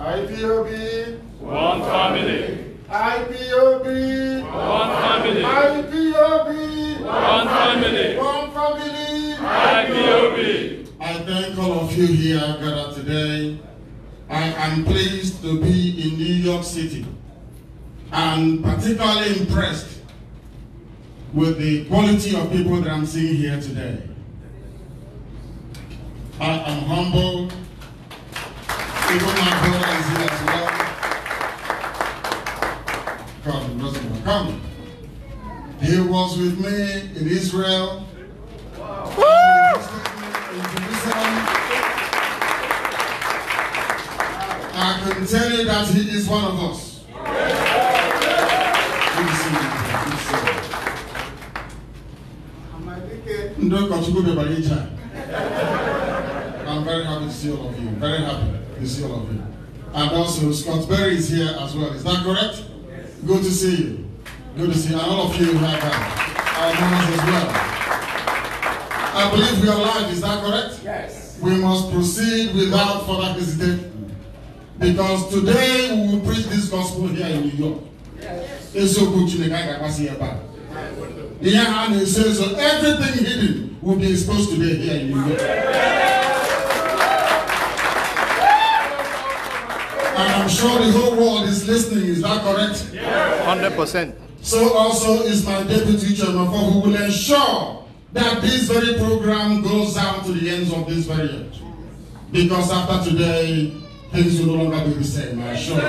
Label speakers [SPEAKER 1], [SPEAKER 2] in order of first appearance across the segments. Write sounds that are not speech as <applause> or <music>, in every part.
[SPEAKER 1] IPOB. One
[SPEAKER 2] family.
[SPEAKER 1] IPOB. One family. IPOB. One family. One family. IPOB.
[SPEAKER 3] I thank all
[SPEAKER 1] of you here gathered today. I am pleased to be in New York City and particularly impressed with the quality of people that I'm seeing here today. I am humbled my brothers here as well. He was with me in Israel. I can tell you that he is one of us. I'm very happy to see all of you. Very happy to see all of you. And also, Scott Berry is here as well. Is that correct? Yes. Good to see you. Good to see you. And all of you have uh, our members as well. I believe we are live. Is that
[SPEAKER 2] correct? Yes.
[SPEAKER 1] We must proceed without further hesitation. Because today we will preach this gospel here in New York. Yes. Everything hidden will be exposed today here in New York. And I'm sure the whole world is listening, is that correct? 100%. So also is my deputy chairman for who will ensure that this very program goes down to the ends of this very end. Because after today, things will no longer be the same, I assure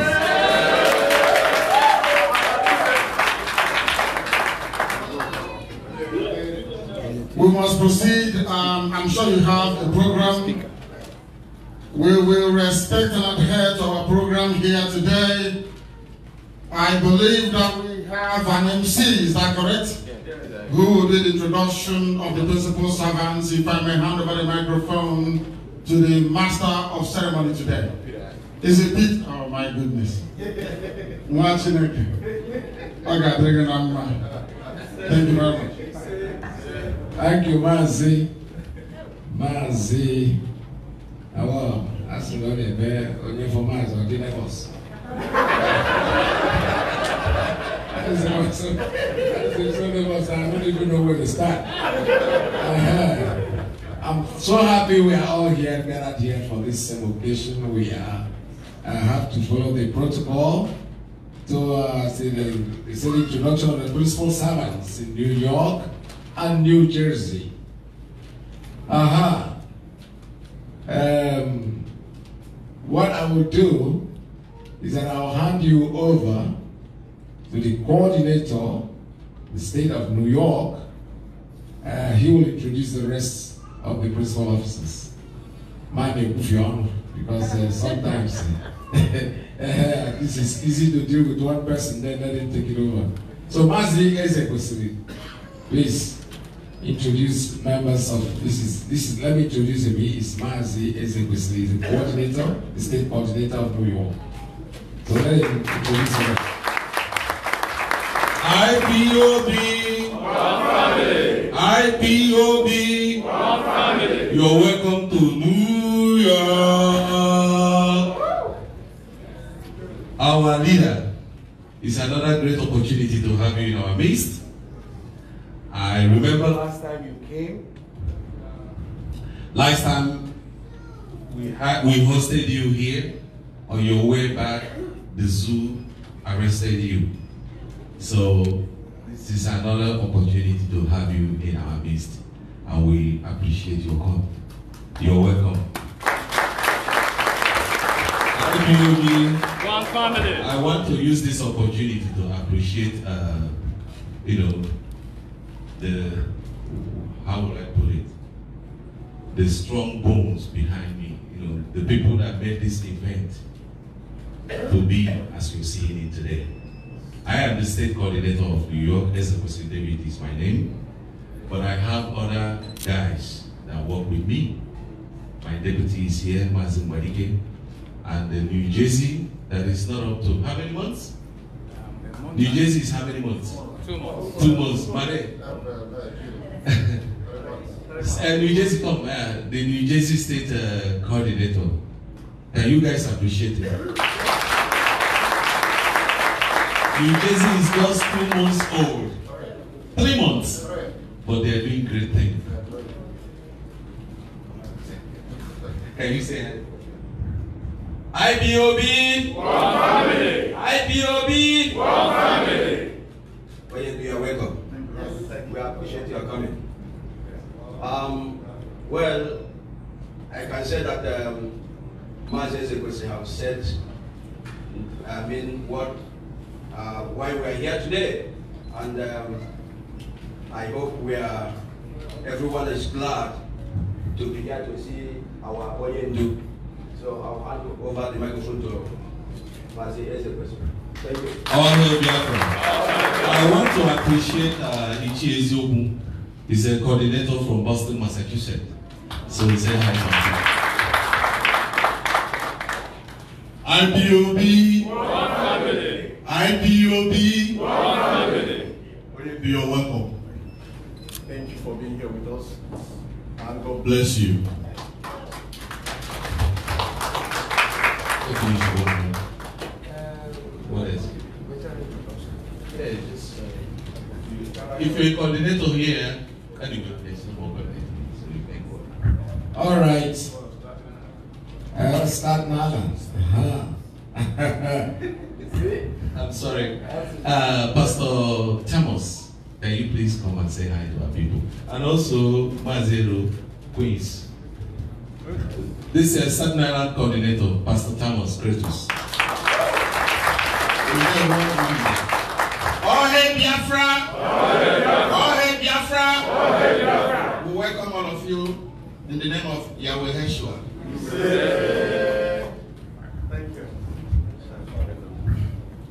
[SPEAKER 1] you. We must proceed. Um, I'm sure you have a program. We will respect and adhere to our program here today. I believe that we have an MC, is that correct? Who will Who did introduction of the principal servants, if I may hand over the microphone to the master of ceremony today. Is it Pete? Oh my goodness.
[SPEAKER 2] Watching it. Okay, thank you very much.
[SPEAKER 4] Thank you, Mazi. Mazi. I asi lɔri ɛbɛ onye fɔma azɔ di lagos
[SPEAKER 2] ɛsɛ wɔsɔ ɛsɛ
[SPEAKER 4] i don't even know where to start
[SPEAKER 2] uh
[SPEAKER 4] i'm so happy we are all here gathered here for this same occasion we are i have to follow the protocol to uh, see the, see introduction of the principal servants in new york and new jersey aha. Uh -huh. Um, what I will do is that I'll hand you over to the coordinator, the state of New York. Uh, he will introduce the rest of the principal officers. My name is Kufion, because uh, sometimes this <laughs> uh, <laughs> is easy to deal with one person, then let him take it over. So, Mazi Ezekwesili, please. introduce members of this is this is let me introduce him. He is Mazi Ezekwesili, he's the coordinator, the state coordinator of New York. So let him introduce
[SPEAKER 2] him. IPOB One
[SPEAKER 5] family. IPOB family. You're welcome to New
[SPEAKER 6] York.
[SPEAKER 7] Our leader is another great opportunity to have you in our midst. I remember last time you came. Last time we had we hosted you here. On your way back, the zoo arrested you. So this is another opportunity to have you in our midst, and we appreciate your come. You're welcome. I want to use this opportunity to appreciate, uh, you know, the how will I put it? The strong bones behind me, you know, the people that made this event to be as you see it today. I am the state coordinator of New York, SFC David is my name, but I have other guys that work with me. My deputy is here, Mazin Wadike, and the New Jersey that is not up to how many months? Um, New Jersey is how many months? Oh, Two months. Two months, Mare. New Jersey come, uh, the New Jersey State uh, coordinator. Can you guys appreciate it? New Jersey is just two months old. Three months. But they are doing great things. Can you say that?
[SPEAKER 8] IBOB. One family. IBOB. One family. Well, you are welcome. Yes. We appreciate your coming. Um, well, I can say that um, Mazes Ekwesi have said, I mean, what, uh, why we are here today. And um, I hope we are, everyone is glad to be here to see our Oyendu. So I'll hand over the microphone to Mazes Ekwesi. Honorable
[SPEAKER 7] welcome. I want to appreciate uh, Ichi Eziobu. He's a coordinator from Boston, Massachusetts. So he said hi to him. IPOB.
[SPEAKER 5] IPOB. IPOB. You're welcome. Thank you for being here with us. And God
[SPEAKER 7] bless you.
[SPEAKER 2] little here.
[SPEAKER 7] Anyway, there's no more All right. I'll
[SPEAKER 2] start now. <laughs>
[SPEAKER 7] I'm sorry. Uh, Pastor Thomas, can you please come and say hi to our people? And also, Mazero Queens. This is Southern Island Coordinator, Pastor Thomas Kratos.
[SPEAKER 1] in the name of Yahweh Heshua.
[SPEAKER 2] Thank you.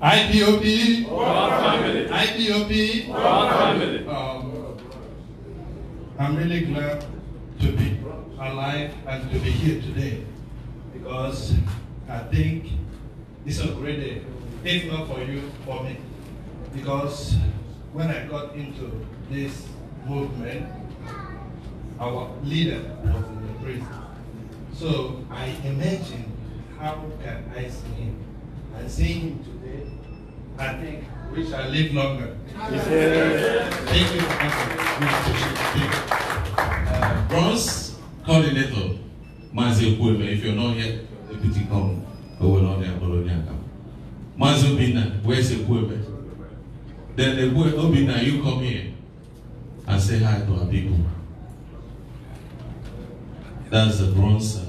[SPEAKER 5] IPOP. IPOP. IPOP. Um,
[SPEAKER 9] I'm really glad to be alive and to be here today because I think it's a great day, if not for you, for me. Because when I got into this movement, our leader was in the prison. So I imagine how can I see him? And see him today, I think we shall live longer. Thank you for
[SPEAKER 7] coming. Bronze coordinator, Mazi Kweme, if you're not here, deputy come, go we're not there, Bologna. Mazi Obina, where's Kweme? Then the Obina, you come here and say hi to our people. That's the bronze uh,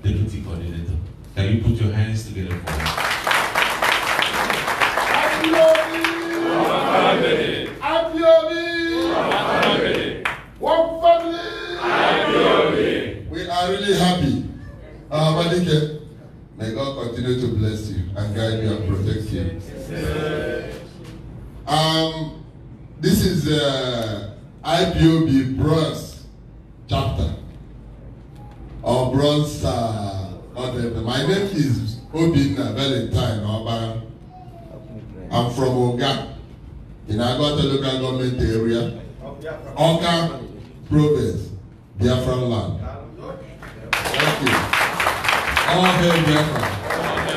[SPEAKER 7] deputy coordinator. Can you put your hands together for him?
[SPEAKER 1] We are really happy. Uh, may God continue to bless you and guide you and protect you. Um, this is uh, IPOB bronze chapter. Evans uh, My name is Obinna Valentine Oba. I'm from Oga in Agota local government area,
[SPEAKER 7] Oka province,
[SPEAKER 1] Biafran land.
[SPEAKER 7] Thank you. All hail Biafra.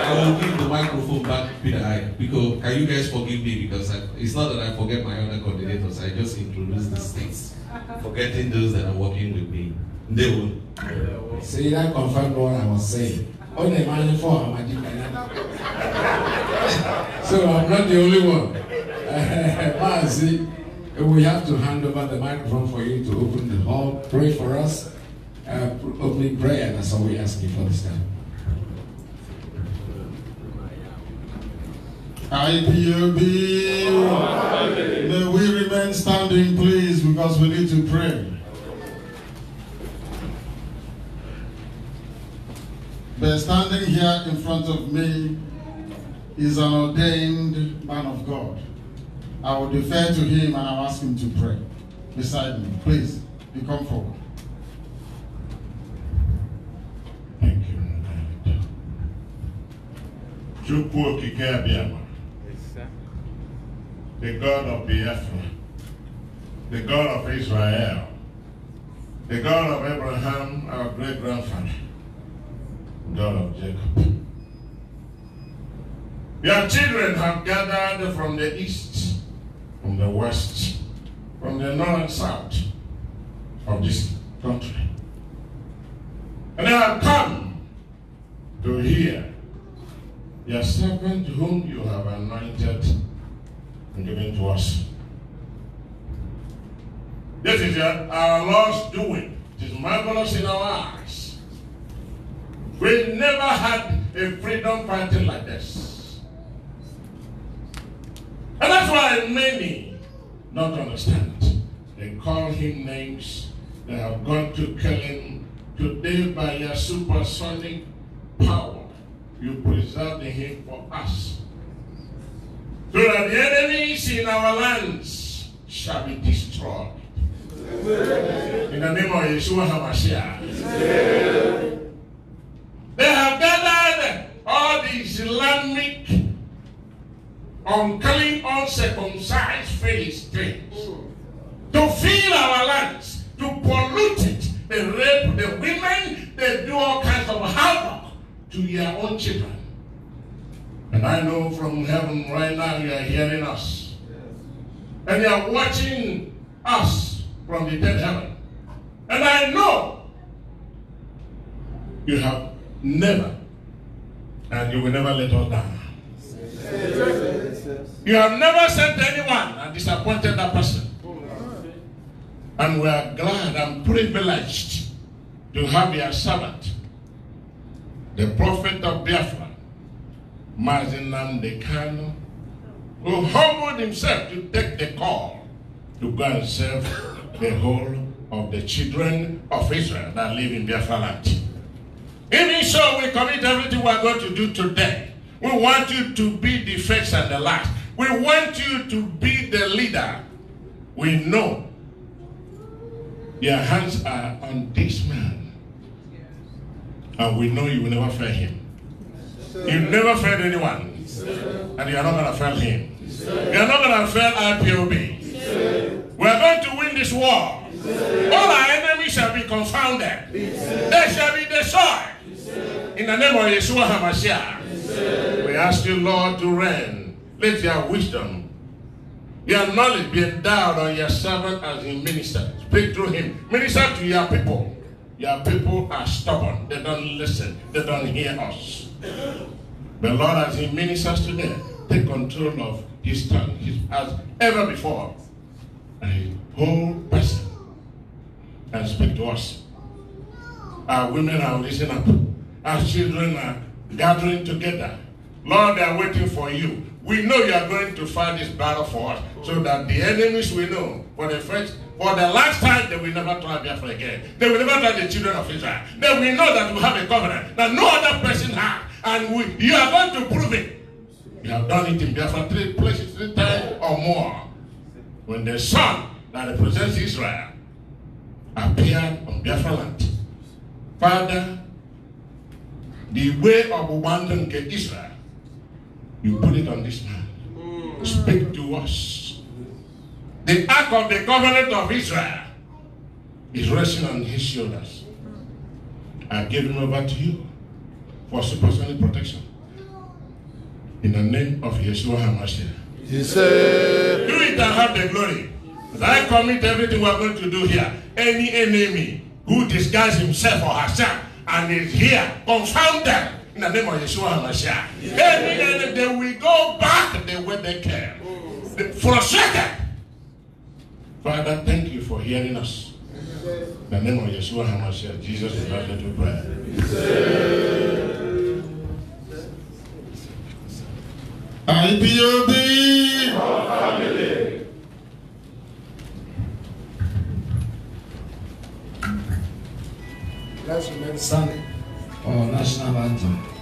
[SPEAKER 7] I will give the microphone back to Peter I because can you guys forgive me because I, it's not that I forget my other coordinators I just introduce the states forgetting those that are working with me. They will. See, that confirmed what I was saying.
[SPEAKER 4] Only the man for <laughs> So I'm not the only one. <laughs> but see, we have to hand over the microphone for you to open the hall, pray for us, uh, opening prayer. That's all we ask you for this time.
[SPEAKER 1] IPOB, may we remain standing, please, because we need to pray. But standing here in front of me is an ordained man of God. I will defer to him and I'll ask him to pray beside
[SPEAKER 3] me. Please, be forward. Thank you, Chukwu Okike the God of Biafra, the God of Israel, the God of Abraham, our great-grandfather, God of Jacob. Your children have gathered from the east, from the west, from the north and south of this country. And they have come to hear your servant whom you have anointed and given to us. This is our Lord's doing. It is marvelous in our eyes. We never had a freedom fighting like this. And that's why many don't understand. They call him names. They have gone to kill him. Today, by your supersonic power, you the him for us. So that the enemies in our lands shall be destroyed. In the name of Yeshua HaMashiach. They have gathered all the Islamic unclean, uncircumcised things to fill our lands, to pollute it. They rape the women, they do all kinds of havoc to your own children. And I know from heaven right now you are hearing us. And you are watching us from the dead heaven. And I know you have Never. And you will never let us down. You have never sent anyone and disappointed that person. And we are glad and privileged to have your servant, the prophet of Biafra, Mazin Namdekano, who humbled himself to take the call to go and serve the whole of the children of Israel that live in Biafra land. Even so, we commit everything we are going to do today. We want you to be the first and the last. We want you to be the leader. We know your hands are on this man. And we know you will never fail him. You never failed anyone. And you are not going to fail him. You are not going to fail IPOB. We are going to win this war. All our enemies shall be confounded. They shall be destroyed. In the name of Yeshua HaMashiach, we ask you, Lord, to reign. Let your wisdom, your knowledge be endowed on your servant as he ministers. Speak through him. Minister to your people. Your people are stubborn. They don't listen. They don't hear us. But Lord, as he ministers today, take control of his tongue his, as ever before. A whole person and speak to us. Our women are listening up as children are gathering together. Lord, they are waiting for you. We know you are going to fight this battle for us so that the enemies will know for the first, for the last time they will never try Biafra again. They will never try the children of Israel. They will know that we have a covenant that no other person has. And we, you are going to prove it. You have done it in Biafra three places, three times or more. When the son that represents Israel appeared on Biafra land, Father, the way of nke Israel you put it on this man hmm. speak to us the ark of the covenant of Israel is resting on his shoulders I give him over to you for supersonic protection in the name of Yeshua HaMashiach he said do it and have the glory I commit everything we are going to do here any enemy who disguises himself or herself and is here. Confound them in the name of Yeshua HaMashiach. Yes. They will go back the way they came. Oh. They frustrated. Father, thank you for hearing us. In the name of Yeshua HaMashiach, Jesus is our little prayer.
[SPEAKER 4] IPOB! Our family. Let's remain standing for our national anthem.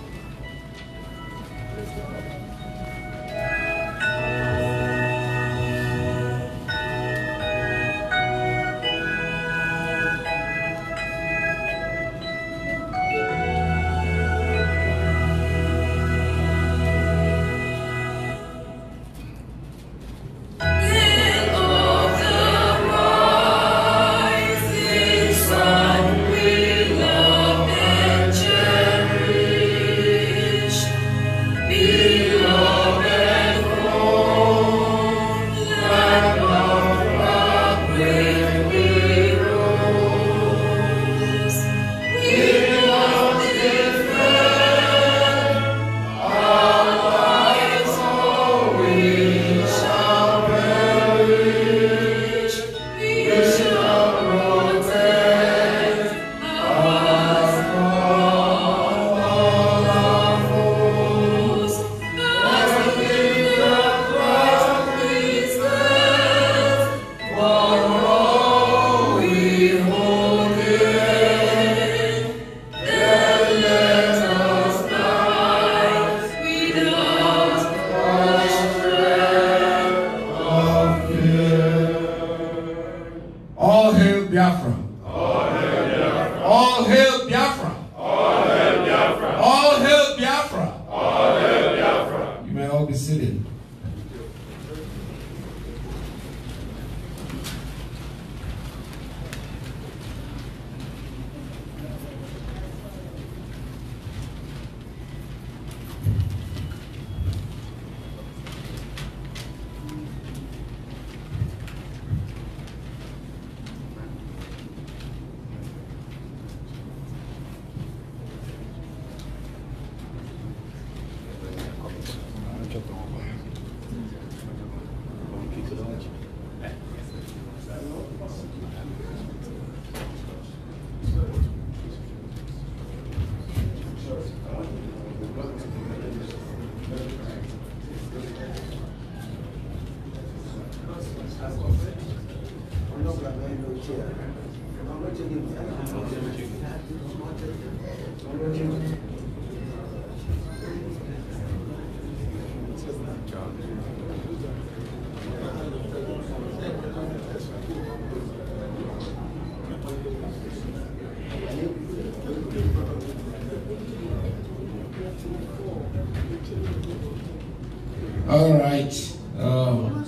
[SPEAKER 4] um,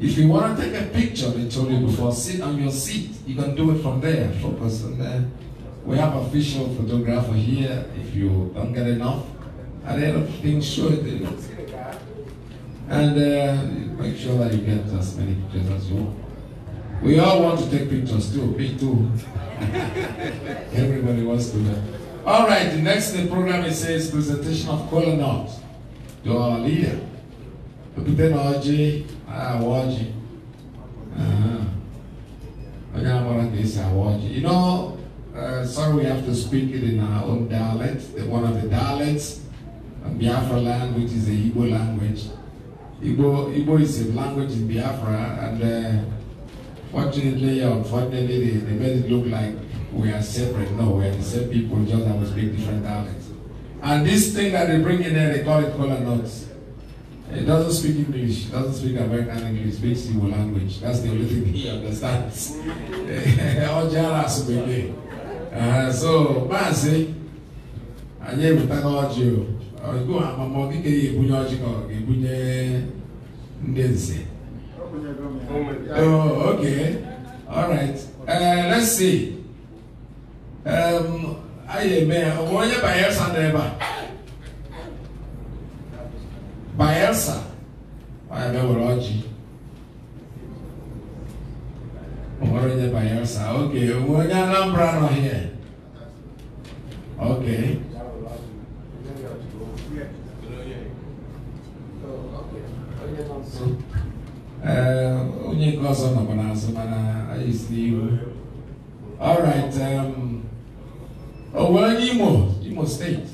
[SPEAKER 4] if you want to take a picture, they told you before, sit on your seat. You can do it from there, focus on there. We have official photographer here. If you don't get enough, I lot of things show it. And uh, make sure that you get as many pictures as you want. We all want to take pictures too, me too. <laughs> Everybody wants to. that. All right, the next the program it says presentation of Colonel, to our leader okpukpe na ọjị awa ọjị onye amara ka esi awa ọjị you know uh, sorry we have to speak it in our own dialect the one of the dialects of biafra language is the igbo language igbo igbo is a language in biafra and uh, fortunately or unfortunately they, they made it look like we are separate no we are the same people just that we speak different dialects and this thing that they bring in there they call it color notes. He doesn't speak English, doesn't speak American English, speaks Igbo language. That's the only thing he understands. <laughs> uh, so, Mazi, anyị ebutaga ọjị o amama ka ọ ga-ebunye ndị nze uh, let's see um, onye Baessa, Abel Rod. What is the Baessa? Okay, we're eh. Ok. Alhambra here. Okay. onye que ọzọ nọkwa n'azụ mana anyị si n'ihu alright um, onwe onye imo imo steeti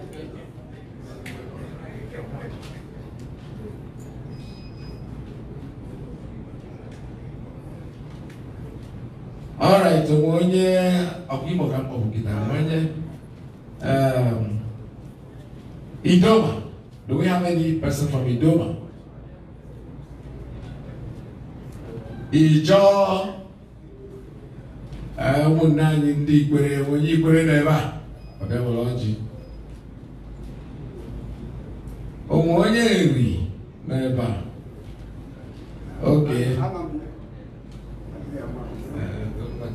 [SPEAKER 4] Igbo ka mkpọbụgidere onye Idoma do we have any person from Idoma anyị ndị ikwere onye ikpere nọ ebe a ọ bịa were ọjị onwe onye nri nọ ebe oke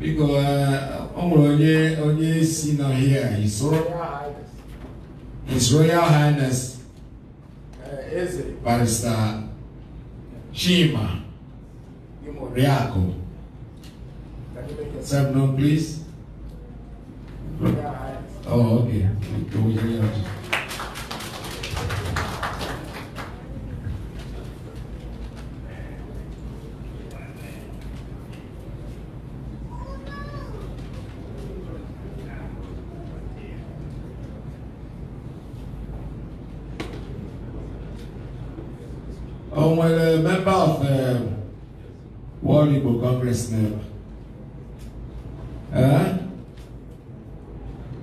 [SPEAKER 4] biko ọ nwere onye onye si n'ọhịa his royal highness his royal highness eze barista chima oriakụ Sir, no, please. Oh, okay. объяснила. Huh?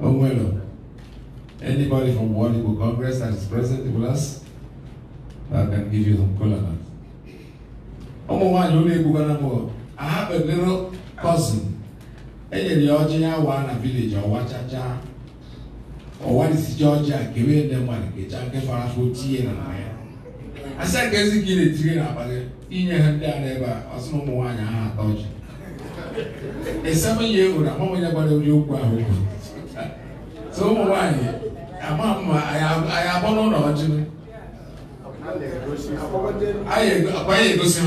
[SPEAKER 4] Oh, well. Anybody from Wadibo Congress that is present with us, I can give you some color. Ọmọ nwaanyị ụlọ egwu gwara m I have a little cousin. E nyere ya ọjị ya waa na village ọwa chacha. Ọwa dịsịcha ọjị a kewe nne mmadụ kecha nke fara afọ tie na ya. Asa nke ezi ka ị na-etiri n'abalị inye ha ndị ara ebe a ọsị ụmụ nwaanyị ha atọ ọjị ịsam ihe ewu na onye gbara ori okwu ahụ okwu so ụmụ nwaanyị ama mma anyị abọ n'ụlọ ọjị
[SPEAKER 3] anyị egosi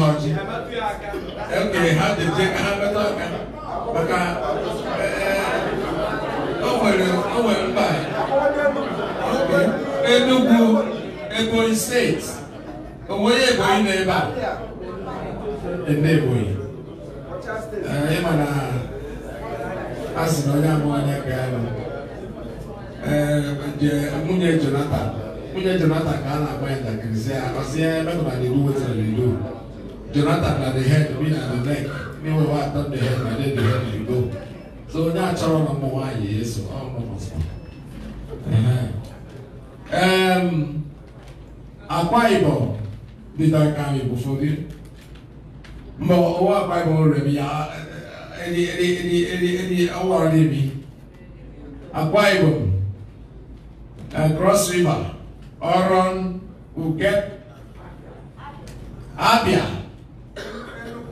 [SPEAKER 3] ha ọjị ekere ha dete ka ha meta aka maka eh, o
[SPEAKER 4] nwere mba Enugu Ebonyi steeti onwe onye Ebonyi nọ ebe a ndị ebonyi ịma eh, na a sị na onye abụọ anya ka ya eh, nwunye jonathan nwunye jonathan ka a na-agba ya ntakịrị si ya akpasị ya emetụba na iwu wetara na ido jonathan na the head we na the neck n'iwe wa atọ the head na the head na ido so onye achọrọ na ụmụ nwaanyị ya eso ọ mụ akwa ibom dị ka aka anyị bụ ụfọdụ ma ɔwɔ bible rɛ any any any any any. ɛdi ɔwɔrɔ de bi akwa ibom cross river ɔrɔn uket abia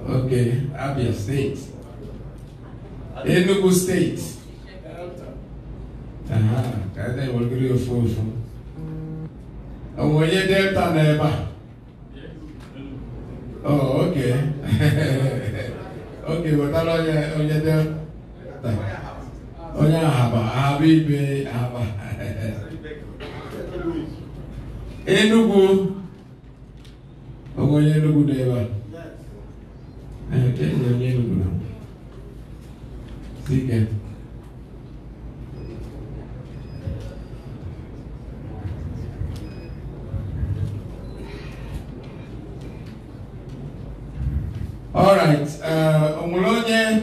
[SPEAKER 4] okay abia state enugu state kàdé wọlé ofurufu ọmọ onye delta na Delta a. Oh, okay. <laughs> okay, But wetara know onye dị onye ahaba ahaba ibe ahaba Enugu onye Enugu dị ebe a. Ee, onye Enugu. Sike. alright uh, o nwere onye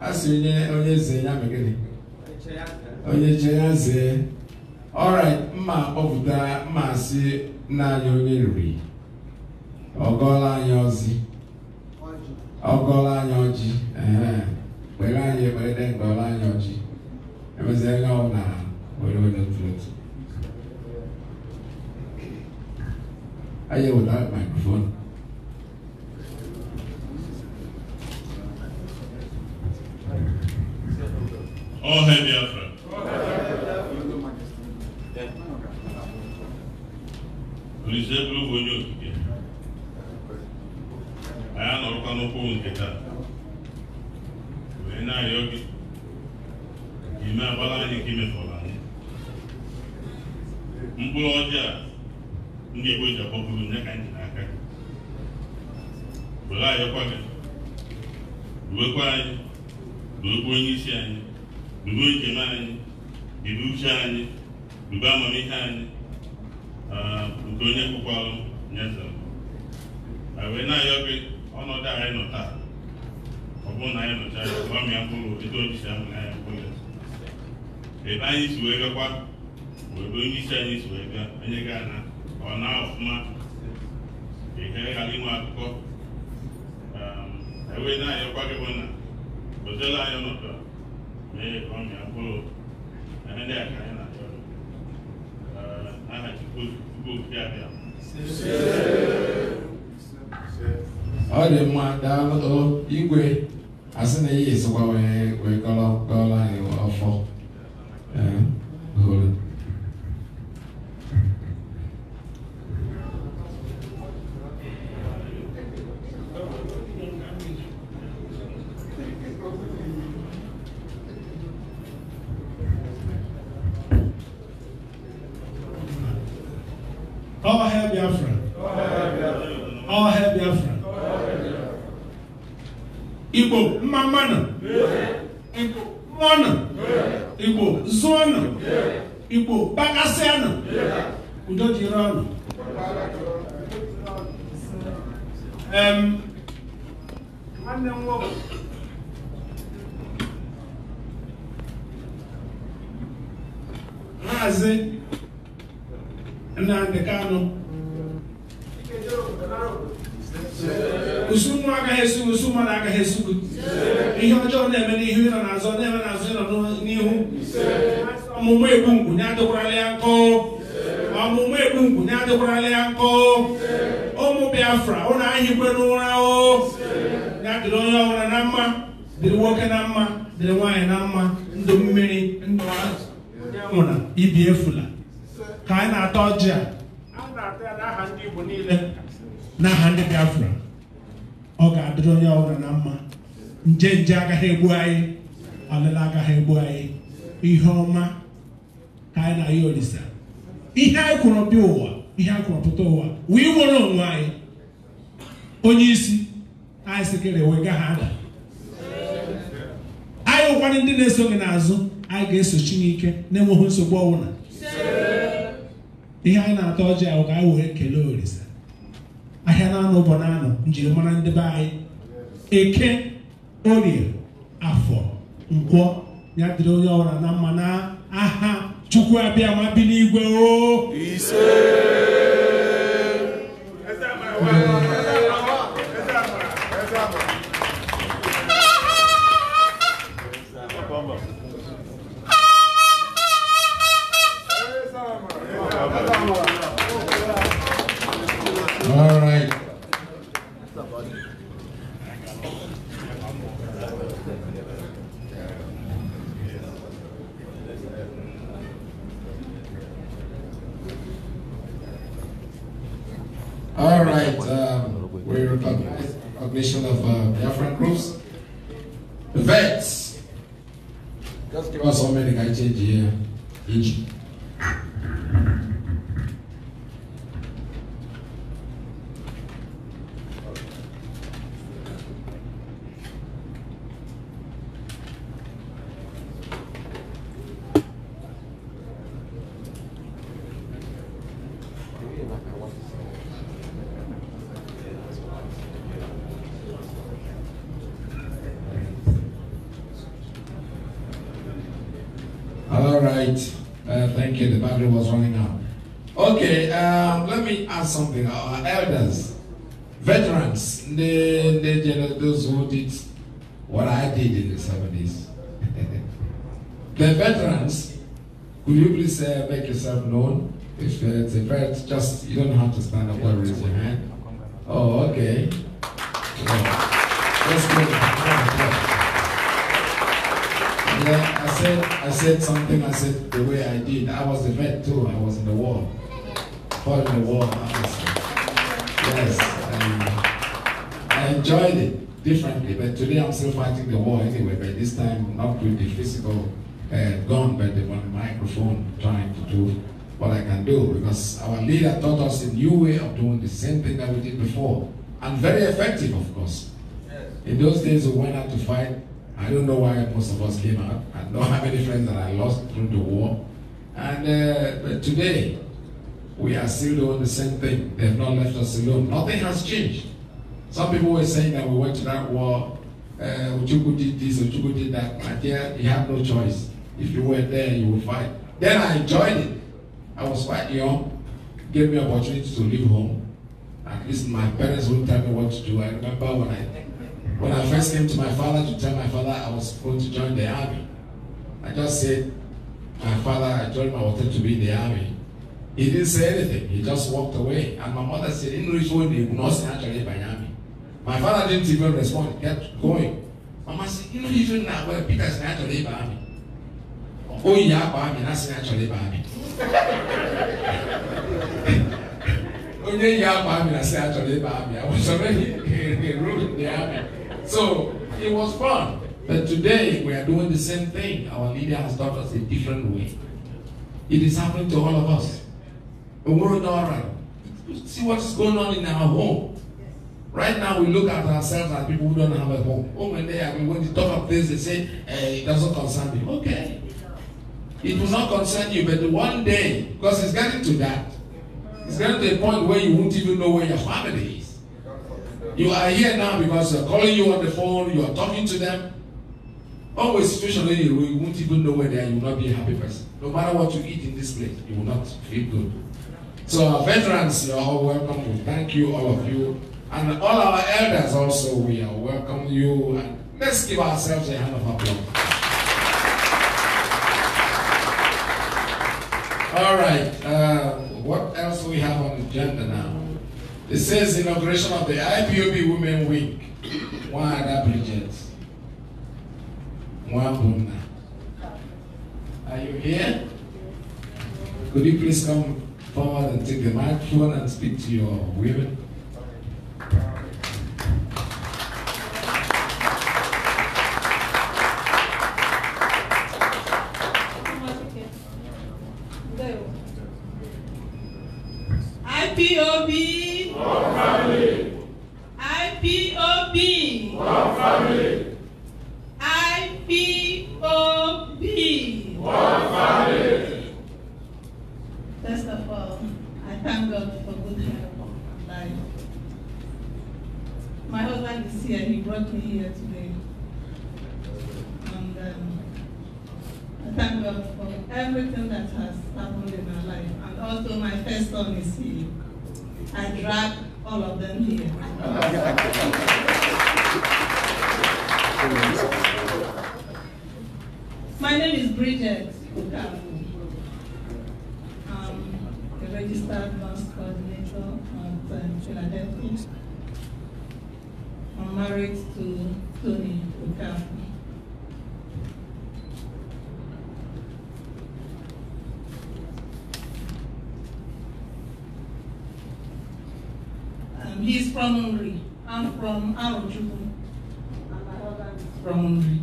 [SPEAKER 4] a sị onye onye zee ya megịnị onye che ya zee alright mma kpọpụta mma asị nna anyị onye riri ọgọla anyị ọzi ọgọla anyị ọjị kpere anyị ekpere ngọla anyị ọjị emeziela ọwụ na onye onye otu otu anyị wetara mikrofonu
[SPEAKER 2] All hail Biafra.
[SPEAKER 5] bụrụ bụ onye okike. Anyị anọrọkwa n'ụkwụ nke taa. Wee na-arịọ gị ka ime anyị nke imefọrọ anyị. Mkpụrụ ọjọọ ndị Igbo ji akpọpụrụ nye isi anyị. bube njem anyị bube uche anyị bube amamihe anyị nke onye kpụkwalụ nyesara wee na-ayọ gị ọnọdụ anyị nọ taa ọ bụrụ na anyị nọchara ya m ya mkpụrụ etu o jisi ahụ na ya mkpụrụ ebe anyị si wee gakwa ebe onye isi anyị si wee bịa onye ga na ọ na ọfụma ihe ghara inwe akụkọ ewee na-ayọkwa gị bụ na ozela anyị nọtara bɛyɛ kwame akoro ɛne dɛ aka yɛ
[SPEAKER 4] ọ dị mma daalụ igwe asị na ihe esikwa wee wee kọrọ kọrọ anyị ọfọ ee hụrụ
[SPEAKER 5] hail Biafra. All hail Biafra. Igbo mmamana. Igbo mụọna. Igbo zụọna. Igbo gbakasịana. Udo dịrị ọnụ. Nwanne m nwoke. Maazị Nnamdị Kanụ. usu mmụọ agaghị esi usu mmadụ agaghị esu gị ihe ọjọọ na-eme n'ihu ịnọ n'azụ na-eme n'azụ ịnọ n'ihu ọmụmụ egbu ngwunye adịkwara ya nkọ ọmụmụ egbu ngwunye adịkwara ya nkọ ụmụ biafra ụlọ anyịkwe n'ụra o ya dịrị onye ọhụrụ na mma dịrị nwoke na mma dịrị nwaanyị na mma ndụ mmiri ndụ nwụra ibi efula ka anyị na atọ ọjị a na-ata n'aha ndị Igbo niile ndị Biafra ọ ga-adịrị onye ọbụla na mma nje nje agaghị egbu anyị ọlịla agaghị egbu anyị ihe ọma ka anyị na ya olisa ihe anyị kwụrụ bịa ụwa ihe anyị kwụrụ pụta ụwa wee nwere onwe anyị onye isi anyị sikere wee ha ada anyị ụkwanụ ndị na-eso gị n'azụ anyị ga-eso Chineke na-enweghị nsogbu ọbụla ihe anyị na-ata ọjị ahụ ka anyị wee kelee ahịa na-anụ bụ anụ njirimara ndị be anyị eke orie afọ ngwọ ya dịrị onye ọbụla na mma na aha chukwu abịa ma bi n'igwe o
[SPEAKER 4] something, our elders, veterans, they, they, those who did what I did in the 70s. <laughs> the veterans, could you please uh, make yourself known? If uh, it's a vet, just, you don't have to stand up or raise your hand. Oh, okay. Yeah. I said, I said something, I said the way I did. I was a vet too, I was in the war. What a warm answer. Yes, um, I enjoyed it differently, but today I'm still fighting the war anyway, but this time not with the physical uh, gun, but the microphone trying to do what I can do, because our leader taught us a new way of doing the same thing that we did before, and very effective, of course. In those days, we went out to fight. I don't know why most of us came out. I know how many friends that I lost through the war. And uh, today, we are still doing the same thing. They have not left us alone. Nothing has changed. Some people were saying that we went to that war, uh, Uchuku did this, Uchuku did that. My dear, you have no choice. If you were there, you would fight. Then I joined it. I was quite young. It gave me opportunity to leave home. At least my parents wouldn't tell me what to do. I remember when I when I first came to my father to tell my father I was going to join the army. I just said, my father, I told I wanted to be in the army. He didn't say anything. He just walked away. And my mother said, in which one he not say actually by me." My father didn't even respond. He kept going. Mama said, in which one now where Peter said actually by me. Oh yeah, by me, that's actually by me. Oh yeah, by me, that's actually by me. I was already <laughs> ruined the army. So it was fun. But today we are doing the same thing. Our leader has taught us a different way. It is happening to all of us a world alright. See what's going on in our home. Right now, we look at ourselves as people who don't have a home. Oh my day, I mean, when you talk of this, they say, eh, it doesn't concern me. Okay. It will not concern you, but one day, because it's getting to that, it's getting to a point where you won't even know where your family is. You are here now because they're calling you on the phone, you are talking to them. Always especially you, you won't even know where they are, you will not be a happy person. No matter what you eat in this place, you will not feel good. So our veterans, you're all welcome. We thank you, all of you. And all our elders also, we are welcome you. And let's give ourselves a hand of applause. all right, uh, what else do we have on the agenda now? It says inauguration of the IPOB Women Week. One other Bridget. One Buna. Are you here? Could you please come forward and take the microphone and speak to your women.
[SPEAKER 6] here, he brought me here today. And um, I thank God for everything that has happened in my life. And also my first son is here. I drag all of them here. my name is Bridget Okamu. I'm a registered nurse coordinator at uh, Philadelphia married to Tony Okafor. Um, he's from Hungary. I'm from Arochukwu. From Hungary.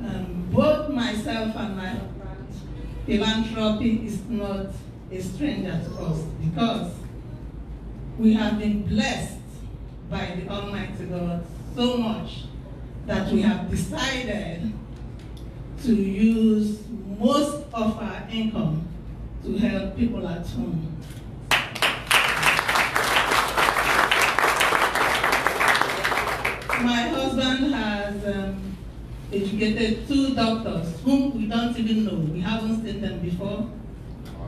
[SPEAKER 6] Um, both myself and my philanthropy is not a stranger to us because we have been blessed by the Almighty God so much that we have decided to use most of our income to help people at home. My husband has um, educated two doctors whom we don't even know. We haven't seen them before.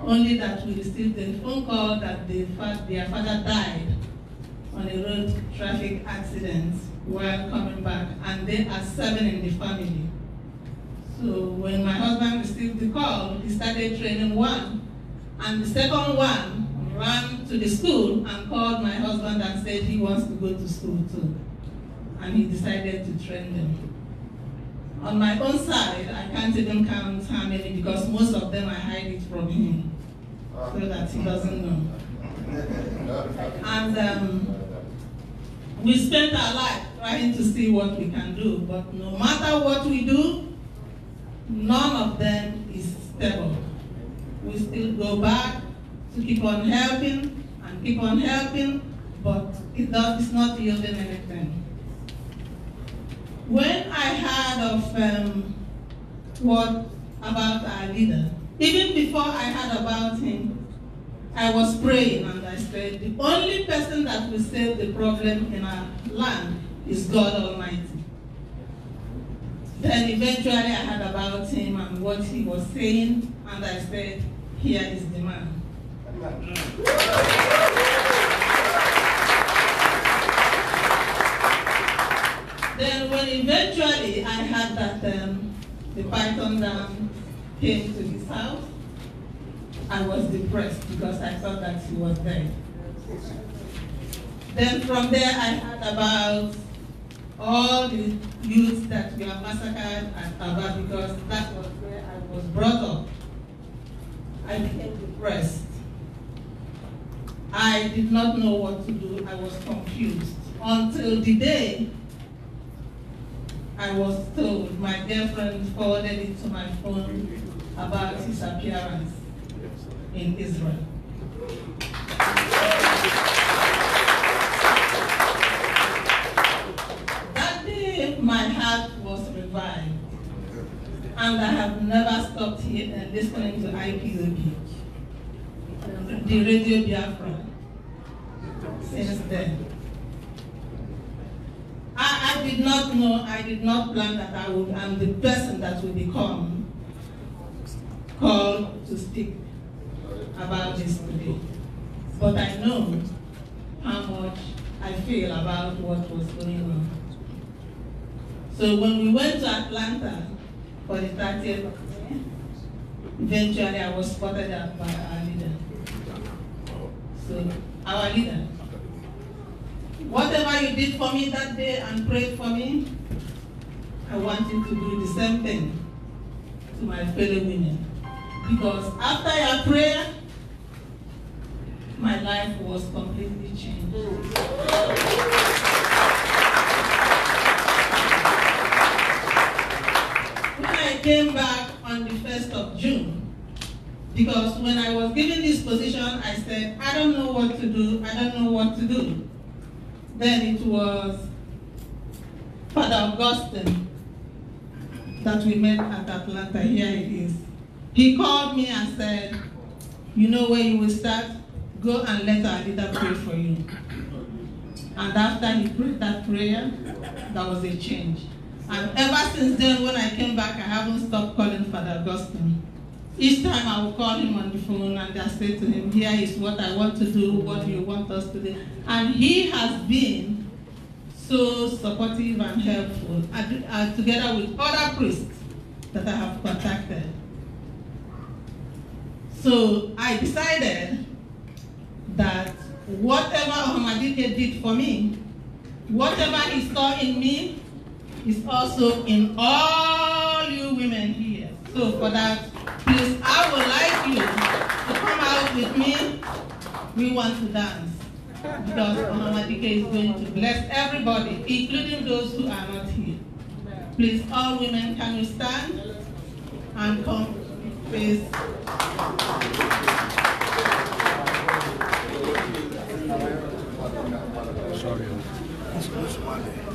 [SPEAKER 6] Only that we received a phone call that they, their father died on a road traffic accident while coming back, and there are seven in the family. So when my husband received the call, he started training one, and the second one ran to the school and called my husband and said he wants to go to school too. And he decided to train them. On my own side, I can't even count how many because most of them I hide it from him so that he doesn't know. And um, we spend our life trying to see what we can do, but no matter what we do, none of them is stable. We still go back to keep on helping and keep on helping, but it does, it's not yielding anything. When I heard of um, what about our leader, even before I heard about him, I was praying and I said, the only person that will solve the problem in our land is God Almighty. Then eventually I heard about him and what he was saying, and I said, here is the man. then when eventually I heard that um, the Python down came to his house, I was depressed because I thought that he was dead. Then from there I heard about all the youths that were massacred at Aba because that was where I was brought up. I became depressed. I did not know what to do. I was confused. Until the day I was told, my dear friend forwarded it to my phone about his appearance in Israel. That day, my heart was revived, and I have never stopped here and uh, listening to IPOB, the Radio Biafra, since then. I, I, did not know, I did not plan that I would, I'm the person that will become called to speak about this today, but I know how much I feel about what was going on. So when we went to Atlanta for the 30th, eventually I was spotted up by our leader. So our leader. Whatever you did for me that day and prayed for me, I want you to do the same thing to my fellow women. Because after your prayer, my life was completely changed. When I came back on the 1st of June, because when I was given this position, I said, I don't know what to do, I don't know what to do. Then it was Father Augustine that we met at Atlanta, here it is. He called me and said, you know where you will start? Go and let our leader pray for you. And after he prayed that prayer, that was a change. And ever since then, when I came back, I haven't stopped calling Father Augustine. Each time I will call him on the phone and I say to him, here is what I want to do, what you want us to do. And he has been so supportive and helpful, and, together with other priests that I have contacted. So I decided that whatever Ahmadike did for me, whatever he saw in me, is also in all you women here. So for that, please, I would like you to come out with me. We want to dance because Ahmadike is going to bless everybody, including those who are not here. Please, all women, can you stand and come, please? Sorry. This is Monday.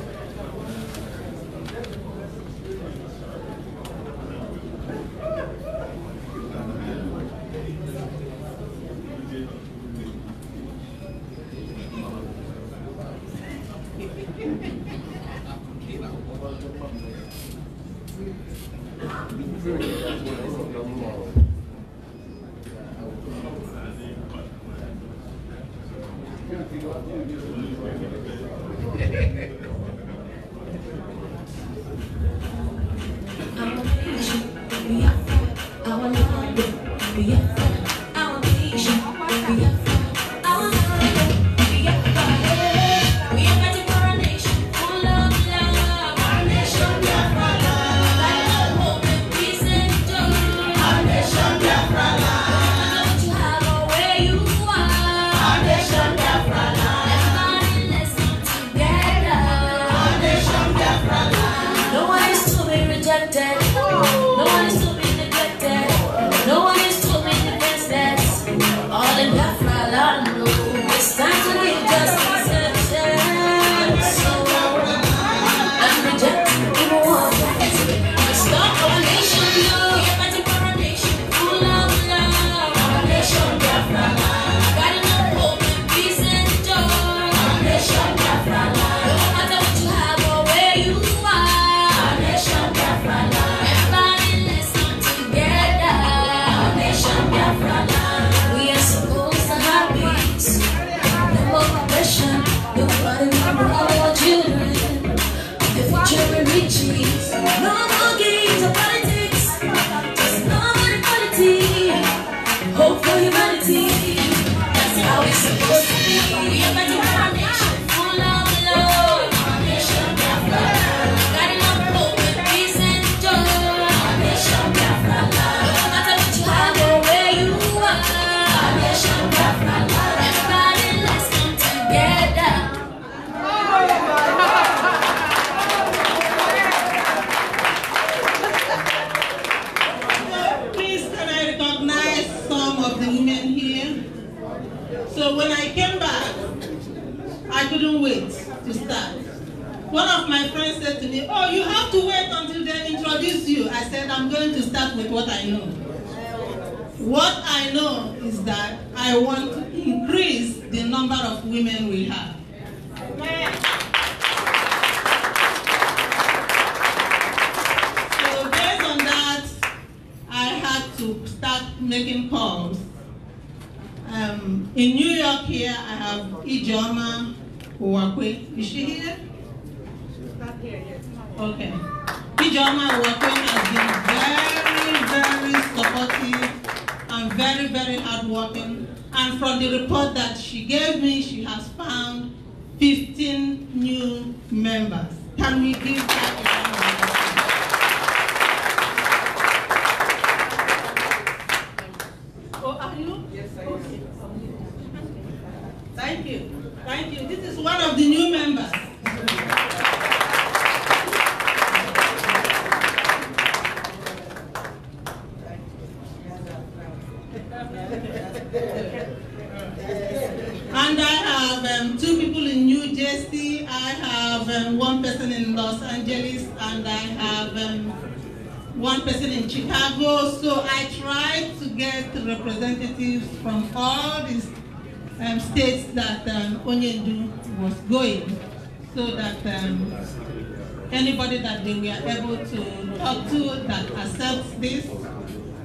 [SPEAKER 6] everybody that they were able to talk to that accepts this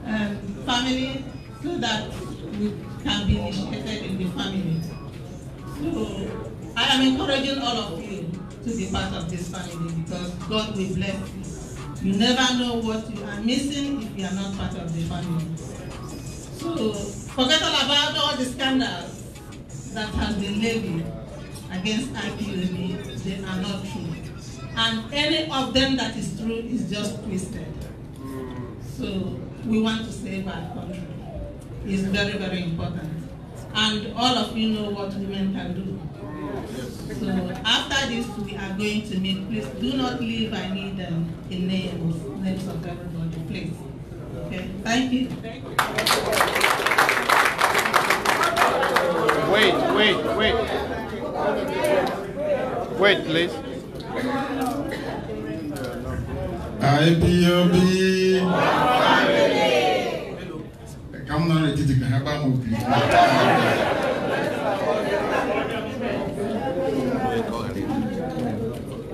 [SPEAKER 6] um, family so that we can be initiated in the family. So I am encouraging all of you to be part of this family because God will bless you. You never know what you are missing if you are not part of the family. So forget all about all the scandals that have been levied against IPOB. They are not true. and any of them that is true is just twisted. So we want to save our country. It's very, very important. And all of you know what women can do. So after this, we are going to meet. Please do not leave. I
[SPEAKER 4] need um, the names, names of everybody, please. Okay, thank you. Wait, wait, wait. Wait, please.
[SPEAKER 1] IPOB. Ẹ̀ka múná rẹ̀ títí kan yábá mọ̀ bí.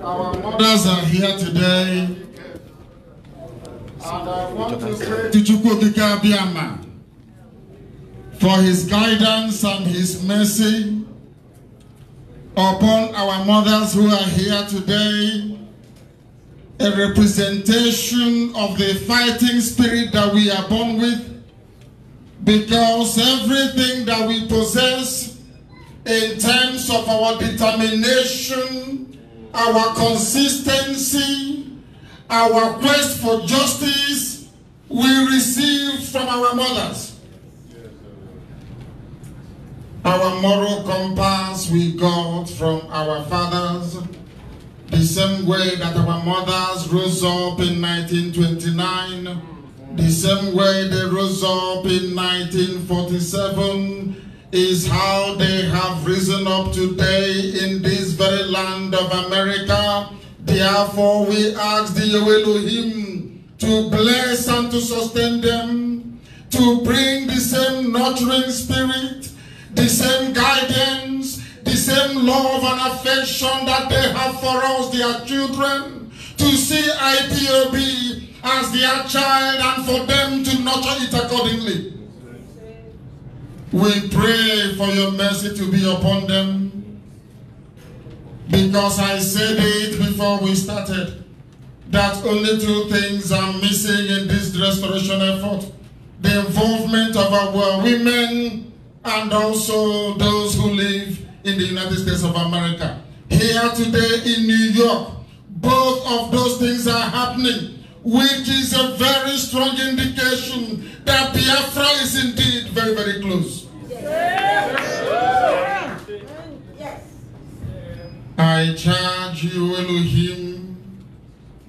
[SPEAKER 1] Our mothers are here today. And
[SPEAKER 2] I want to say
[SPEAKER 1] to Chukwu Abiyama for his guidance and his mercy upon our mothers who are here today. a representation of the fighting spirit that we are born with because everything that we possess in terms of our determination, our consistency, our quest for justice, we receive from our mothers. Our moral compass we got from our fathers the same way that our mothers rose up in 1929, the same way they rose up in 1947,
[SPEAKER 2] is how they have risen up today in this very land of
[SPEAKER 1] America. Therefore, we ask the Elohim to bless and to sustain them, to bring the same nurturing spirit, the same guidance, same love and affection that they have for us, their children, to see IPOB as their child and for them to nurture it accordingly. We pray for your mercy to be upon them because I said it before we started that only two things are missing in this restoration effort. The involvement of our women and also those who live in the United States of America, here today in New York. Both of those things are happening, which is a very strong indication that Biafra is indeed very, very close. Yes. I charge you, Elohim,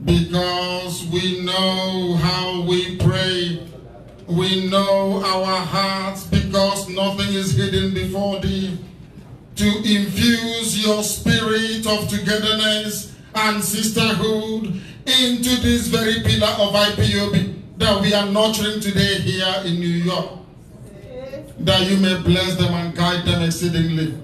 [SPEAKER 1] because we know how we pray. We know our hearts because nothing is hidden before thee to infuse your spirit of togetherness and sisterhood into this very pillar of IPOB that we are nurturing today here in New York. That you may bless them and guide them exceedingly.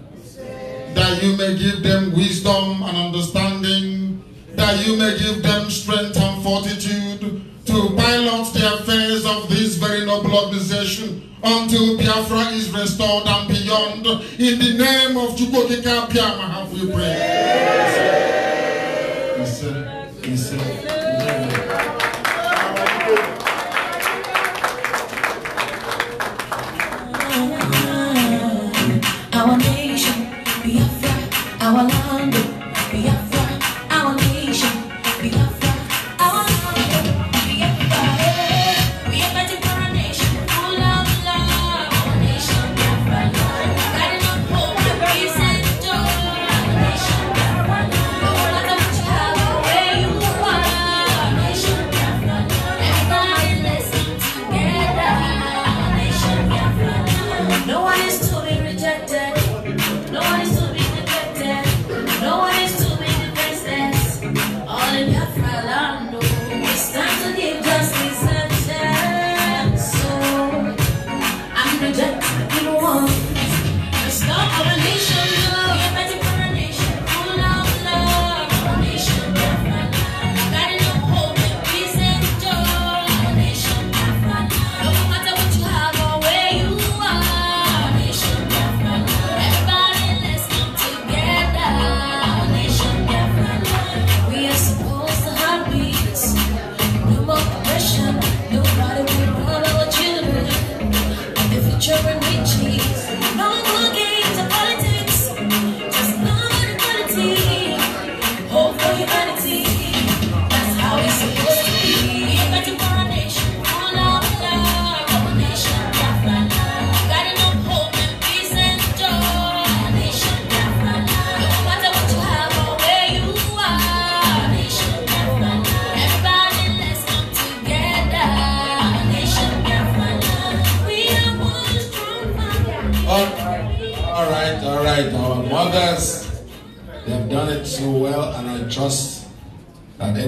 [SPEAKER 1] That you may give them wisdom and understanding. That you may give them strength and fortitude to pilot the affairs of this very noble organization until Biafra is restored and beyond. In the name of Chukwokika Piama have we pray.
[SPEAKER 10] I want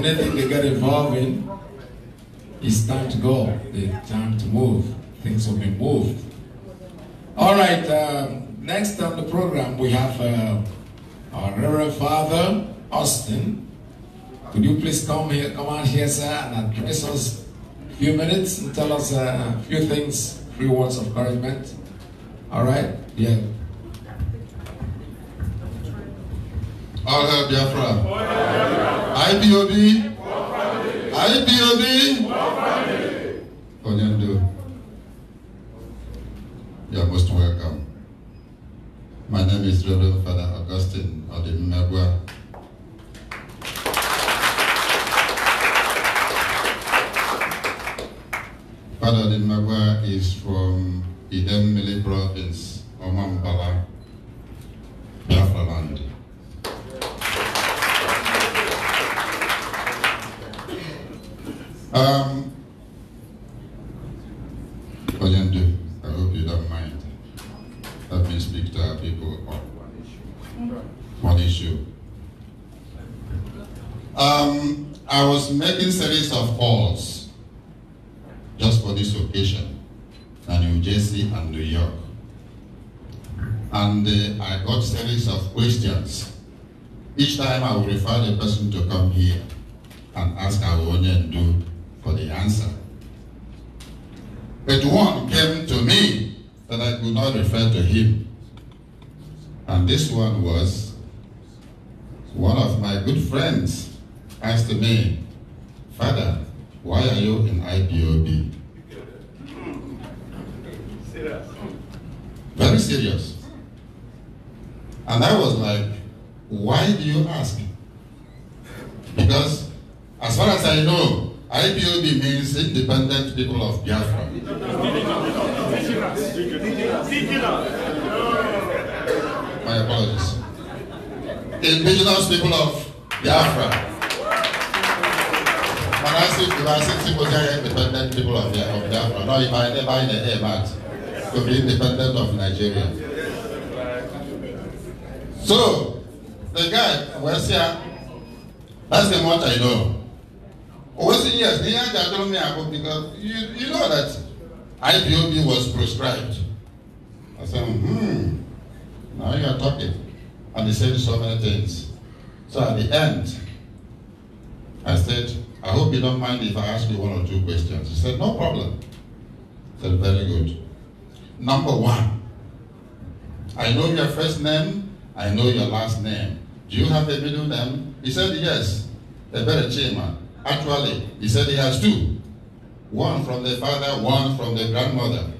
[SPEAKER 4] anything they get involved in, it's time to go. It's time to move. Things will be moved. All right, uh, next on the program we have uh, our Reverend Father Austin. Could you please come here, come on here, sir, and address us a few minutes and tell us uh, a few things, few words of encouragement. All right? Yeah. All hail Biafra.
[SPEAKER 1] IPOB.
[SPEAKER 11] IPOB.
[SPEAKER 1] Onyendo. You are most welcome. My name is Reverend Father Augustine Odimegwa. Father Odimegwa is from Idemili province, Omambala, Biafra land. Um, Oyende, I hope you don't mind. Let me speak to our people on one issue. One issue. Um, I was making series of calls just for this occasion, and New Jersey and New York. And uh, I got series of questions. Each time I would refer the person to come here and ask our onion do for the answer. But one came to me that I could not refer to him. And this one was one of my good friends asked me, Father, why are you in IPOB? Very serious. And I was like, why do you ask? Because as far as I know, IPOB means Independent People of Biafra. My apologies. Indigenous People of Biafra. When I say if I independent people of Biafra, no, if I never in the air, but to be independent of Nigeria. So, the guy was here, that's the what I know. Owesi oh, yes, Nyanja told me about because you, you know that IPOB was prescribed. I said, hmm, now you are talking. And he said so many things. So at the end, I said, I hope you don't mind if I ask you one or two questions. He said, no problem. I said, very good. Number one, I know your first name, I know your last name. Do you have a middle name? He said, yes, Ebere Chima. Actually, he said he has two one from the father, one from the grandmother.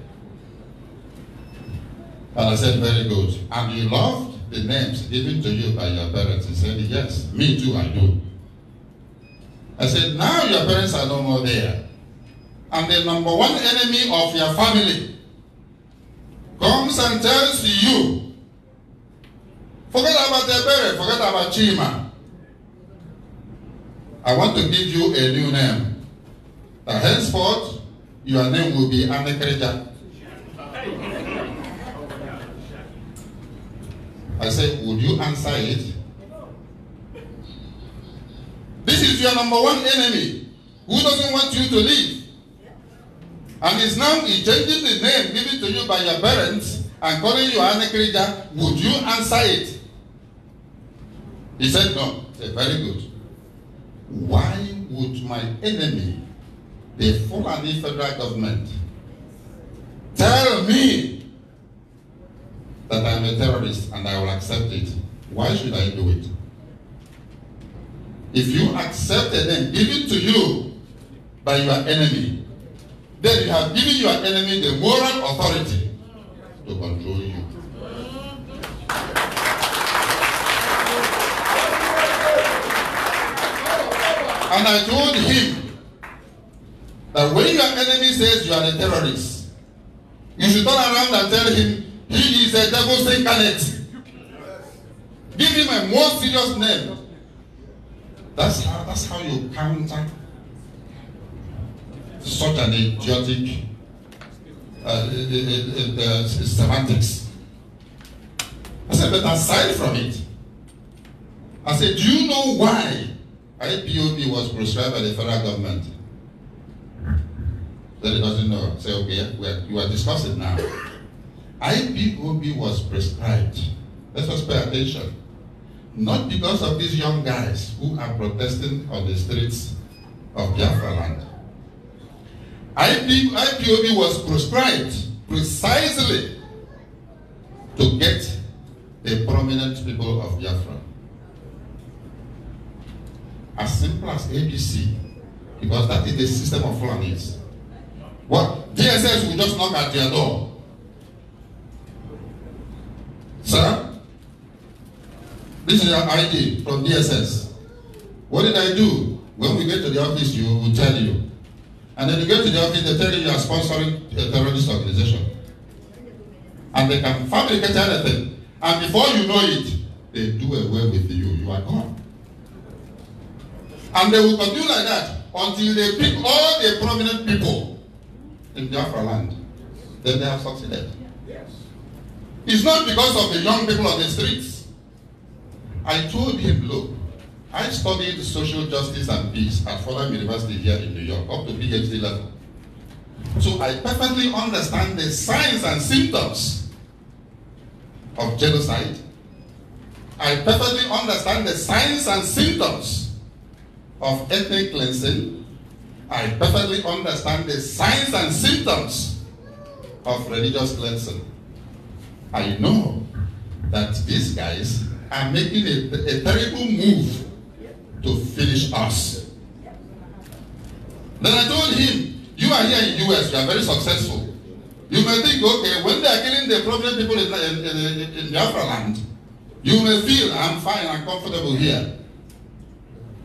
[SPEAKER 1] And I said, Very good. And you loved the names given to you by your parents? He said, Yes, me too, I do. I said, Now your parents are no more there. And the number one enemy of your family comes and tells you, Forget about their parents, forget about Chima. I want to give you a new name. That uh, henceforth, your name will be Anekrija. I said, would you answer it? This is your number one enemy who doesn't want you to live. And is now changing the name given to you by your parents and calling you Anekrija. Would you answer it? He said, no. I said, very good why would my enemy, the Fulani federal government, tell me that I'm a terrorist and I will accept it? Why should I do it? If you accept a name given to you by your enemy, then you have given your enemy the moral authority to control you. And I told him that when your enemy says you are a terrorist, you should turn around and tell him he is a devil incarnate. Give him a more serious name. That's how that's how you counter such an idiotic uh, uh, uh, uh, uh semantics. I said, but aside from it, I said, do you know why IPOB was prescribed by the federal government. That it doesn't know. Say, okay, we are, you are discussing now. IPOB was prescribed. Let us pay attention. Not because of these young guys who are protesting on the streets of Biafra land. IP, IPOB was prescribed precisely to get the prominent people of Biafra. as simple as ABC because that is the system of Fulanis. What DSS will just knock at your door. Sir, this is your ID from DSS. What did I do? When we get to the office, you will tell you. And then you get to the office, they tell you you are sponsoring a terrorist organization. And they can fabricate anything. And before you know it, they do away with you. You are gone. And they will continue like that until they pick all the prominent people in Biafra land. Then they have succeeded. Yes. It's not because of the young people on the streets. I told him, look, I studied social justice and peace at Fordham University here in New York, up to PhD level. So I perfectly understand the signs and symptoms of genocide. I perfectly understand the signs and symptoms of ethnic cleansing, I perfectly understand the signs and symptoms of religious cleansing. I know that these guys are making a, a terrible move to finish us. Then I told him, you are here in US, you are very successful. You may think, okay, when they are killing the problem people in, in, in, in Biafra land, you may feel, I'm fine, I'm comfortable here.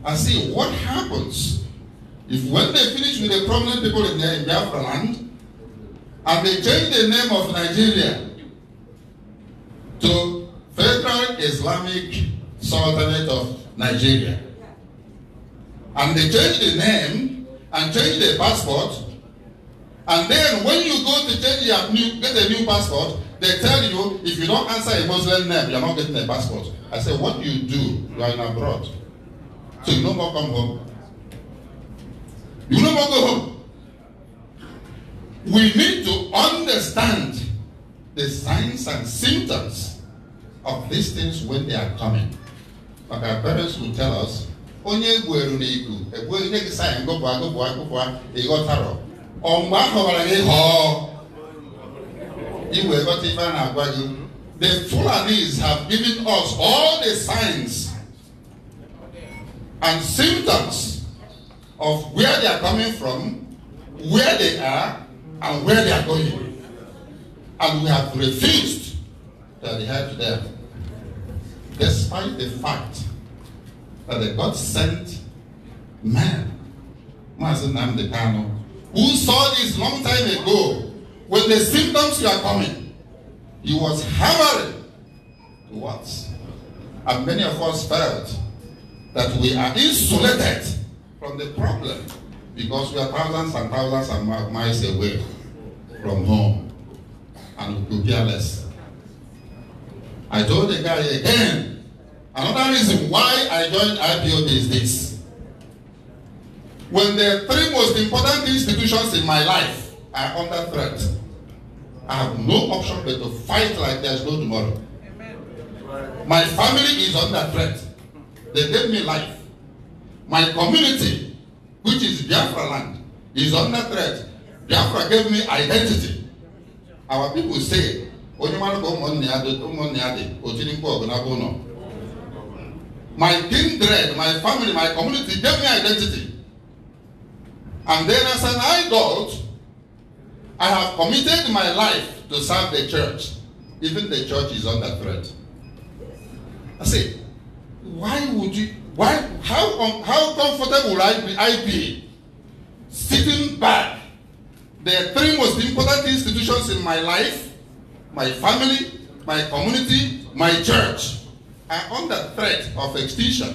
[SPEAKER 1] I say, what happens if when they finish with the prominent people in, their, in their land, and they change the name of Nigeria to Federal Islamic Sultanate of Nigeria, and they change the name and change the passport, and then when you go to change your new, get a new passport, they tell you if you don't answer a Muslim name, you're not getting a passport. I say, what do you do? You are in abroad. So you no more come home. You no more go home. We need to understand the signs and symptoms of these things when they are coming. Like our parents will tell us, onye egwueru na igu egwueru nye gị sayị ngọpụ agụpụ agụpụ ịghọtarọ ọ mgbe ahọbara gị họọ iwe ghọta ife a na-agwa gị the Fulanis have given us all the signs and symptoms of where they are coming from, where they are, and where they are going. And we have refused to adhere to them, despite the fact that the God sent man, Mazenam Kano, who saw this long time ago when the symptoms were coming. He was hammering towards. And many of us felt that we are insulated from the problem because we are thousands and thousands and miles away from home and we care less. I told the guy again, another reason why I joined IPOB is this. When the three most important institutions in my life are under threat, I have no option but to fight like there's no tomorrow. Amen. My family is under threat. They gave me life. My community, which is Biafra land, is under threat. Biafra gave me identity. Our people say, my kindred, my family, my community gave me identity. And then as an God, I have committed my life to serve the church. Even the church is under threat. I say, why would you, why, how, um, how comfortable I be, I be sitting back? The three most important institutions in my life, my family, my community, my church, are under threat of extinction.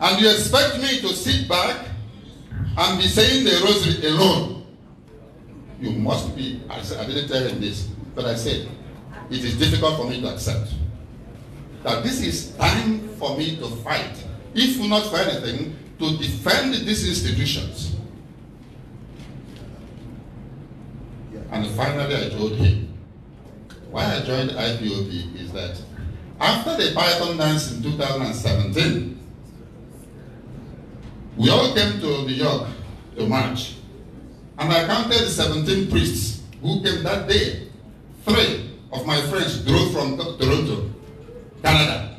[SPEAKER 1] And you expect me to sit back and be saying the rosary alone. You must be, I, I didn't tell him this, but I said, it is difficult for me to accept that this is time for me to fight, if not for anything, to defend these institutions. And finally, I told him, why I joined IPOB is that after the Python dance in 2017, we all came to New York to march. And I counted 17 priests who came that day. Three of my friends drove from Toronto, Canada,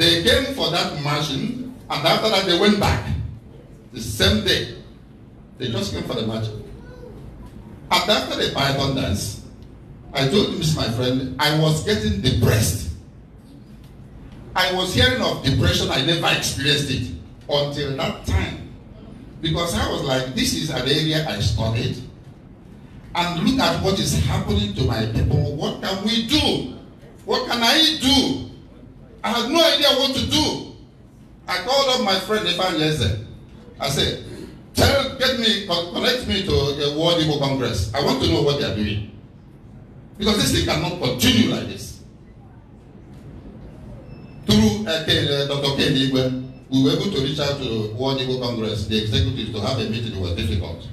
[SPEAKER 1] They came for that margin, and after that they went back. The same day. They just came for the margin. And after the python dance, I told Miss my friend, I was getting
[SPEAKER 2] depressed.
[SPEAKER 1] I was hearing of depression, I never experienced it until that time. Because I was like, this is an area I studied. And look at what is happening to my people. What can we do? What can I do? I had no idea what to do. I called up my friend Ifan Yeze. I said, tell, get me, connect me to the World Igbo Congress. I want to know what they are doing. Because this thing cannot continue like this. Through uh, uh Dr. Ken we were able to reach out to the World Igbo Congress, the executives, to have a meeting. It was difficult.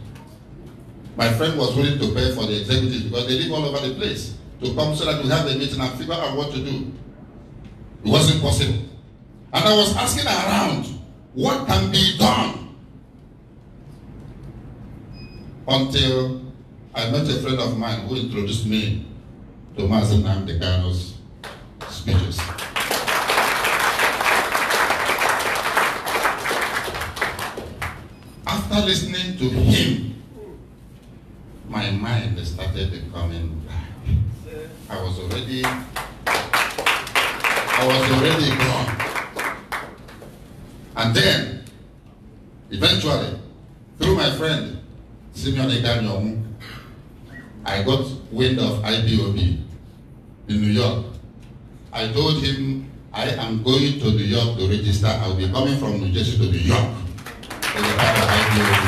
[SPEAKER 1] My friend was willing to pay for the executives because they live all over the place to come so that we have a meeting and figure out what to do. It wasn't possible. And I was asking around what can be done until I met a friend of mine who introduced me to Mazen Namdekano's speeches. After listening to him, my mind started becoming black. I was already I was already gone. And then, eventually, through my friend, Simeon Eganyomu, I got wind of IBOB in New York. I told him, I am going to New York to register. I will be coming from New Jersey to New York for the part of IBOB.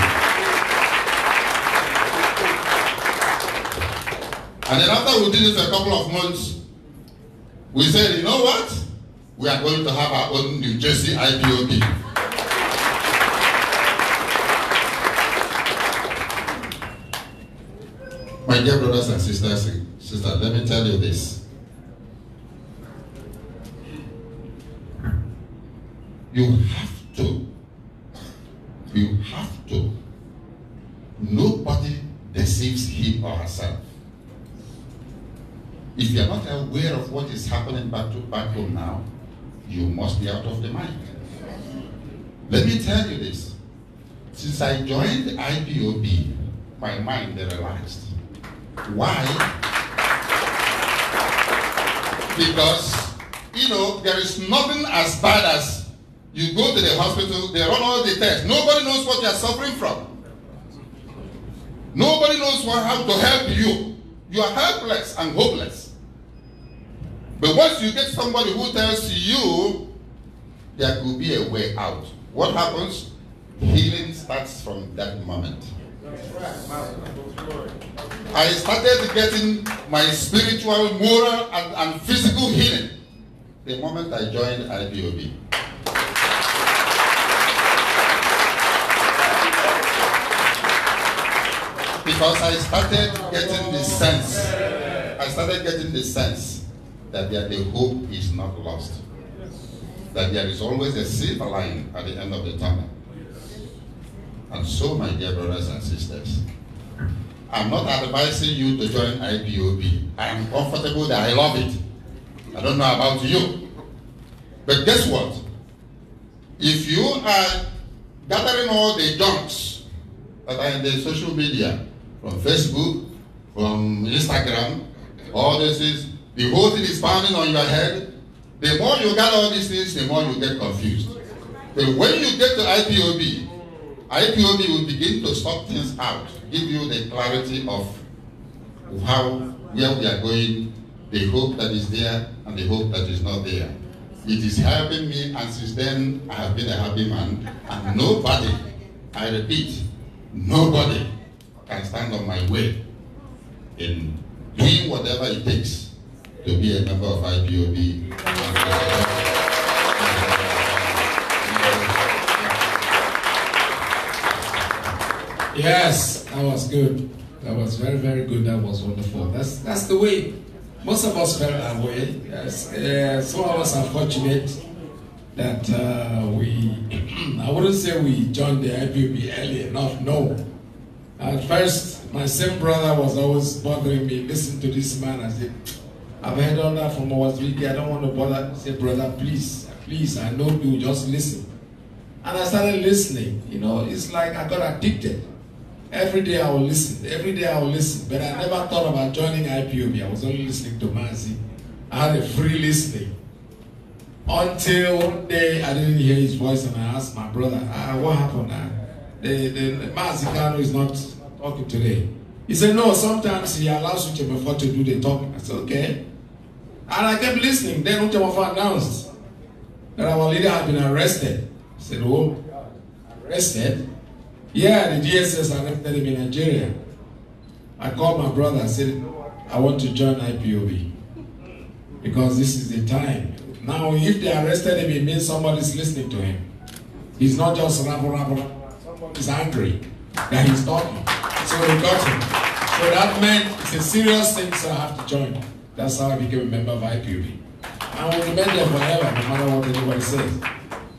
[SPEAKER 1] And then after we did it for a couple of months, we said, you know what? we are going to have our own New Jersey IPOB. My dear brothers and sisters, sister, let me tell you this. You have to, you have to, nobody deceives him or herself. If you are not aware of what is happening back to back home now, you must be out of the mind. Let me tell you this. Since I joined IPOB, my mind relaxed. Why? Because, you know, there is nothing as bad as you go to the hospital, they run all the tests. Nobody knows what you are suffering from. Nobody knows what, how to help you. You are helpless and hopeless. But once you get somebody who tells you there could be a way out, what happens? Healing starts from that moment. I started getting my spiritual, moral, and, and physical healing the moment I joined IBOB. Because I started getting the sense. I started getting the sense that the hope is not lost. That there is always a silver lining at the end of the tunnel. And so, my dear brothers and sisters, I'm not advising you to join IPOB. I am comfortable that I love it. I don't know about you. But guess what? If you are gathering all the junks that are in the social media, from Facebook, from Instagram, all this is the whole thing is pounding on your head. The more you got all these things, the more you get confused. But when you get to IPOB, IPOB will begin to sort things out, give you the clarity of how where we are going, the hope that is there and the hope that is not there. It is helping me, and since then I have been a happy man. And nobody, I repeat, nobody can stand on my way in doing whatever it takes to be a member of IPOB.
[SPEAKER 4] Yes, that was good. That was very, very good. That was wonderful. That's that's the way. Most of us felt that way. Yes, uh, some of us are fortunate that uh, we, <clears throat> I wouldn't say we joined the IPOB early enough. No. At first, my same brother was always bothering me. Listen to this man. I said, I've heard all that from our speaker. I don't want to bother. Say, brother, please, please, I know you, just listen. And I started listening. You know, it's like I got addicted. Every day I will listen. Every day I will listen. But I never thought about joining IPOB. I was only listening to Mazi. I had a free listening. Until one day I didn't hear his voice and I asked my brother, ah, what happened? Ah, the, the Mazi Kano is not talking today. He said, no, sometimes he allows you before to do the talking. I said, okay. And I kept listening. Then Uchawafa announced that our leader had been arrested. I said, oh, arrested? Yeah, the GSS arrested him in Nigeria. I called my brother and said, I want to join IPOB because this is the time. Now, if they arrested him, it means somebody's listening to him. He's not just rap, rap, rap. angry that he's talking. So we got him. So that meant it's a serious thing, so I have to join. That's how I became a member of IPUB. I will remain there forever, no matter what anybody says.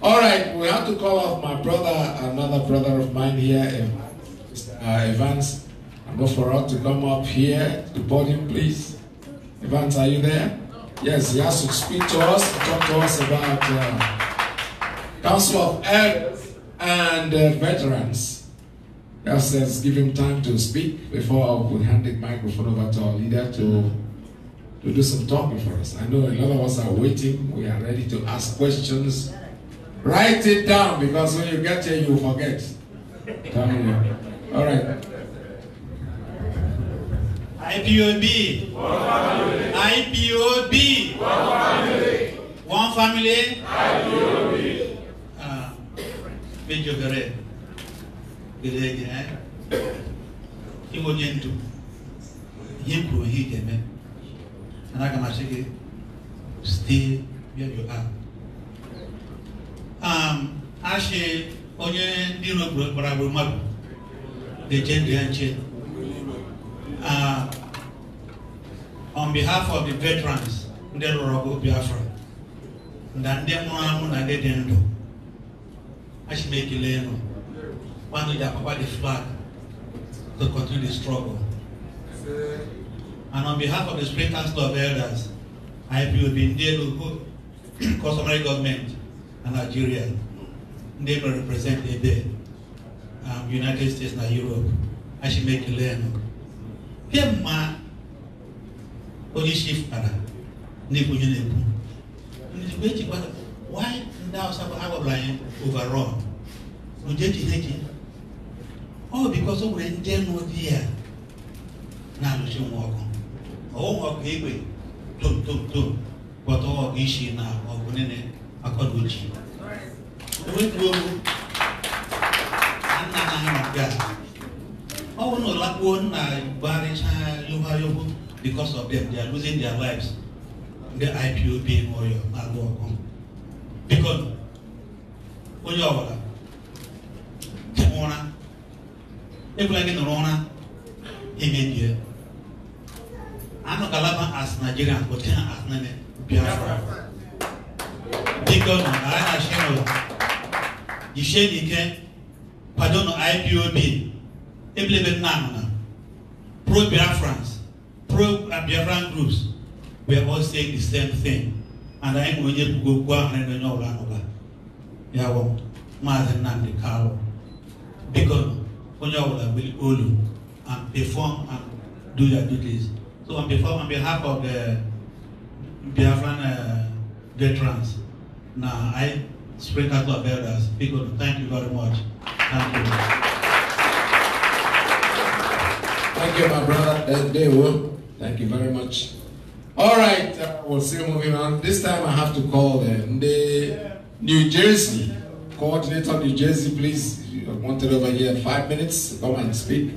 [SPEAKER 4] All right, we have to call off my brother, another brother of mine here, Mr. Um, uh, Evans. I'm not for us to come up here to podium, please. Evans, are you there? Yes, he has to speak to us, talk to us about uh, Council of Health and uh, Veterans. Yes, let's give him time to speak before we hand the microphone over to our leader to to do some talking for us. I know a lot of us are waiting. We are ready to ask questions. Write it down because when you get here, you forget. Come here. All right. IPOB.
[SPEAKER 12] One
[SPEAKER 9] family. IPOB. One family. IPOB. Ah, Benjo Gare. Gare Gare. Himo Nyendu. Himo Hideme and I can say, stay where you are. Um, only onye ndị nọ gbara gburu mmadụ na-eche ndụ ya nche. On behalf of the veterans will ndị lụrụ ọgụ Biafra na ndị nwụrụ anwụ they ndị dị ndụ, achị m ekele enu. Kwanụ ji apapa the flag to continue the struggle. And on behalf of the Spring Council of Elders, the Ndelu, customary government, and Nigeria, they will represent the um, United States and Europe. I should make a learn. Here, ma, only shift para, nipu yunepu. Nijibwechi kwa, why ndao sabu awa blind overall? Nujechi neki. All because of when they there, now you should walk on ọwụwa ga egbe tom tom tom gwọta ọwa ga isi na ọgụ nene akọda oji enwetuolu nna na anyị nke a ọ bụrụ na ụlakpuo nna gbarịcha yoba yobo because of them they are losing their lives ndị ipob n'oyo na-alụ ọgụ biko onye ọbụla ụra ekwela gị nọrọ ụra emebie ano galaba as Nigeria but can as Nene Biafra. Thank God na I na share o. The share pardon kwado na IPOB ebilebe nna anọ na pro Biafrans pro uh, Biafran groups were all saying the same thing and I am anyị nwere onye go and ahụ na onye ọbụla anọba ya wụ Maazị Nnamdi Kalu biko onye ọbụla gbili olu and perform and do their duties. So on behalf, on behalf of the Biafran uh, veterans, now I, Spring Council of Elders, people, thank you very
[SPEAKER 4] much. Thank you. Thank you, my brother. Dewo. Thank you very much. All right, uh, we'll see you moving on. This time I have to call the, uh, the New Jersey coordinator of New Jersey, please. You're wanted over here five minutes. Come and speak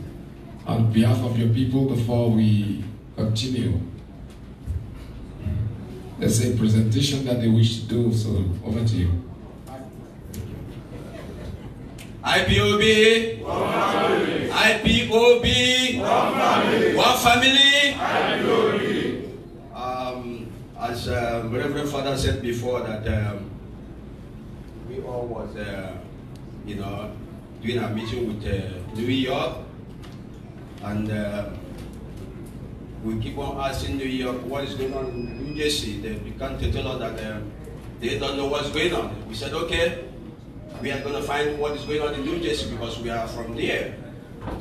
[SPEAKER 4] on behalf of your people before we continue. There's a presentation that they wish to do, so over to you.
[SPEAKER 8] IPOB, one family. IPOB, one family. One family.
[SPEAKER 2] IPOB.
[SPEAKER 8] Um, as uh, Reverend Father said before, that um, we all was, uh, you know, doing a meeting with uh, New York, and. Uh, we keep on asking New York what is going on in New Jersey. They, began can't tell us that uh, they don't know what's going on. We said, okay, we are going to find what is going on in New Jersey because we are from there.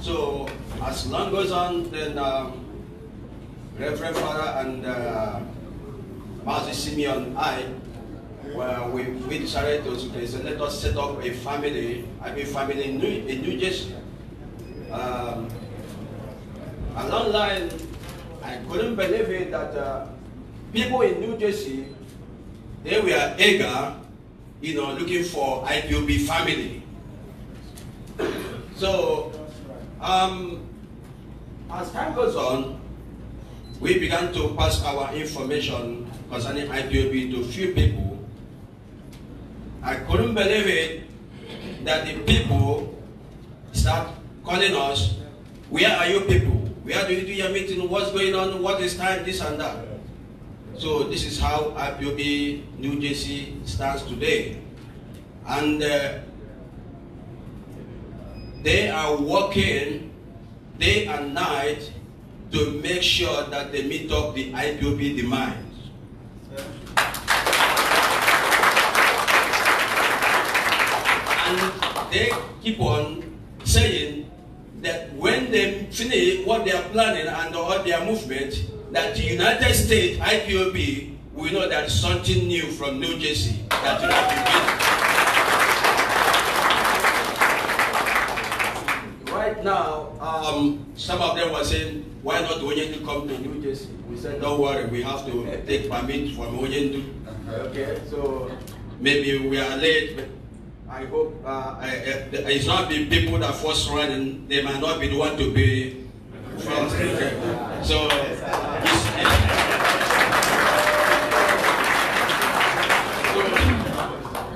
[SPEAKER 8] So as long goes on, then um, Reverend Father and uh, Master Simeon, I, well, we, we decided to say, let us set up a family, I mean family in New, in New Jersey. Um, along line, I couldn't believe it that uh, people in New Jersey, they were eager, you know, looking for IPOB family. So, um, as time goes on, we began to pass our information concerning IPOB to few people. I couldn't believe it that the people start calling us, where are you people? Where do you do your meeting? What's going on? What is time? This and that. So this is how IPOB New Jersey stands today. And uh,
[SPEAKER 2] they are working day and night
[SPEAKER 8] to make sure that they meet up the IPOB demands. And they keep on saying that when they finish what they are planning and all their movement, that the United States IPOB will know that something new from New Jersey that will have Right now, um, some of them were saying, why not to come to New Jersey? We said, don't worry, we have to take permit from Oyendu. Okay, so... Maybe we are late, I hope uh, it's not the people that first run, they might not be the one to be first. So, so,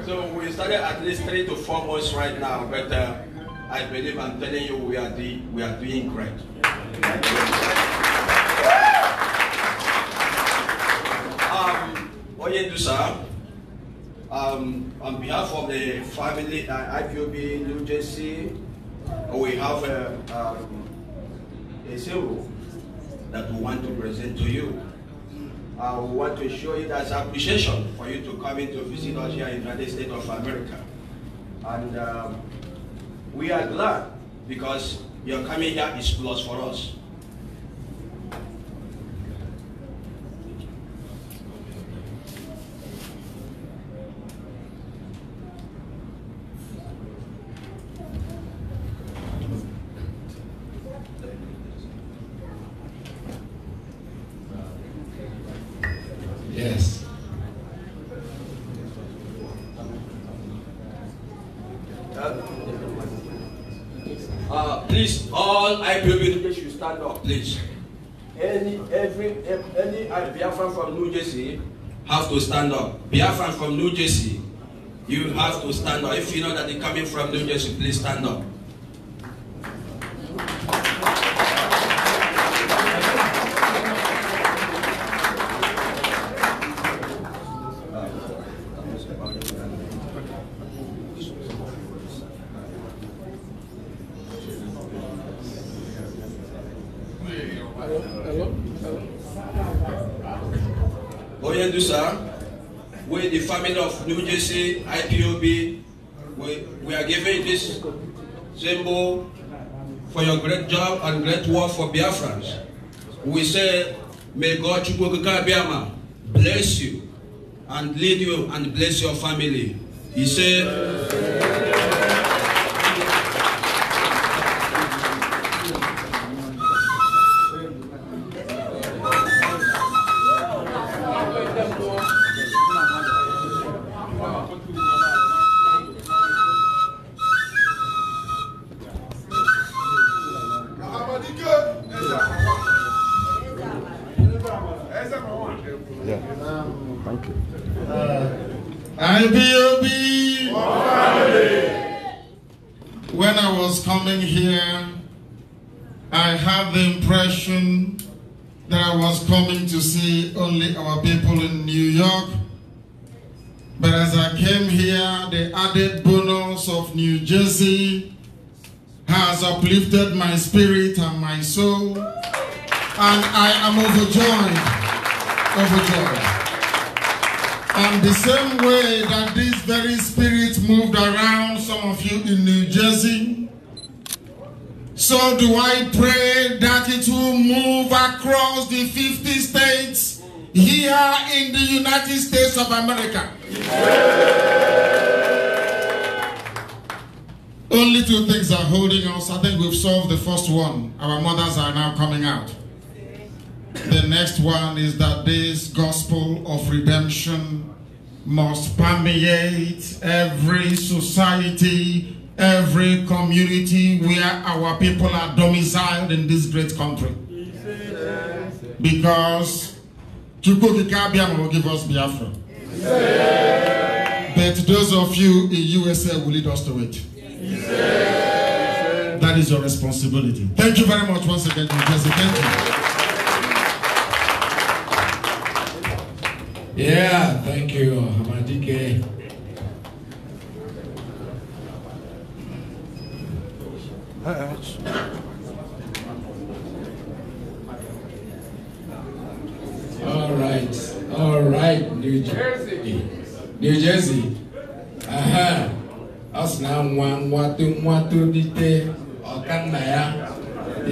[SPEAKER 8] so, we started at least three to four months right now, but uh, I believe I'm telling you we are, the, we are doing great. Um, Oyedusa, um, on behalf of the family, uh, IPOB New Jersey, uh, we have a, uh, um, a symbol that we want to present to you. Uh, we want to show it as appreciation for you to come in to visit us here in the United States of America. And um, we are glad because your coming here is plus for us. Uh, please, all IPOB people should stand up, please. Any, every, any Biafran from New Jersey have to stand up. Biafran from New Jersey, you have to stand up. If you know that they're coming from New Jersey, please stand up. for your great job and great work for Biafrans. We say, may God Biafra bless you and lead you and bless your family. He said,
[SPEAKER 1] has uplifted my spirit and my soul, and I am overjoyed, overjoyed. And the same way that this very spirit moved around some of you in New Jersey, so do I pray that it will move across the 50 states here in the United States
[SPEAKER 3] of America. Yeah.
[SPEAKER 1] Only two things are holding us. I think we've solved the first one. Our mothers are now coming out. The next one is that this gospel of redemption must permeate every society, every community where our people are domiciled in this great country. Because Chukwukikabia will give us Biafra. But those of you in USA will lead us to it.
[SPEAKER 7] That is your responsibility. Thank
[SPEAKER 1] you very much once again, Jesse. Thank you.
[SPEAKER 4] Yeah, thank you, Hamadike. All right, all right, New Jersey, New Jersey. Uh -huh ọ now na nwa nwa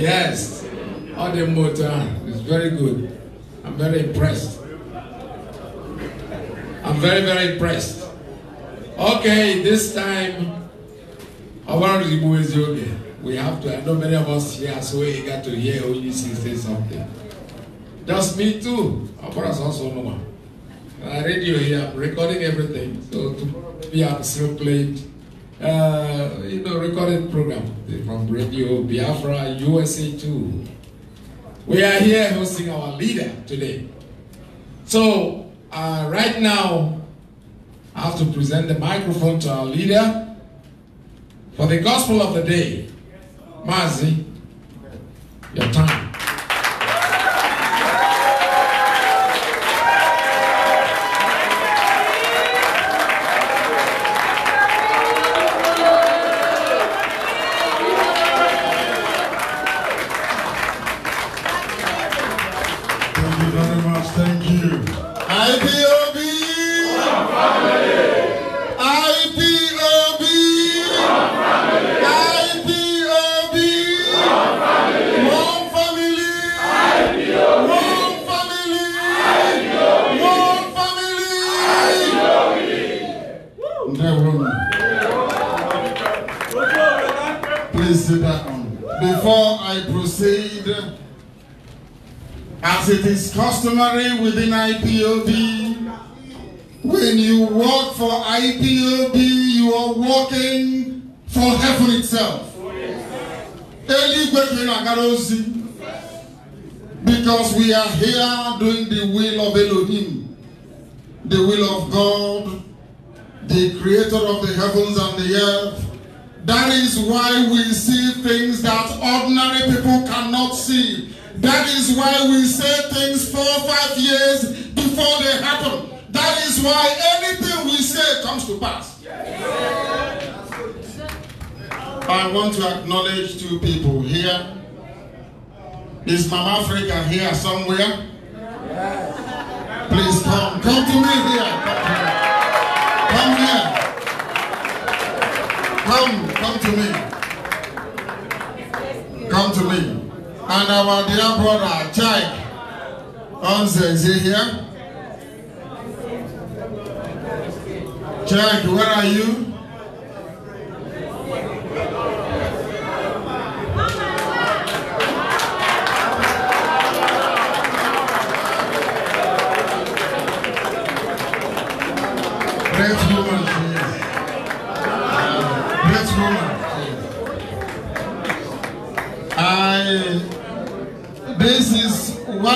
[SPEAKER 4] yes all the motor is very good i'm very impressed i'm very very impressed okay this time our gbara is ezi we have to i know many of us here so we got to hear onye say something just me too ọ gbara also ụnụma I uh, radio here, I'm recording everything. So to be, i still playing uh, you know, recorded program from Radio Biafra USA 2. We are here hosting our leader today. So, uh, right now, I have to present the microphone to our leader for the gospel of the day. Mazi, your time.
[SPEAKER 1] I want to acknowledge two people here. Is Mama Africa here somewhere? Yes. Please come. Come to me here. Come here. Come, come to me. Come to me. And our dear brother, Chai Onze, is he here? Chai, where are you?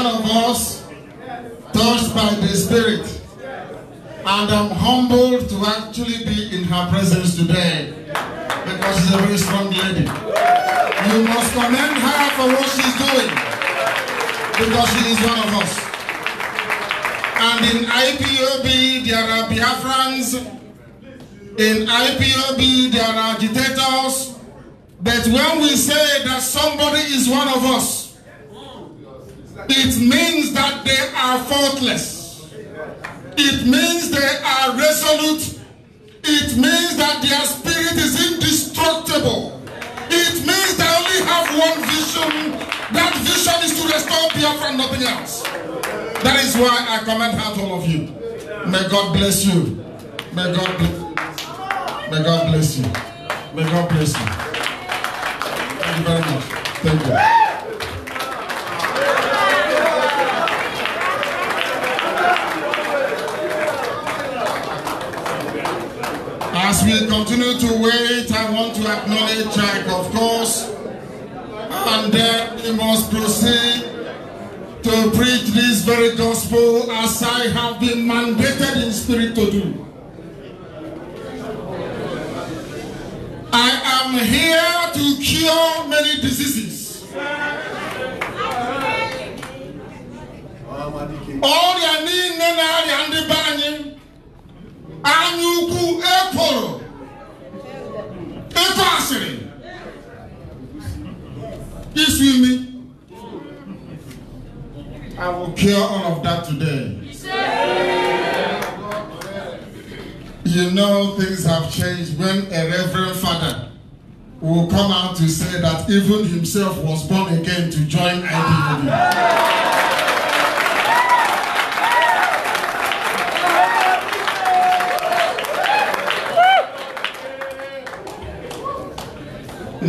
[SPEAKER 1] one of us touched by the Spirit. And I'm humbled to actually be in her presence today because she's a very strong lady. You must commend her for what she's doing because she is one of us. And in IPOB, there are Biafrans. In IPOB, there are agitators. But when we say that somebody is one of us, It means that they are faultless. It means they are resolute. It means that their spirit is indestructible. It means they only have one vision. That vision is to restore Biafra and nothing else. That is why I commend out all of you. May God bless you. May God bless you. May God bless you. May God bless
[SPEAKER 2] you. Thank you very much. Thank you.
[SPEAKER 1] As we continue to wait, I want to acknowledge Jack, of course, and then we must proceed to preach this very gospel as I have been mandated in spirit to do. I am here to cure many diseases. This with me. I will cure all of that today. You know, things have changed when a reverend father will come out to say that even himself was born again to join IDW.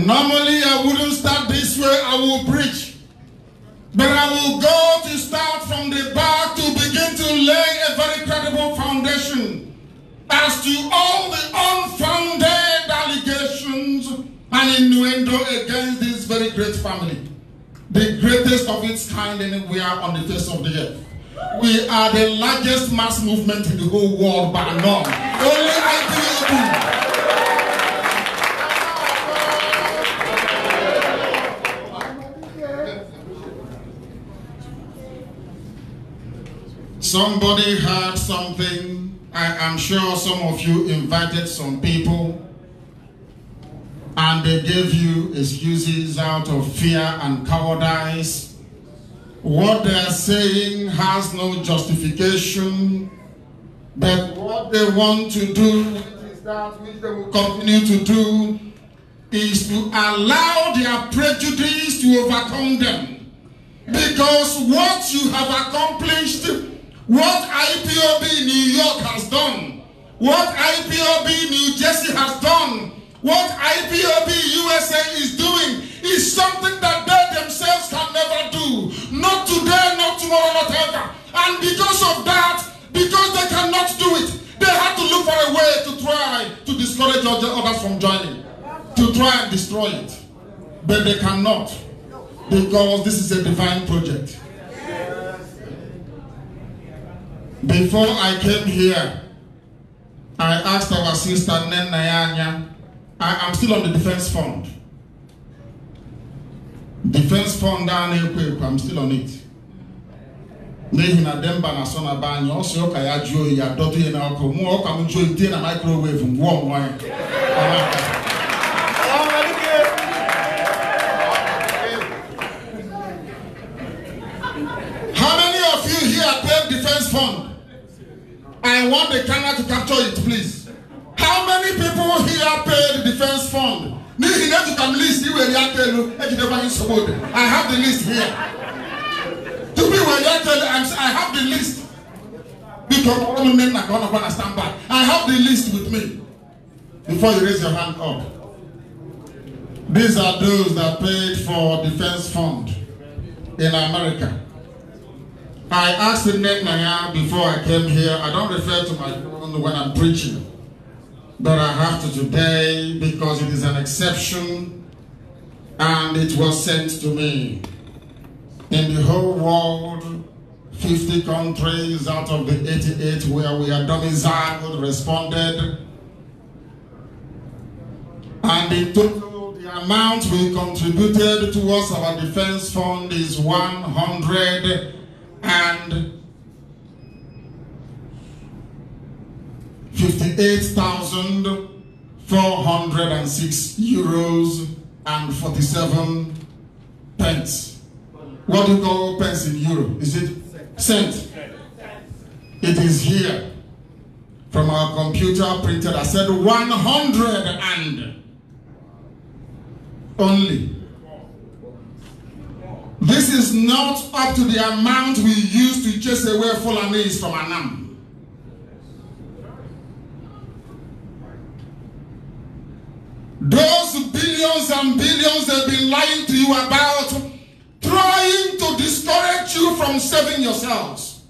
[SPEAKER 1] Normally, I wouldn't start this way, I will preach. But I will go to start from the back to begin to lay a very credible foundation as to all the unfounded allegations and innuendo against this very great family. The greatest of its kind anywhere on the face of the earth. We are the largest mass movement in the whole world by none.
[SPEAKER 2] Only IPOB
[SPEAKER 1] Somebody had something. I am sure some of you invited some people and they gave you excuses out of fear and cowardice. What they are saying has no justification, but what they want to do is that which they will continue to do is to allow their prejudice to overcome them. Because what you have accomplished What IPOB New York has done, what IPOB New Jersey has done, what IPOB USA is doing is something that they themselves can never do. Not today, not tomorrow, not ever. And because of that, because they cannot do it, they had to look for a way to try to discourage others from joining, to try and destroy it. But they cannot because this is a divine project. Before I came here, I asked our sister Nen Nayanya, I am still on the defense fund. Defense fund down ekwe, I'm still on it. N'ihi na Demba na sona na be anyị ọ sị ụka ya jụọ ya dọtụ ya n'ọkụ mụ ọka m jụọ ite na microwave ngwụọ mmụọ ya. Fund. I want the camera to capture it, please. How many people here paid the defense fund? Nihi na ejuka m list iwe ri aka elu ejideba anyị nsogbu ode. I have the list here. To be ri aka elu I have the list. Biko ụmụnne nna ka ọ nọkwa na stand by. I have the list with me. Before you raise your hand up. These are those that paid for defense fund in America. I asked the Nanya before I came here, I don't refer to my own when I'm preaching, but I have to today because it is an exception and it was sent to me. In the whole world, 50 countries out of the 88 where we are domiciled responded. And in total, the amount we contributed towards our defense fund is 100 and 58,406 euros and 47 pence. What do you call pence in euro? Is it cent? It is here from our computer printed. I said 100 and only this is not up to the amount we use to chase away Fulanese from Anam. Those billions and billions they've been lying to you about, trying to discourage you from saving yourselves.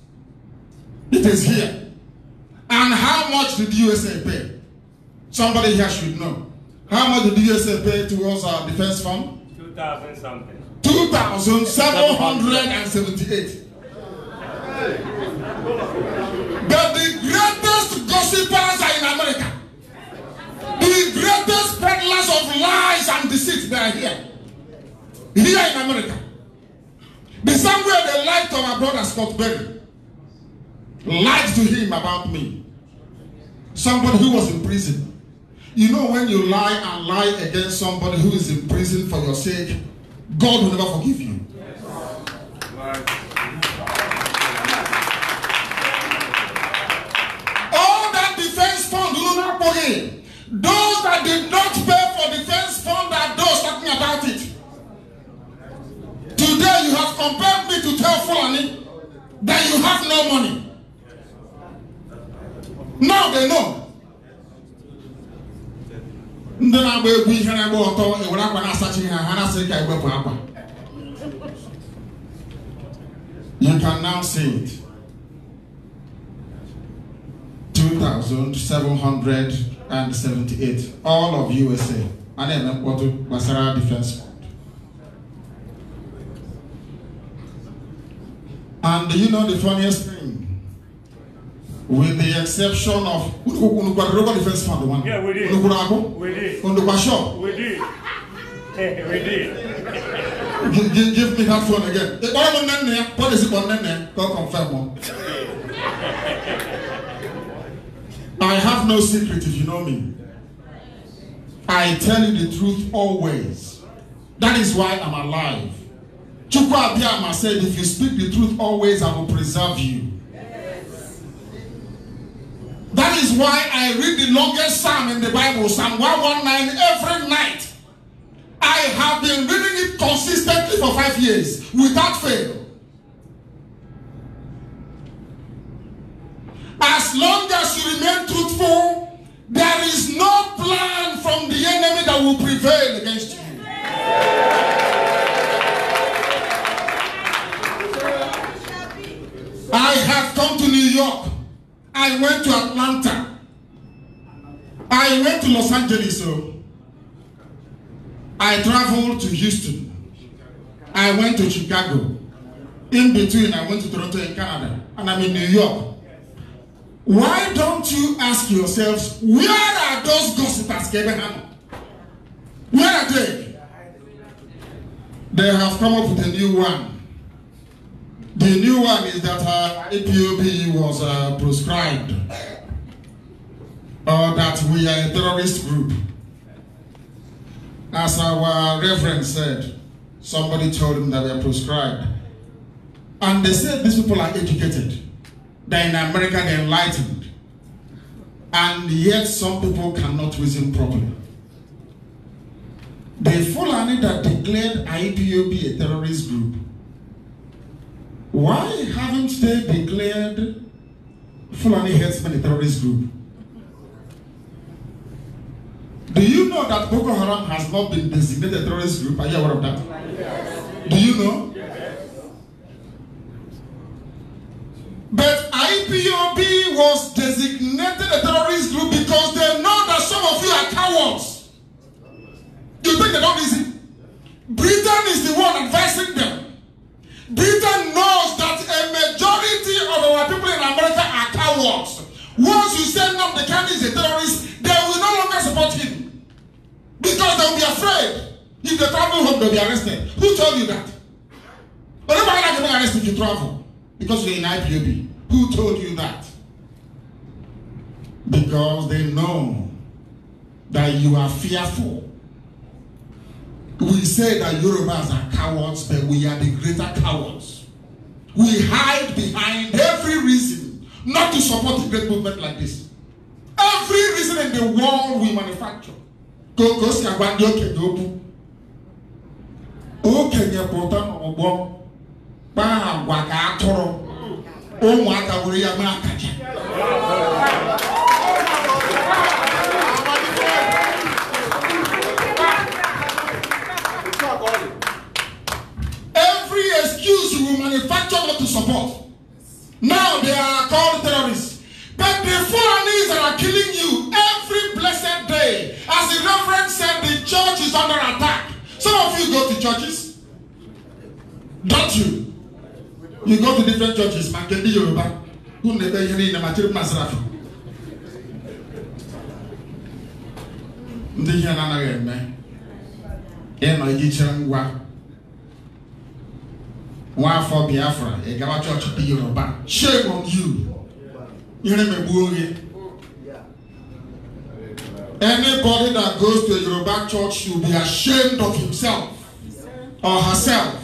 [SPEAKER 1] It is here. And how much did USA pay? Somebody here should know. How much did USA pay towards our defense fund?
[SPEAKER 3] 2,000 something.
[SPEAKER 1] 2,778. But the greatest gossipers are in America. The greatest peddlers of lies and deceit, they are here. Here in America. The same way they lied to my brother Scott Berry. Lied to him about me. Somebody who was in prison. You know when you lie and lie against somebody who is in prison for your sake, God will never forgive you. All that defense fund will not pay. Those that did not pay for defense fund are those talking about it. Today you have compelled me to tell Fulani that you have no money. Now they know ndị na-agba egwu ihe na-agba ọtọ ewere akwa na-asachi ha ha na-asị ka iwepụ akwa you can now see it 2778 all of usa a na-eme mkpọtụ gbasara defense and you know the funniest thing With the exception of Unukwa Defense Fund Yeah, we did. Unukurago?
[SPEAKER 5] We did. Unukwa Shop?
[SPEAKER 2] We did. <laughs> we did.
[SPEAKER 1] give, give, give me that phone again. The Bible name there, policy on name there, God confirm one. I have no secret if you know me. I tell you the truth always. That is why I'm alive. Chukwu Abiyama said, if you speak the truth always, I will preserve you. That is why I read the longest psalm in the Bible, Psalm 119, every night. I have been reading it consistently for five years without fail. As long as you remain truthful, there is no plan from the enemy that will prevail against you. I have come to New York I went to Atlanta. I went to Los Angeles. So oh. I traveled to Houston. I went to Chicago. In between, I went to Toronto in Canada. And I'm in New York. Why don't you ask yourselves, where are those gossipers, Abraham? Where are they? They have come up with a new one. The new one is that uh, APOP was uh, proscribed, or uh, that we are a terrorist group. As our reverend said, somebody told him that we are proscribed. And they said these people are educated. They're in America, they're enlightened. And yet some people cannot reason properly. The Fulani that declared IPOB a terrorist group Why haven't they declared Fulani herdsmen a terrorist group? Do you know that Boko Haram has not been designated a terrorist group? Are you aware of that? Yes. Do you know? Yes. But IPOB was designated a terrorist group because they know that some of you are cowards. You think they don't listen? Britain is the one advising them. Britain knows that a majority of our people in America are cowards. Once you send no, the candidate is a terrorist, they will no longer support him. Because they will be afraid. If they travel home, they'll be arrested. Who told you that? But nobody can be arrested if you travel because you're in IPOB. Who told you that? Because they know that you are fearful we say that Yorubas are cowards, but we are the greater cowards. We hide behind every reason not to support a great movement like this. Every reason in the world we manufacture. Kokoska gwandi okenye okwu. Okenye pụta n'ọgbọ kpaa agwa ka atụrụ ụmụaka were ya mee akaja. excuse you will manufacture not to support. Now they are called terrorists. But the foreigners that are killing you every blessed day, as the reverend said, the church is under attack. Some of you go to churches, don't you? You go to different churches, Ndị ihe na-anaghị eme, ịnọ iji chere ngwa one for Biafra, a Gama church be Yoruba. Shame on you. You never worry. Anybody that goes to a Yoruba church should be ashamed of himself or herself.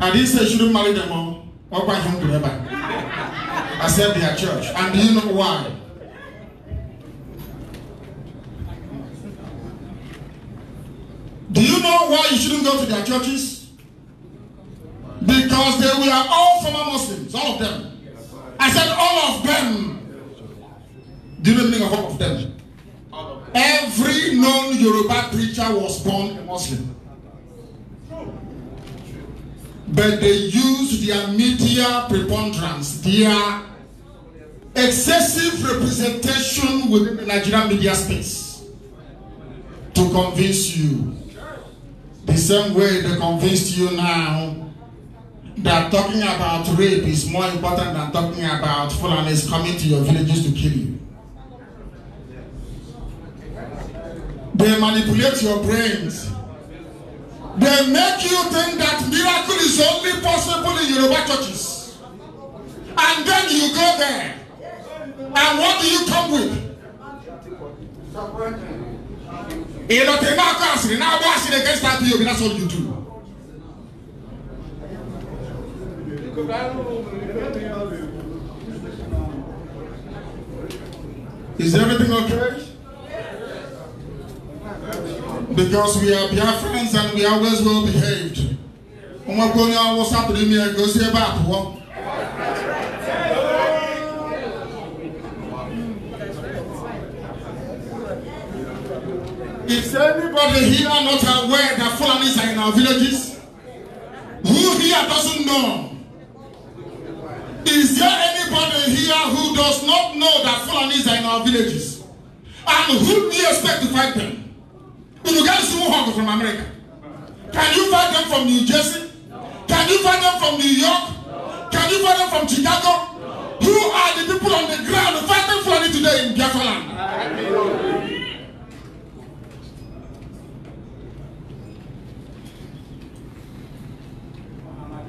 [SPEAKER 1] I didn't say shouldn't marry them all or by him to I said their church. And do you know why? Do you know why you shouldn't go to their churches? Because they were all former Muslims, all of them. I said all of them. Do you know the meaning of all of them? Every known Yoruba preacher was born a Muslim. But they used their media preponderance, their excessive representation within the Nigerian media space to convince you. The same way they convinced you now that talking about rape is more important than talking about Fulanis coming to your villages to kill you. They manipulate your brains. They make you think that miracle is only possible in Yoruba churches. And then you go there.
[SPEAKER 2] And what do you come
[SPEAKER 1] with? Ìlọ̀tẹ̀ náà kọ́ àṣírí náà bọ́ àṣírí against that POB that's all you do. Is everything okay? Because we are friends and we always well behaved. Ọmọ kò ní ọwọ́ sátúrí mi ẹ̀gbẹ́ sí ẹ̀bá àtúwọ́. Is anybody here not aware that Fulanis are in our villages? Who here doesn't know? Is there anybody here who does not know that Fulanis are in our villages? And who do you expect to fight them? Uruguayans who hung from America. Can you fight them from New Jersey? Can you fight them from New York? Can you fight them from Chicago? Who are the people on the ground fighting Fulani today in Biafra
[SPEAKER 2] land?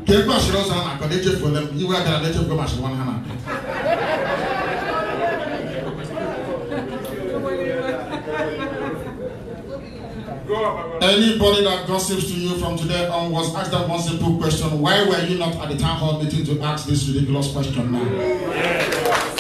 [SPEAKER 1] ka ego ashịrị ọzọ a na-akọ na-echefuola m iwe agara na echefugo m ashịrị nwana ha na-akọ Anybody that gossips to you from today on was asked that one simple question Why were you not at the town hall meeting to ask this ridiculous question now? Yeah.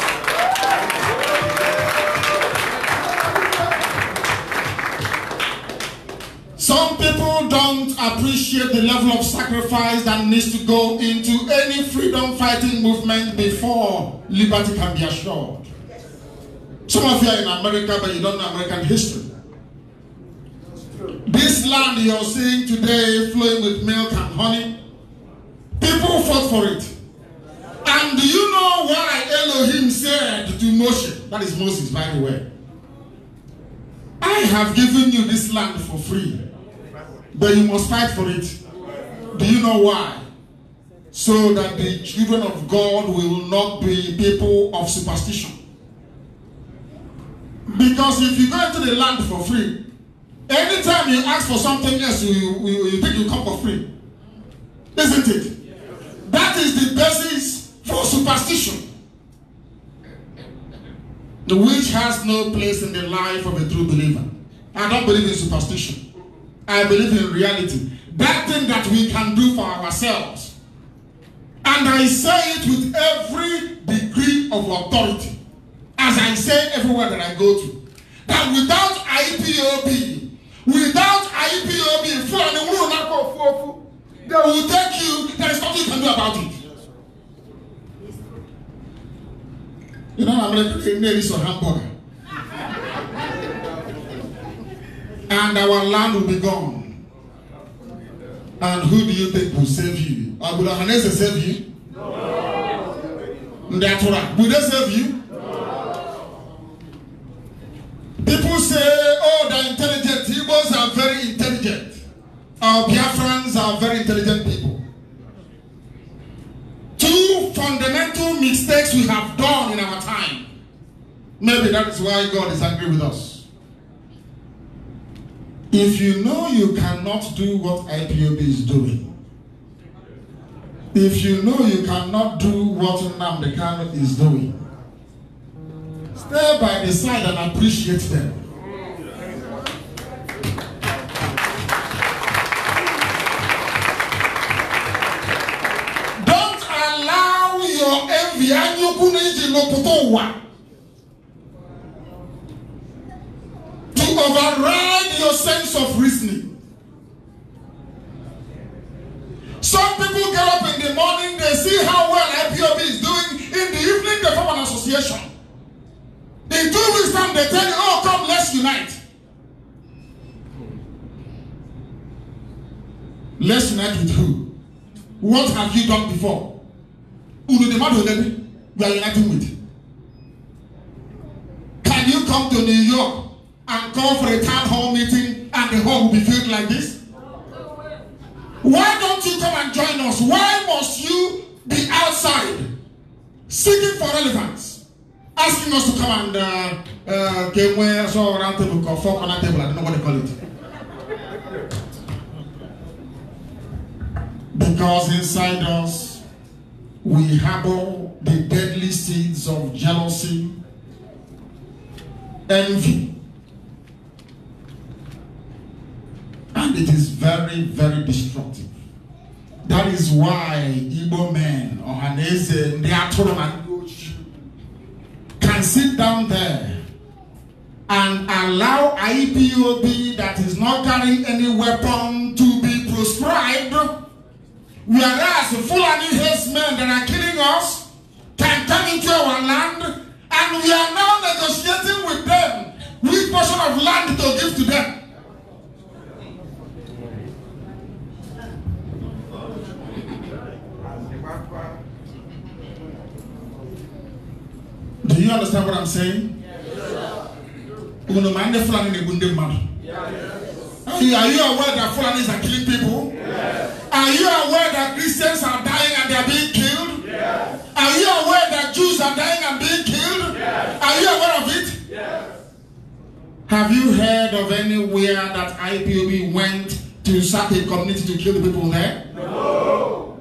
[SPEAKER 1] Some people don't appreciate the level of sacrifice that needs to go into any freedom fighting movement before liberty can be assured. Some of you are in America, but you don't know American history. This land you're seeing today flowing with milk and honey, people fought for it. And do you know why Elohim said to Moshe, that is Moses, by the way, I have given you this land for free. But you must fight for it. Do you know why? So that the children of God will not be people of superstition. Because if you go into the land for free, anytime you ask for something else, you, you, you think you come for free. Isn't it? That is the basis for superstition, which has no place in the life of a true believer. I don't believe in superstition. I believe in reality. That thing that we can do for ourselves. And I say it with every degree of authority, as I say everywhere that I go to. That without IPOB, without IPOB, they will take you, there is nothing you can do about it. You know, I'm like, maybe it's a hamburger. and our land will be gone. And who do you think will save you? Abu will Hanese save you? No. That's right. Will they save you? No. People say, oh, they're intelligent. Igbos are very intelligent. Our Biafrans are very intelligent people. Two fundamental mistakes we have done in our time. Maybe that is why God is angry with us. If you know you cannot do what IPOB is doing, if you know you cannot do what Nnamdi is doing, stay by the side and appreciate them. Don't allow your envy and your to override your sense of reasoning. Some people get up in the morning, they see how well IPOB is doing. In the evening, they form an association. In two weeks' time, they tell you, oh, come, let's unite. Let's unite with who? What have you done before? Unu the man who we are uniting with. Can you come to New York and call for a town hall meeting and the hall will be filled like this? Why don't you come and join us? Why must you be outside seeking for relevance? Asking us to come and uh, uh, get where so around table or on a table, I don't know what they call it. Because inside us, we harbor the deadly seeds of jealousy, envy, And it is very, very destructive. That is why Igbo men, or ndị atụrụ na ndị ojii, can sit down there and allow IPOB that is not carrying any weapon to be proscribed, whereas Fulani men that are killing us can come into our land and we are now negotiating with them which portion of land to give to them. Do you understand what I'm saying? Yes. ma fulani na-egbu ndị are you aware that fulanis are killing people yes. are you aware that christians are dying and they are being killed yes. are you aware that jews are dying and being
[SPEAKER 2] killed yes.
[SPEAKER 1] are you aware of it have you heard of anywhere that ipob went to sack a community to kill the people there no.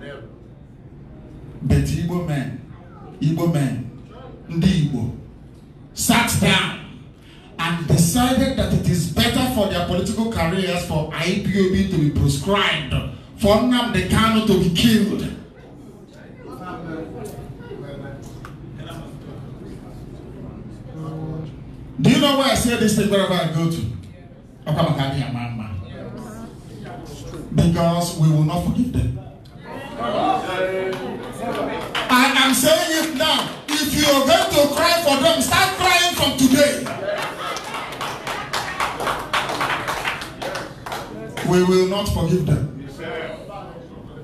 [SPEAKER 1] but igbo men igbo men ndị Igbo sat down and decided that it is better for their political careers for IPOB to be proscribed for Nnamdi Kanu to be killed. Do you know where I say this thing wherever I go to? Okamakani and Mama. Because we will not forgive them. I am saying it now. if you are going to cry for them, start crying from today. We will not forgive them.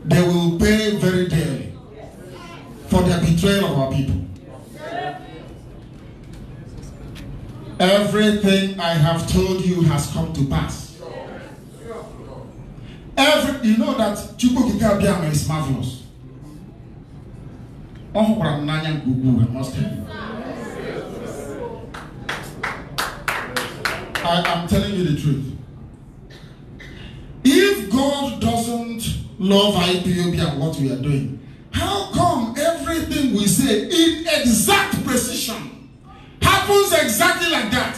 [SPEAKER 1] They will pay very dearly for their betrayal of our people. Everything I have told you has come to pass. Every, you know that Chukwu is marvelous. ọ hụkwara m n'anya nke ukwuu I am telling you the truth. If God doesn't love IPOB and what we are doing, how come everything we say in exact precision happens exactly like that?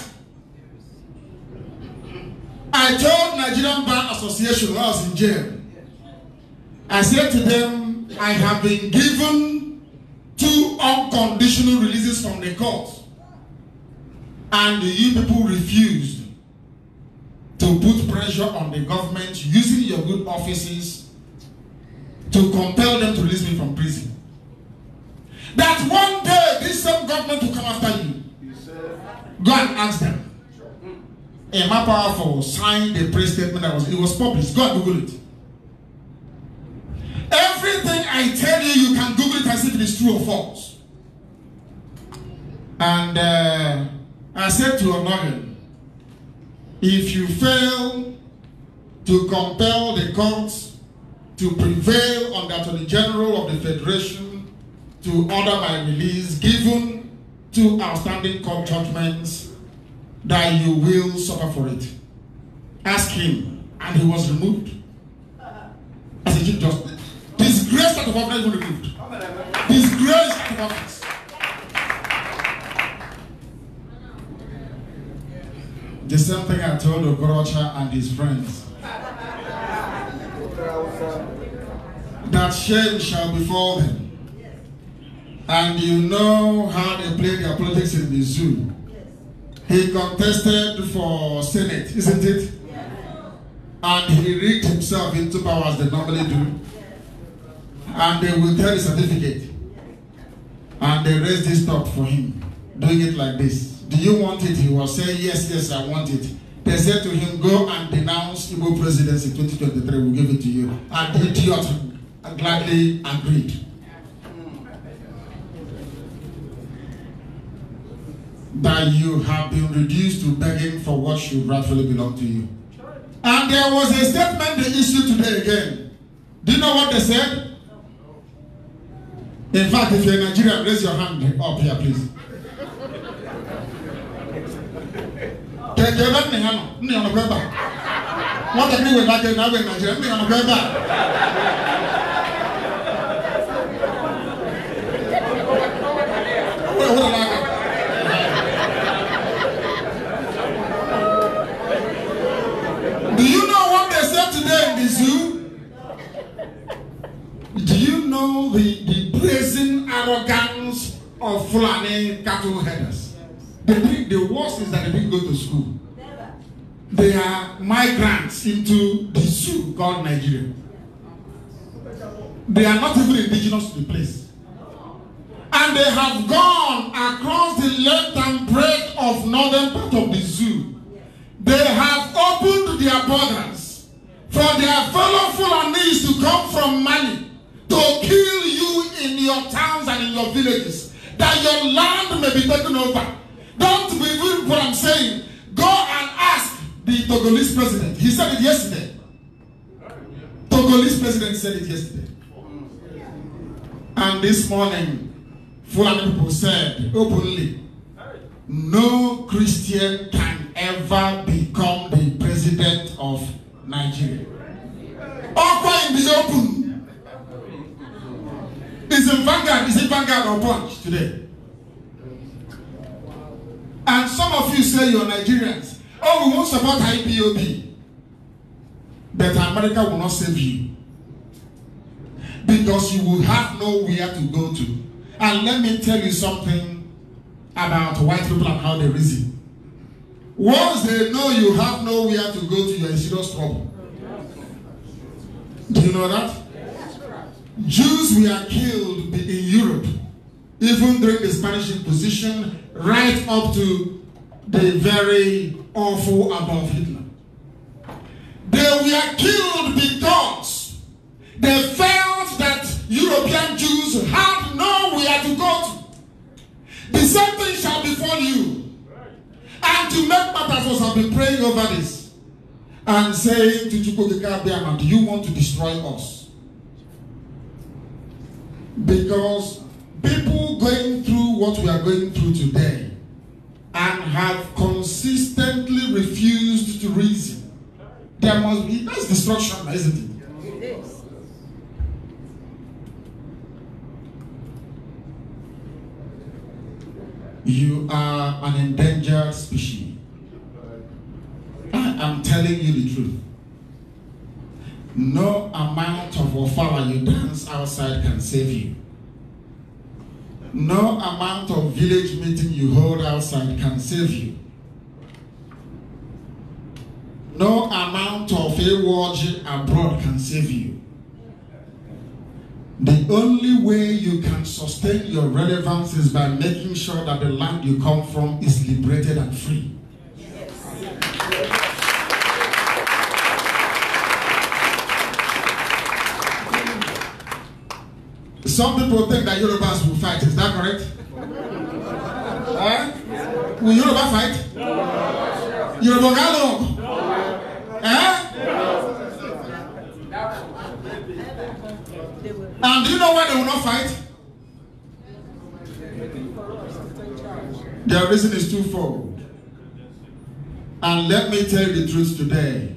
[SPEAKER 1] I told Nigerian Bar Association when I was in jail. I said to them, I have been given two unconditional releases from the court, and you people refused to put pressure on the government using your good offices to compel them to release me from prison. That one day this same government will come after you. Go and ask them. A more powerful signed a press statement that was it was published. Go and Google it. Everything I tell you, you can Google it and see if it is true or false. And uh, I said to Onorin, if you fail to compel the courts to prevail on the Attorney General of the Federation to order my release, given two outstanding court judgments, that you will suffer for it. Ask him, and he was removed uh-huh. as a chief justice. grace that overflows is going to build. His grace overflows. The same thing I told Ogorocha and his friends. that shame shall befall them. And you know how they play their politics in the zoo. He contested for Senate, isn't it? And he rigged himself into power as they normally do. and they will tell the certificate and they raise this top for him doing it like this do you want it he was saying yes yes i want it they said to him go and denounce Igbo presidency 2023 we'll give it to you and the idiot gladly agreed that you have been reduced to begging for what should rightfully belong to you and there was a statement they issued today again do you know what they said In fact, if you're in Nigeria, raise your hand up here, please. Kẹ̀kẹ́ bá ní hàn ní ọ̀nà bẹ́ẹ̀ bá. Wọ́n tẹ̀ ní ìwé ìdájọ́ ìnáwó in Nigeria ní ọ̀nà bẹ́ẹ̀ Do you know what they said today in the zoo? Do you know the the brazen arrogance of Fulani cattle herders. The think the worst is that they didn't go to school. They are migrants into the zoo called Nigeria. They are not even indigenous to the place. And they have gone across the length and breadth of northern part of the zoo. They have opened their borders for their fellow Fulanis to come from Mali to kill you in your towns and in your villages, that your land may be taken over. Don't believe what I'm saying. Go and ask the Togolese president. He said it yesterday. Togolese president said it yesterday. And this morning, Fulani people said openly, no Christian can ever become the president of Nigeria. Offer is open. Is in Vanguard. Is it Vanguard or Punch today? And some of you say you're Nigerians. Oh, we won't support IPOB. But America will not save you. Because you will have nowhere to go to. And let me tell you something about white people and how they reason. Once they know you have nowhere to go to, you're in serious trouble. Do you know that? Jews were killed in Europe, even during the Spanish Inquisition, right up to the very awful above Hitler. They were killed because they felt that European Jews had nowhere to go to. The same thing shall befall you. And to make matters worse, I've been praying over this and saying to Chukwuka, do you want to destroy us? Because people going through what we are going through today and have consistently refused to reason, there must be, that's destruction, isn't it? You are an endangered species. I am telling you the truth. No amount of ofara you dance outside can save you. No amount of village meeting you hold outside can save you. No amount of award abroad can save you. The only way you can sustain your relevance is by making sure that the land you come from is liberated and free. Yes. Some people think that Yorubas will fight. Is that correct? eh? Will Yoruba fight? No. Yoruba got No. Eh? No. And do you know why they will not fight? Their reason is twofold. And let me tell you the truth today.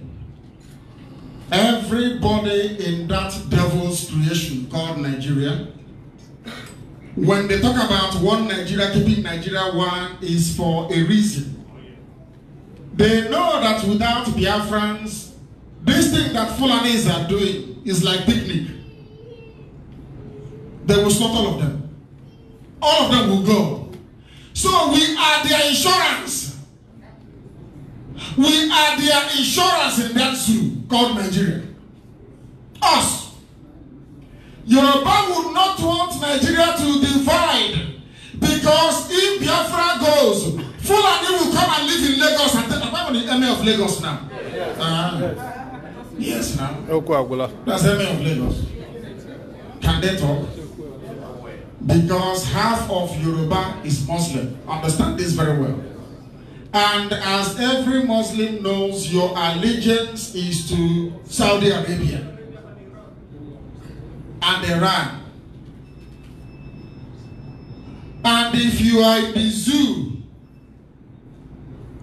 [SPEAKER 1] Everybody in that devil's creation called Nigeria When they talk about one Nigeria, keeping Nigeria one is for a reason. They know that without Biafrans, this thing that Fulanis are doing is like picnic. They will stop all of them. All of them will go. So we are their insurance. We are their insurance in that zoo called Nigeria. Us. Yoruba would not want Nigeria to divide because if Biafra goes, Fulani will come and live in Lagos and take the emir of Lagos now. Yes. Uh, uh-huh. yes, now. That's emir of Lagos. Can they talk? Because half of Yoruba is Muslim. Understand this very well. And as every Muslim knows, your allegiance is to Saudi Arabia and they ran. And if you are in the zoo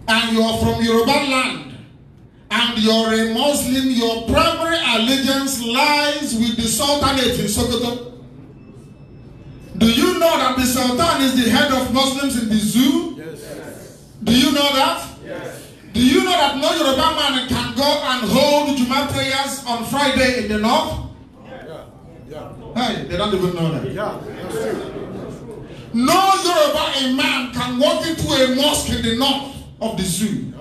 [SPEAKER 1] and you are from Yoruba land and you are a Muslim, your primary allegiance lies with the Sultanate in Sokoto. Do you know that the Sultan is the head of Muslims in the zoo?
[SPEAKER 5] Yes.
[SPEAKER 1] Do you know that? Yes. Do you know that no Yoruba man can go and hold Juma prayers on Friday in the north? Hey, they don't even know that. Yeah, that's true. No Yoruba man can walk into a mosque in the north of the zoo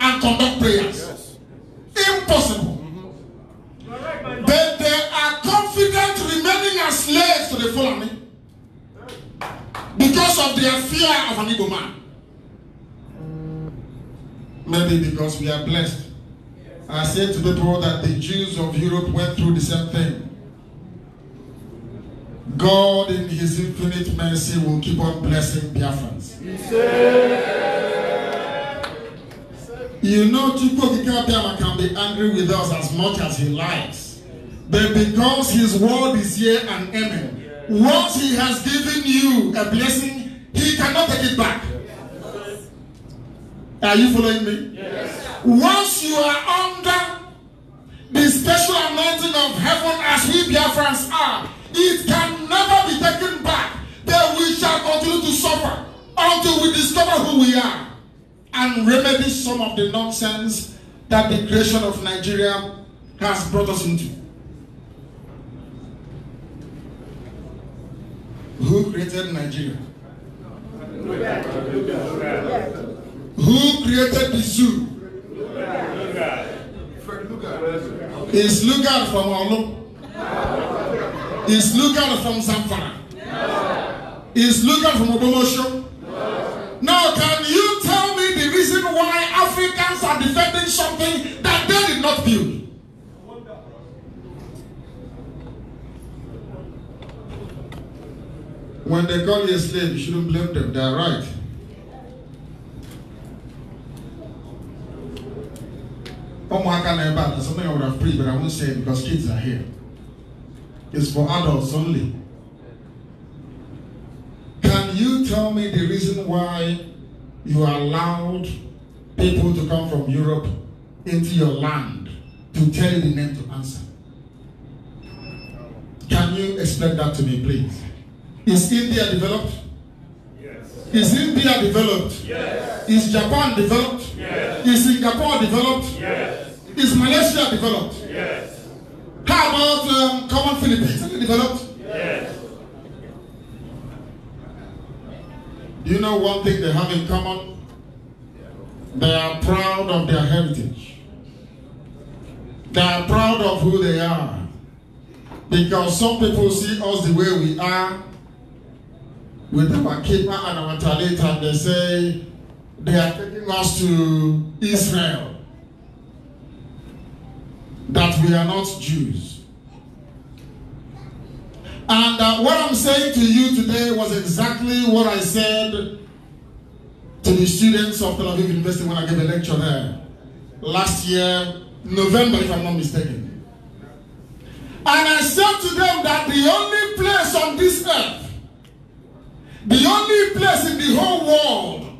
[SPEAKER 1] and conduct prayers. Yes. Impossible. Mm-hmm. but they are confident remaining as slaves to the Fulani because of their fear of an evil man. Maybe because we are blessed. I said to people that the Jews of Europe went through the same thing. God, in His infinite mercy, will keep on blessing Biafrans. You know, Chukwu Kikabiyama can be angry with us as much as he likes. But because his word is here and amen, once he has given you a blessing, he cannot take it back. Are you following me? Yes. Once you are under the special anointing of heaven as we Biafrans are, It can never be taken back. That we shall continue to suffer until we discover who we are and remedy some of the nonsense that the creation of Nigeria has brought us into. Who created Nigeria? Who created the zoo? Is Lugard from Olu? Is Lukan from Zamfara? No. Is Lukan from Odomosho? No. Now, can you tell me the reason why Africans are defending something that they did not build? When they call you a slave, you shouldn't blame them. They are right. Umuaka na ebe a, something I would have prayed, but I won't say it because kids are here is for adults only. Can you tell me the reason why you allowed people to come from Europe into your land to tell you the name to answer? Can you explain that to me, please? Is India developed? Yes. Is India developed?
[SPEAKER 2] Yes.
[SPEAKER 1] Is Japan developed? Yes. Is Singapore developed? Yes. Is Malaysia developed? Yes. How about um, common Philippines? developed? Yes. Do you know one thing they have in common? They are proud of their heritage. They are proud of who they are. Because some people see us the way we are with our keeper and our talent and they say they are taking us to Israel that we are not Jews. And uh, what I'm saying to you today was exactly what I said to the students of Tel Aviv University when I gave a lecture there last year, November, if I'm not mistaken. And I said to them that the only place on this earth, the only place in the whole world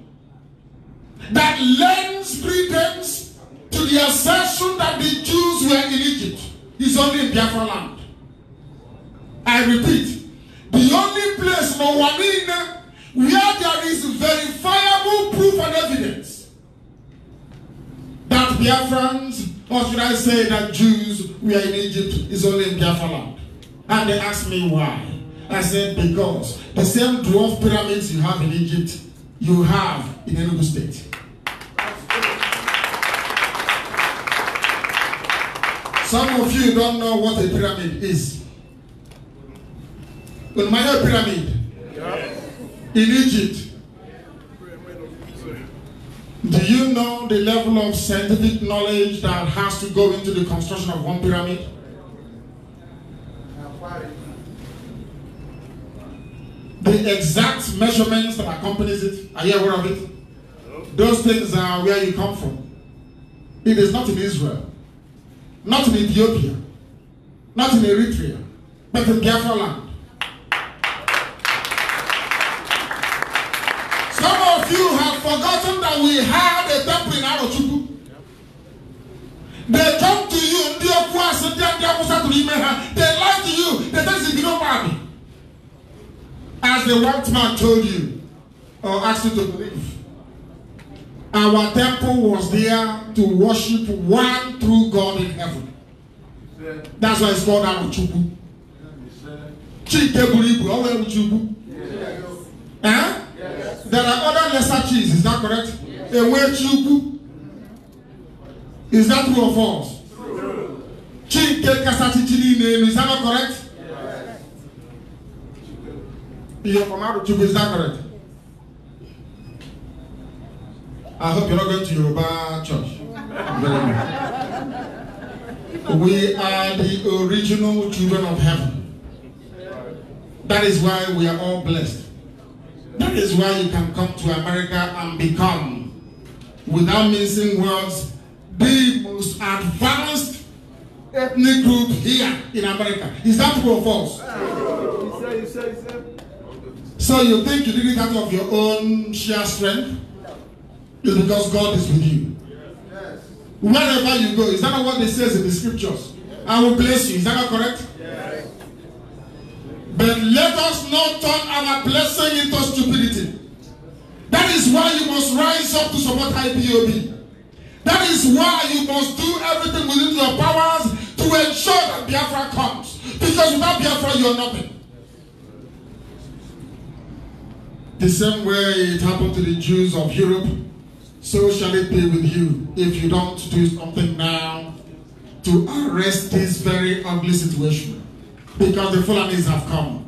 [SPEAKER 1] that lends credence to the assertion that the Jews were in Egypt is only in Biafra land. I repeat, the only place Mawanine where there is verifiable proof and evidence that Biafrans, or should I say that Jews were in Egypt, is only in Biafra land. And they asked me why. I said, because the same dwarf pyramids you have in Egypt, you have in Enugu State. Some of you don't know what a pyramid is. Maya pyramid. In Egypt. Do you know the level of scientific knowledge that has to go into the construction of one pyramid? The exact measurements that accompanies it, are you aware of it? Those things are where you come from. It is not in Israel in Ethiopia, not in Eritrea, but in Biafra land. Some of you have forgotten that we had a temple in Arochukwu. They come to you, ndị okwu asị ndị they lie to you, they tell you no army. As the white man told you, or asked you to believe, our temple was there to worship one true God in heaven. that's why it's called Aruchukwu Chike buru ibu way Eruchukwu eh there are other lesser cheese is that correct Ewechukwu is that true or false Chike kasachichi niile elu is that not correct ihe from Aruchukwu is that correct. I hope you're not going to Yoruba church.
[SPEAKER 2] <laughs> We are
[SPEAKER 1] the original children of heaven. That is why we are all blessed. That is why you can come to America and become, without missing words, the most advanced ethnic group here in America. Is that true or false? So you think you did it out of your own sheer strength? It's because God is with you. Wherever you go, is that not what they say in the scriptures? I will bless you. Is that not correct? But let us not turn our blessing into stupidity. That is why you must rise up to support IPOB. That is why you must do everything within your powers to ensure that Biafra comes. Because without Biafra, you are nothing. The same way it happened to the Jews of Europe so shall it be with you if you don't do something now to arrest this very ugly situation because the Fulanis have come.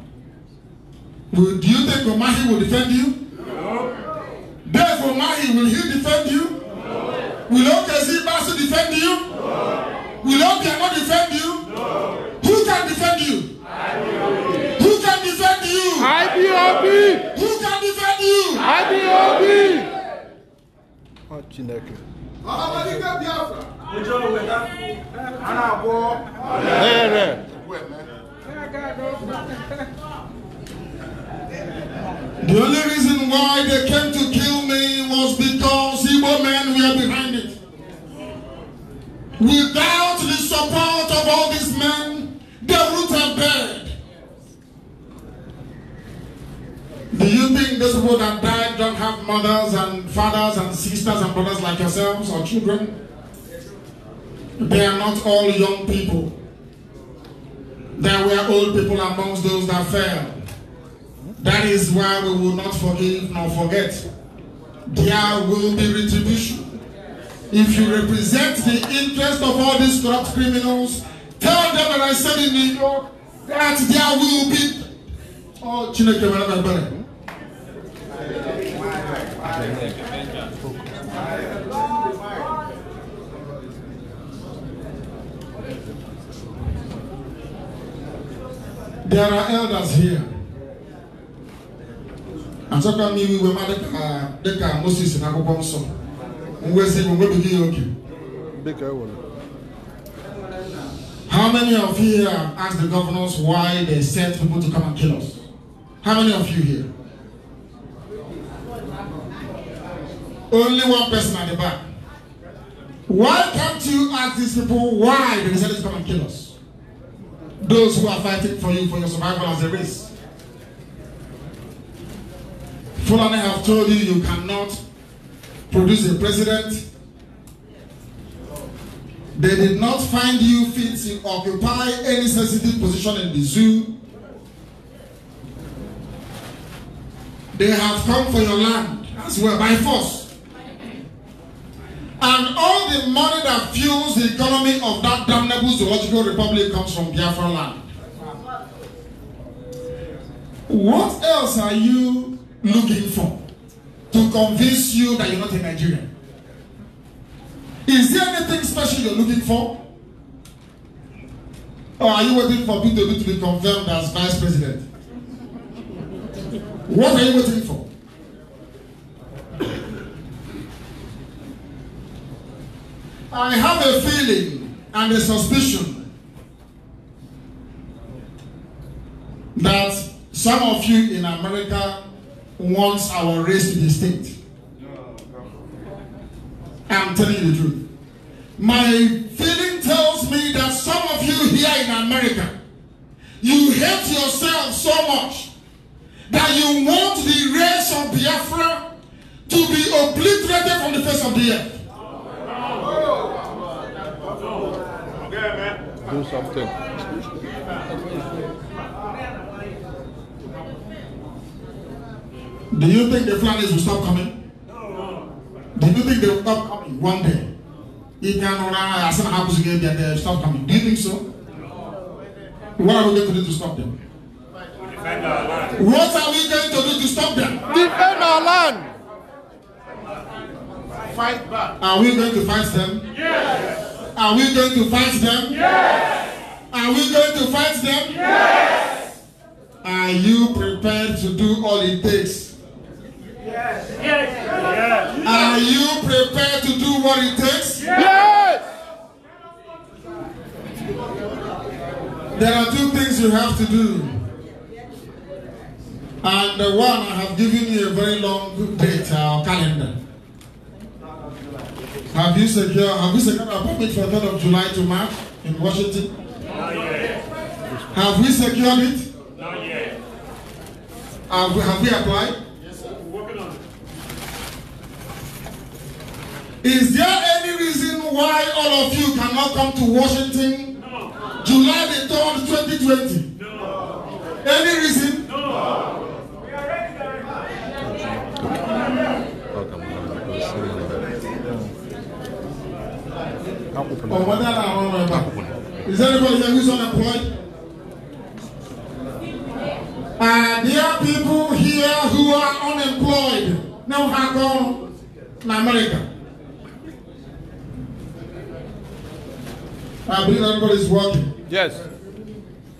[SPEAKER 1] Do you think Omahi will defend you? No. Dave Omahi, will he defend you? No. Will OKC Basu defend you?
[SPEAKER 2] No.
[SPEAKER 1] Will Obiano defend you?
[SPEAKER 2] No.
[SPEAKER 1] Who can defend you?
[SPEAKER 2] IBOB.
[SPEAKER 11] Who
[SPEAKER 1] can defend you? IBOB. Who can defend you? I IBOB.
[SPEAKER 11] Chineke
[SPEAKER 5] The only
[SPEAKER 1] reason why they came to kill me was because Igbo men were behind it. Without the support of all these men, they would have Do you think those people that died don't have mothers and fathers and sisters and brothers like yourselves or children? They are not all young people. There were old people amongst those that fell. That is why we will not forgive nor forget. There will be retribution. If you represent the interest of all these corrupt criminals, tell them that I said in New York that there will be. Oh,
[SPEAKER 5] Chineke, whatever, better. There
[SPEAKER 2] are
[SPEAKER 1] elders here. And we uh, the car Moses and Abu We say we will be okay. How many of you here asked the governors why they sent people to come and kill us? How many of you here? Only one person at the back. Why can't you ask these people why they decided to come and kill us? Those who are fighting for you for your survival as a race. Fulani have told you you cannot produce a president. They did not find you fit to occupy any sensitive position in the zoo. They have come for your land as well by force. And all the money that fuels the economy of that damnable zoological republic comes from Biafra land. What else are you looking for to convince you that you're not a Nigerian? Is there anything special you're looking for? Or are you waiting for Peter to be confirmed as vice president? What are you waiting for? I have a feeling and a suspicion that some of you in America wants our race to be extinct. I'm telling you the truth. My feeling tells me that some of you here in America, you hate yourself so much that you want the race of Biafra to be obliterated from the face of the earth. Do something. Do you think the Flanders will stop coming? Do you think they will stop coming one day? If they are not, as happens again, they will stop coming. Do you think so? What are we going to do to stop them? Defend our land. What are we going to do to stop them? Defend our land.
[SPEAKER 5] Fight back.
[SPEAKER 1] Are we going to fight them? Yes. Are we going to fight them? Yes. Are we going to fight them? Yes. Are you prepared to do all it takes?
[SPEAKER 2] Yes. Yes.
[SPEAKER 1] yes. Are you prepared to do what it takes?
[SPEAKER 3] Yes.
[SPEAKER 1] There are two things you have to do. And the one I have given you a very long date or calendar. Have you secured uh, have you secured a appointment for the third of July to march in Washington? Not yet. Have we secured it? Not yet. Have we, have we applied? Yes, sir. We're working on it. Is there any reason why all of you cannot come to Washington no. July the 3rd, 2020? No. Any reason? No. We are ready.
[SPEAKER 2] Or whether
[SPEAKER 1] I
[SPEAKER 3] don't remember.
[SPEAKER 1] Is anybody here who's unemployed? Uh, there are people here who are unemployed. Now, how come in America? I believe everybody's working. Yes.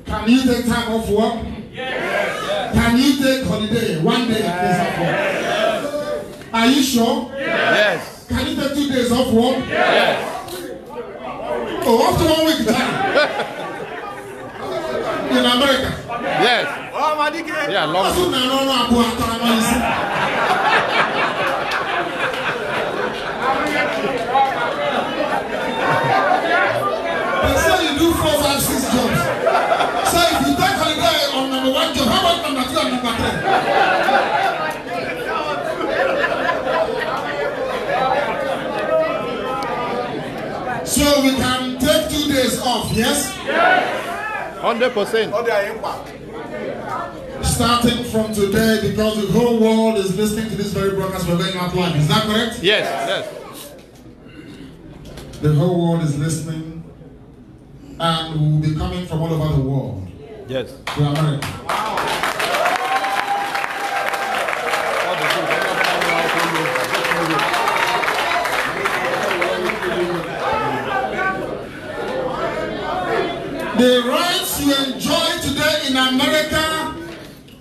[SPEAKER 1] Can you take time off work? Yes. Can you take holiday one day at least off work? Yes. Are you sure? Yes. Can you take two days off work? Yes. Oh, after one week time. in America. Yes. Oh, my dick. Yeah, long. That's what I don't know about time.
[SPEAKER 13] They say you do four, five, six jobs. So if you take a guy on number
[SPEAKER 10] one job, how about number two and number
[SPEAKER 13] three?
[SPEAKER 2] So we can
[SPEAKER 1] take two days off, yes? Yes!
[SPEAKER 5] 100%.
[SPEAKER 1] Starting from today, because the whole world is listening to this very broadcast, we're going out live. Is that correct? Yes, yes. yes. The whole world is listening, and we'll be coming from all over the world. Yes. To America. Wow. The rights you enjoy today in America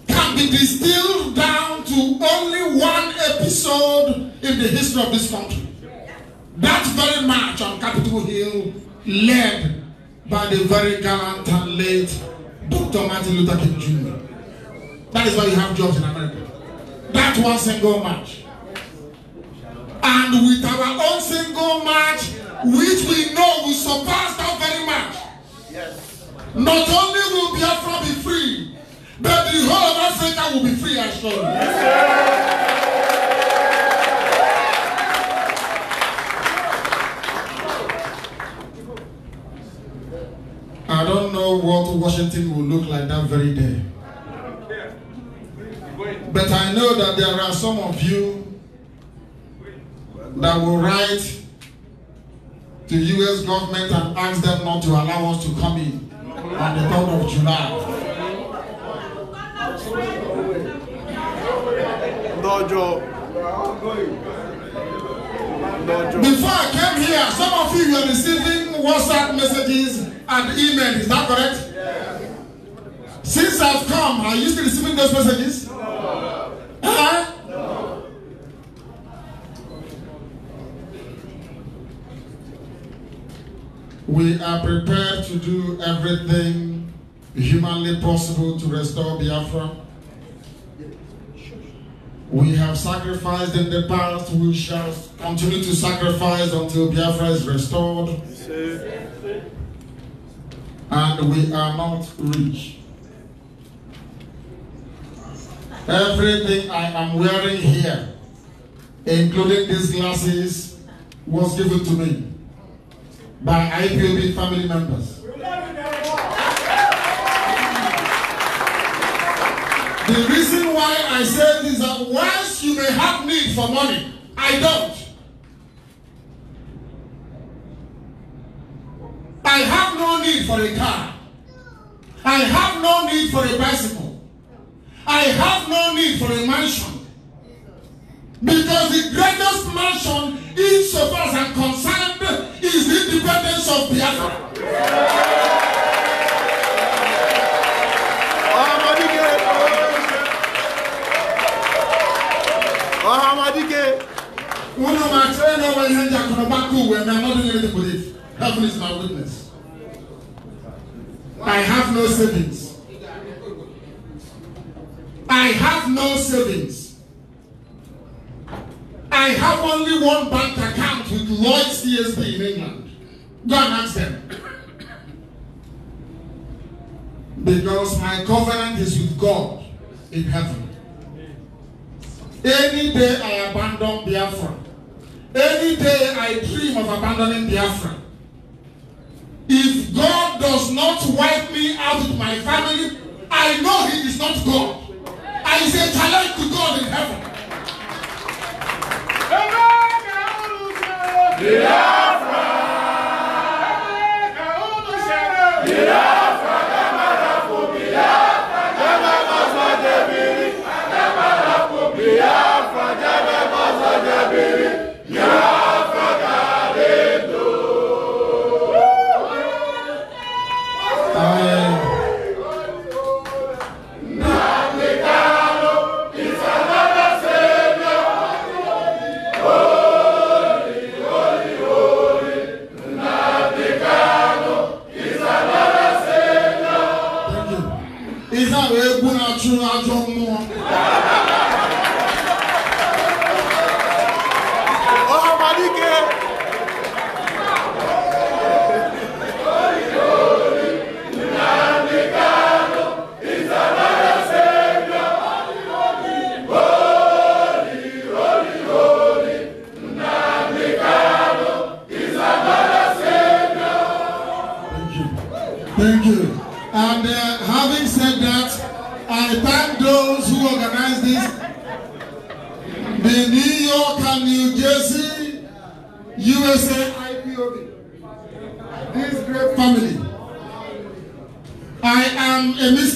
[SPEAKER 1] can be distilled down to only one episode in the history of this country. That very march on Capitol Hill led by the very gallant and late Dr. Martin Luther King Jr. That is why you have jobs in America. That one single march. And with our own single march, which we know will surpass that very march, Yes. Not only will Biafra be free, but the whole of Africa will be free as well. I don't know what Washington will look like that very day. But I know that there are some of you that will write The U.S. government and ask them not to allow us to come in on the 3rd of July.
[SPEAKER 2] Dojo.
[SPEAKER 11] Dojo. Before I came here, some of you were receiving
[SPEAKER 1] WhatsApp messages and emails. Is that correct? Since I've come, are you still receiving those messages? No. Huh? We are prepared to do everything humanly possible to restore Biafra. We have sacrificed in the past, we shall continue to sacrifice until Biafra is restored. and we are not rich. Everything I am wearing here, including these glasses, was given to me. by IPOB family members. The reason why I say this is that whilst you may have need for money, I don't. I have no need for a car. I have no need for a bicycle. I have no need for a mansion. Because the greatest mansion, insofar as I'm concerned, is the independence of the other. Unu ma chere na ọwa ihe ndị akụnụba ka uwe na mmadụ nyere dịpụrụ efu. Heaven is my witness. I have no savings. I have no savings. I have only one bank account with Lloyd's CSB in England. Go and ask them. Because my covenant is with God in heaven. Any day I abandon Biafra, any day I dream of abandoning Biafra, if God does not wipe me out with my family, I know He is not God. I say challenge to God in heaven.
[SPEAKER 2] Virar!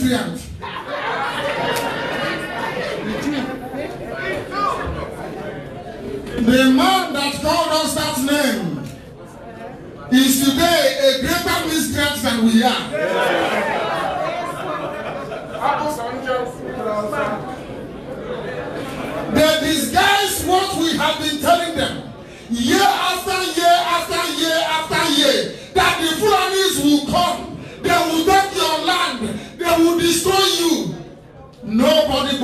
[SPEAKER 1] prayer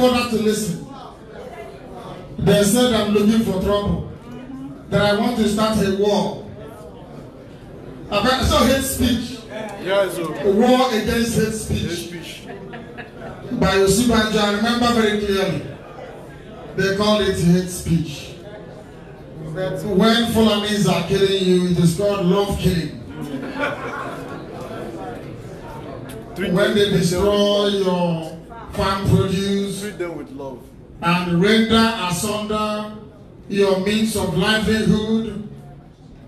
[SPEAKER 1] bother to listen. They said I'm looking for trouble, that I want to start a war. I saw hate speech. Oh. War against hate speech. By Yosibanjo, I remember very clearly. They call it hate speech. But when Fulanis are killing you, it is called love killing. when they destroy your can produce. Treat them with love. And render asunder your means of livelihood.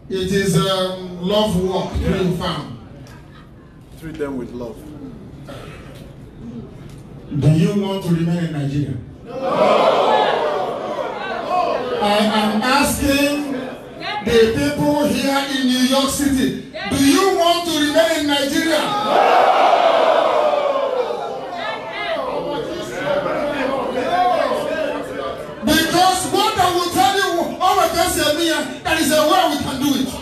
[SPEAKER 1] It is um, love work, yeah. being
[SPEAKER 11] found. Treat them with love. Do you
[SPEAKER 4] want to remain in Nigeria?
[SPEAKER 2] No! I am asking the
[SPEAKER 1] people here in New York City, do you want to remain in Nigeria? No! is a way we can do it.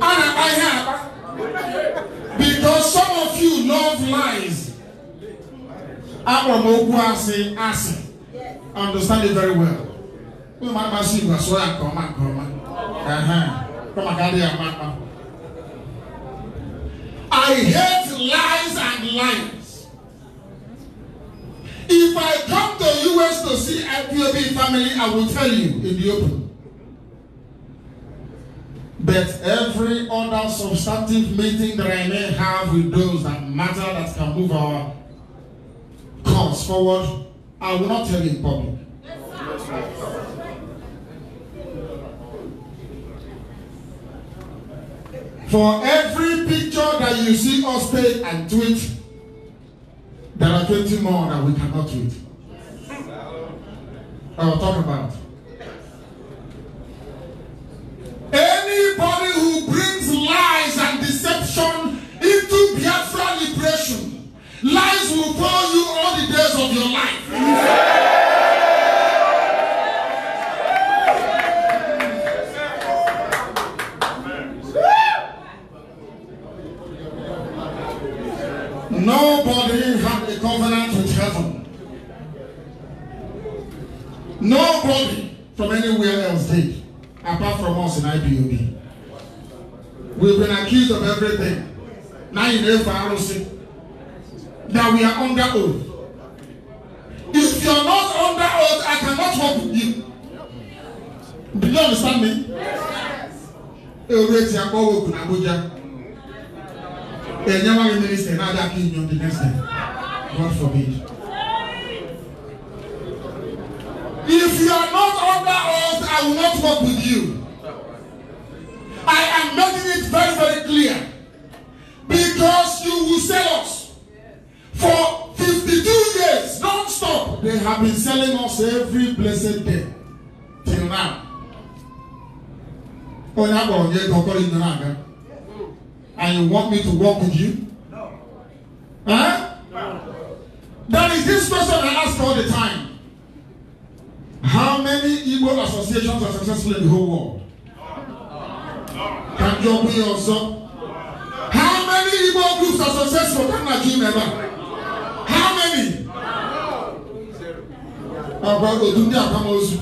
[SPEAKER 2] And I have,
[SPEAKER 1] because some of you love lies. Abram Okwasi Asi. Understand it very well. Wọ́n máa ma sí ìgbà sọ́yà kọ́má kọ́má. Kọ́má kárí àmàmà. I hate lies and lying. If I come to US to see IPOB family, I will tell you in the open. But every other substantive meeting that I may have with those that matter that can move our cause forward, I will not tell you in public. For every picture that you see us take and tweet, There are 20 more that we cannot wait. I will talk about.
[SPEAKER 5] Anybody
[SPEAKER 1] who brings lies and deception into Biafra liberation, lies will follow you all the days of your
[SPEAKER 2] life.
[SPEAKER 1] No covenant with heaven. Nobody from anywhere else did, apart from us in IPOB. We've been accused of everything. Now you know for that we are under oath. If you're not under oath, I cannot work with you. Do you understand me? Yes. Abuja. Enyewa minister na-adakị inyo
[SPEAKER 11] the next time. God forbid.
[SPEAKER 1] If you are not under oath, I will not work with you. I am making it very, very clear. Because you will sell us. For 52 years, non-stop, they have been selling us every blessed day. Till now. When I go here, don't call in the And you want me to walk with you? No. Huh? No. There is this question I ask all the time. How many Igbo associations are successful in the whole world? Can you be also? How many Igbo groups are successful? Can I give ever? How many? Ọ̀pọ̀ òtún ní àpamọ́sù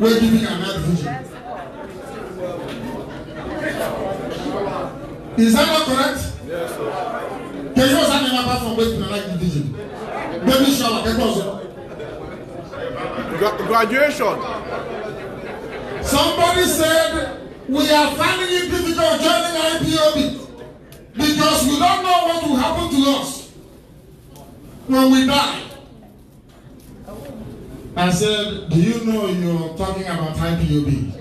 [SPEAKER 1] wé gíní àná division. Is that not correct? Yes, sir.
[SPEAKER 5] Can you also name apart from wé gíní àná division? Gbẹ́mí ṣọlá Graduation.
[SPEAKER 1] Somebody said we are finding it difficult joining IPOB because we don't know what will happen to us when we die. I said, do you know you're talking about IPOB?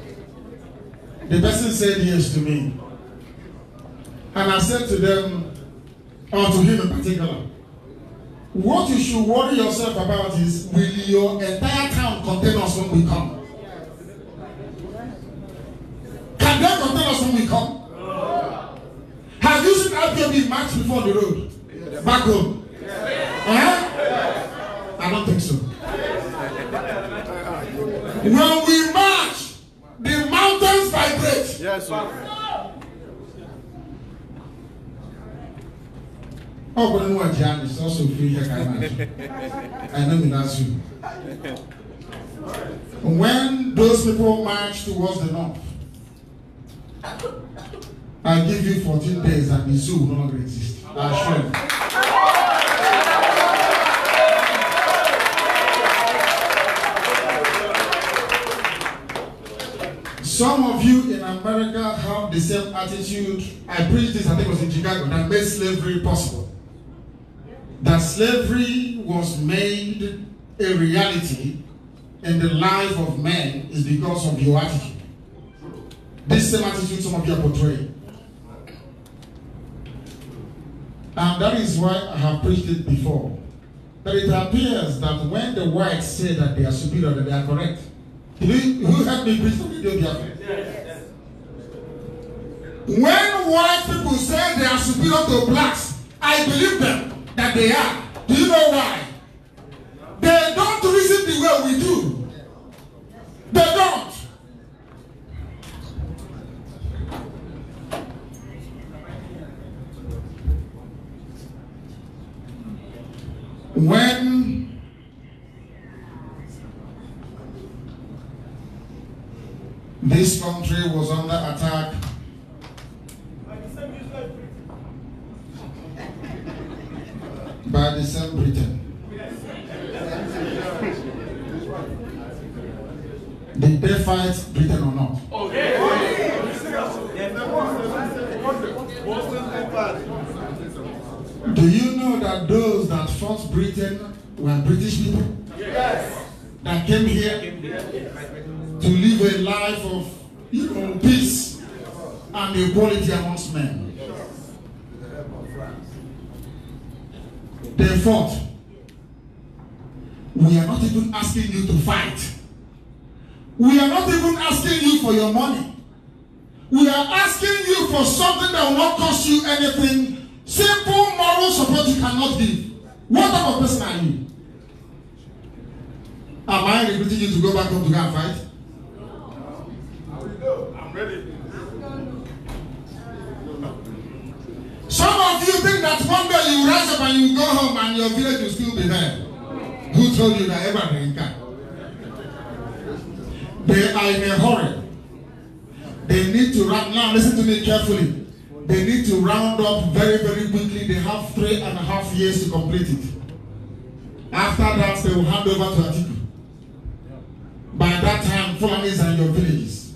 [SPEAKER 1] The person said yes to me. And I said to them, or to him in particular, What you should worry yourself about is will your entire town contain us when we come? Can they contain us when we come? Have you seen RPB march before the road?
[SPEAKER 3] Back home? Yeah. Huh? I don't think so. when we march, the mountains vibrate. Yes, sir.
[SPEAKER 1] ọkọ ni to jẹ àmì sọ sọ fún yẹ ká máa sọ àyìnbá mi náà sùn. When those people march towards the north, I give you 14 days and the zoo will longer exist. I assure you. Some of you in America have the same attitude. I preached this, I think it was in Chicago, that made slavery possible. that slavery was made a reality in the life of man is because of your attitude. This same attitude some of you are portraying. And that is why I have preached it before. That it appears that when the whites say that they are superior, that they are correct. who helped me preach the video yes. When white people say they are superior to blacks, I believe them that they are. Do you know why? They don't reason the way we do. They don't.
[SPEAKER 2] When
[SPEAKER 1] this country was under attack by the same Britain. Did they fight Britain or not? Do you know that those that fought Britain were British people? Yes. That came here to live a life of you know, peace and equality amongst men. Then fourth, we are not even asking you to fight. We are not even asking you for your money. We are asking you for something that will not cost you anything. Simple moral support you cannot give. What type of person are you? Am I recruiting you to go back home to go and fight? No. I will
[SPEAKER 3] go. I'm ready.
[SPEAKER 1] Some of you think that one day you rise up and you go home and your village will still be there. Who told you that ever can? They are in a hurry. They need to round now. Listen to me carefully. They need to round up very, very quickly. They have three and a half years to complete it. After that, they will hand over to Atiku. By that time, Fulanis and your villages.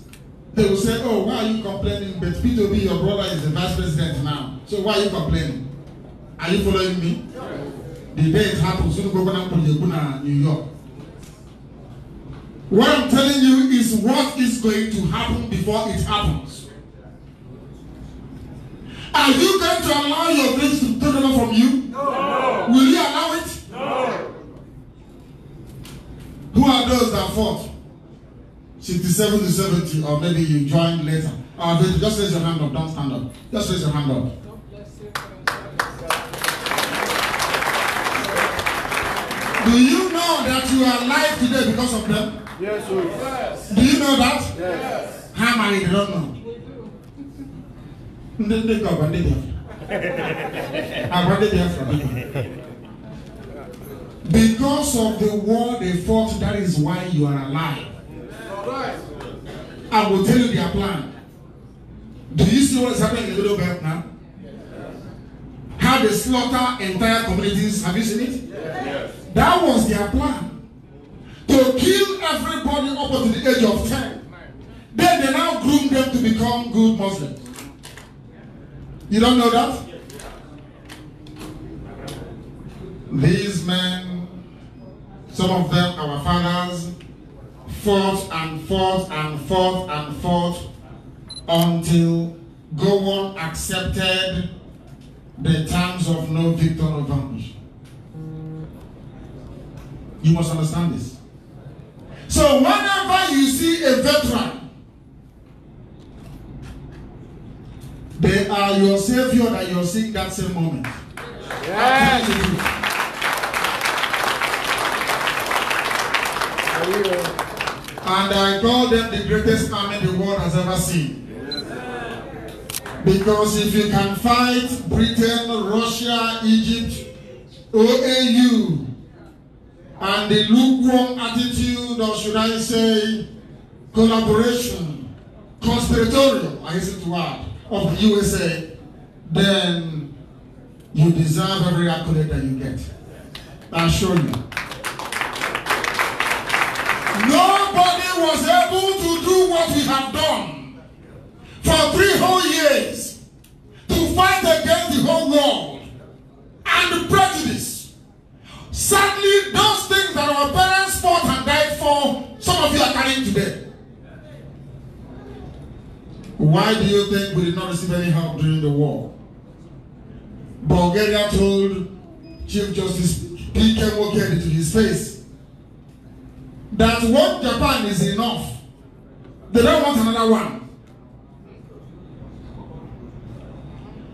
[SPEAKER 1] They will say, Oh, why are you complaining? But P2B, your brother, is the vice president now. So why are you complaining? Are you following me? The day it happened, soon go back to Yaguna, New York. What I'm telling you is what is going to happen before it happens. Are you going to allow your grace to take over from you?
[SPEAKER 2] No.
[SPEAKER 1] Will you allow it? No. Who are those that fought? 67 to 70, or maybe you join later. Uh, just raise your hand up. Don't stand up. Just raise your hand up. Do you know that you are alive today because of them? Yes, sir. Yes. Do you know that?
[SPEAKER 12] Yes.
[SPEAKER 5] How many don't know? We do. They go, but
[SPEAKER 1] they from Because of the war they fought, that is why you are alive. I will tell you their plan. Do you see what is happening in the Middle Belt now? How they slaughter entire communities. Have you seen it? Yes. That was their plan. To kill everybody up to the age of 10. Then they now groom them to become good Muslims. You don't know that? These men, some of them our fathers, forth and forth and forth and forth until Gowon accepted the terms of no Victor vanquish. You must understand this. So whenever you see a veteran, they are your savior that you're seeing that same moment. Yes. And I call them the greatest army the world has ever seen. Because if you can fight Britain, Russia, Egypt, OAU, and the lukewarm attitude, or should I say, collaboration, conspiratorial, I hasten to add, of the USA, then you deserve every accolade that you get. I assure you. was able to do what we have done for three whole years to fight against the whole world and the prejudice. Sadly, those things that our parents fought and died for, some of you are carrying today. Why do you think we did not receive any help during the war? Bulgaria told Chief Justice P.K. Mokedi to his face that what Japan is enough. They don't want another one.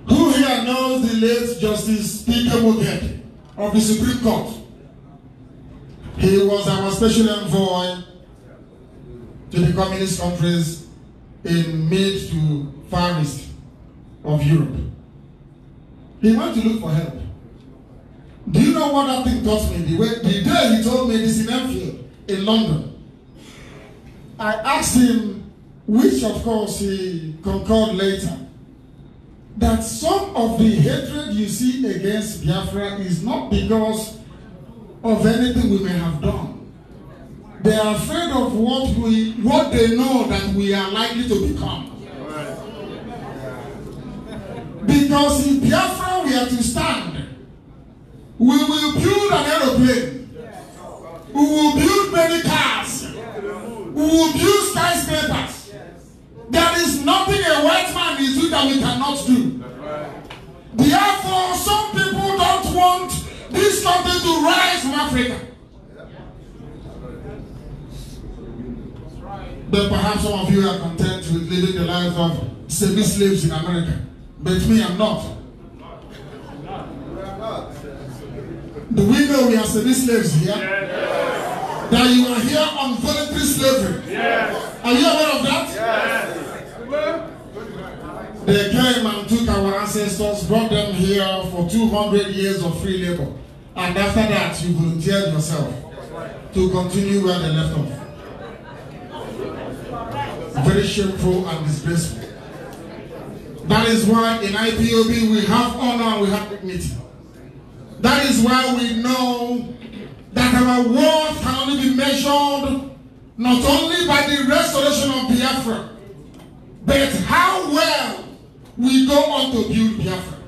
[SPEAKER 1] Who here knows the late Justice P.K. Mugent of the Supreme Court? He was our special envoy to the communist countries in mid to far east of Europe. He went to look for help. Do you know what that thing taught me? The, way, the day he told me this in Enfield, in London. I asked him, which of course he concurred later, that some of the hatred you see against Biafra is not because of anything we may have done. They are afraid of what we what they know that we are likely to become. Because if Biafra were to stand, we will build an aeroplane We will build many cars. We will build skyscrapers. There is nothing a white man is doing that we cannot do. Therefore, some people don't want this country to rise from Africa. But perhaps some of you are content with living the life of semi-slaves in America. But me, I'm not. Do we know we are semi-slaves here? Yes. That you are here on
[SPEAKER 5] voluntary slavery?
[SPEAKER 2] Yes. Are you aware of that?
[SPEAKER 5] Yes.
[SPEAKER 1] They came and took our ancestors, brought them here for 200 years of free labor. And after that, you volunteered yourself to continue where they left off. Very shameful and disgraceful. That is why in IPOB we have honor we have dignity. That is why we know that our worth can only be measured not only by the restoration of Biafra, but how well we go on to build Biafra.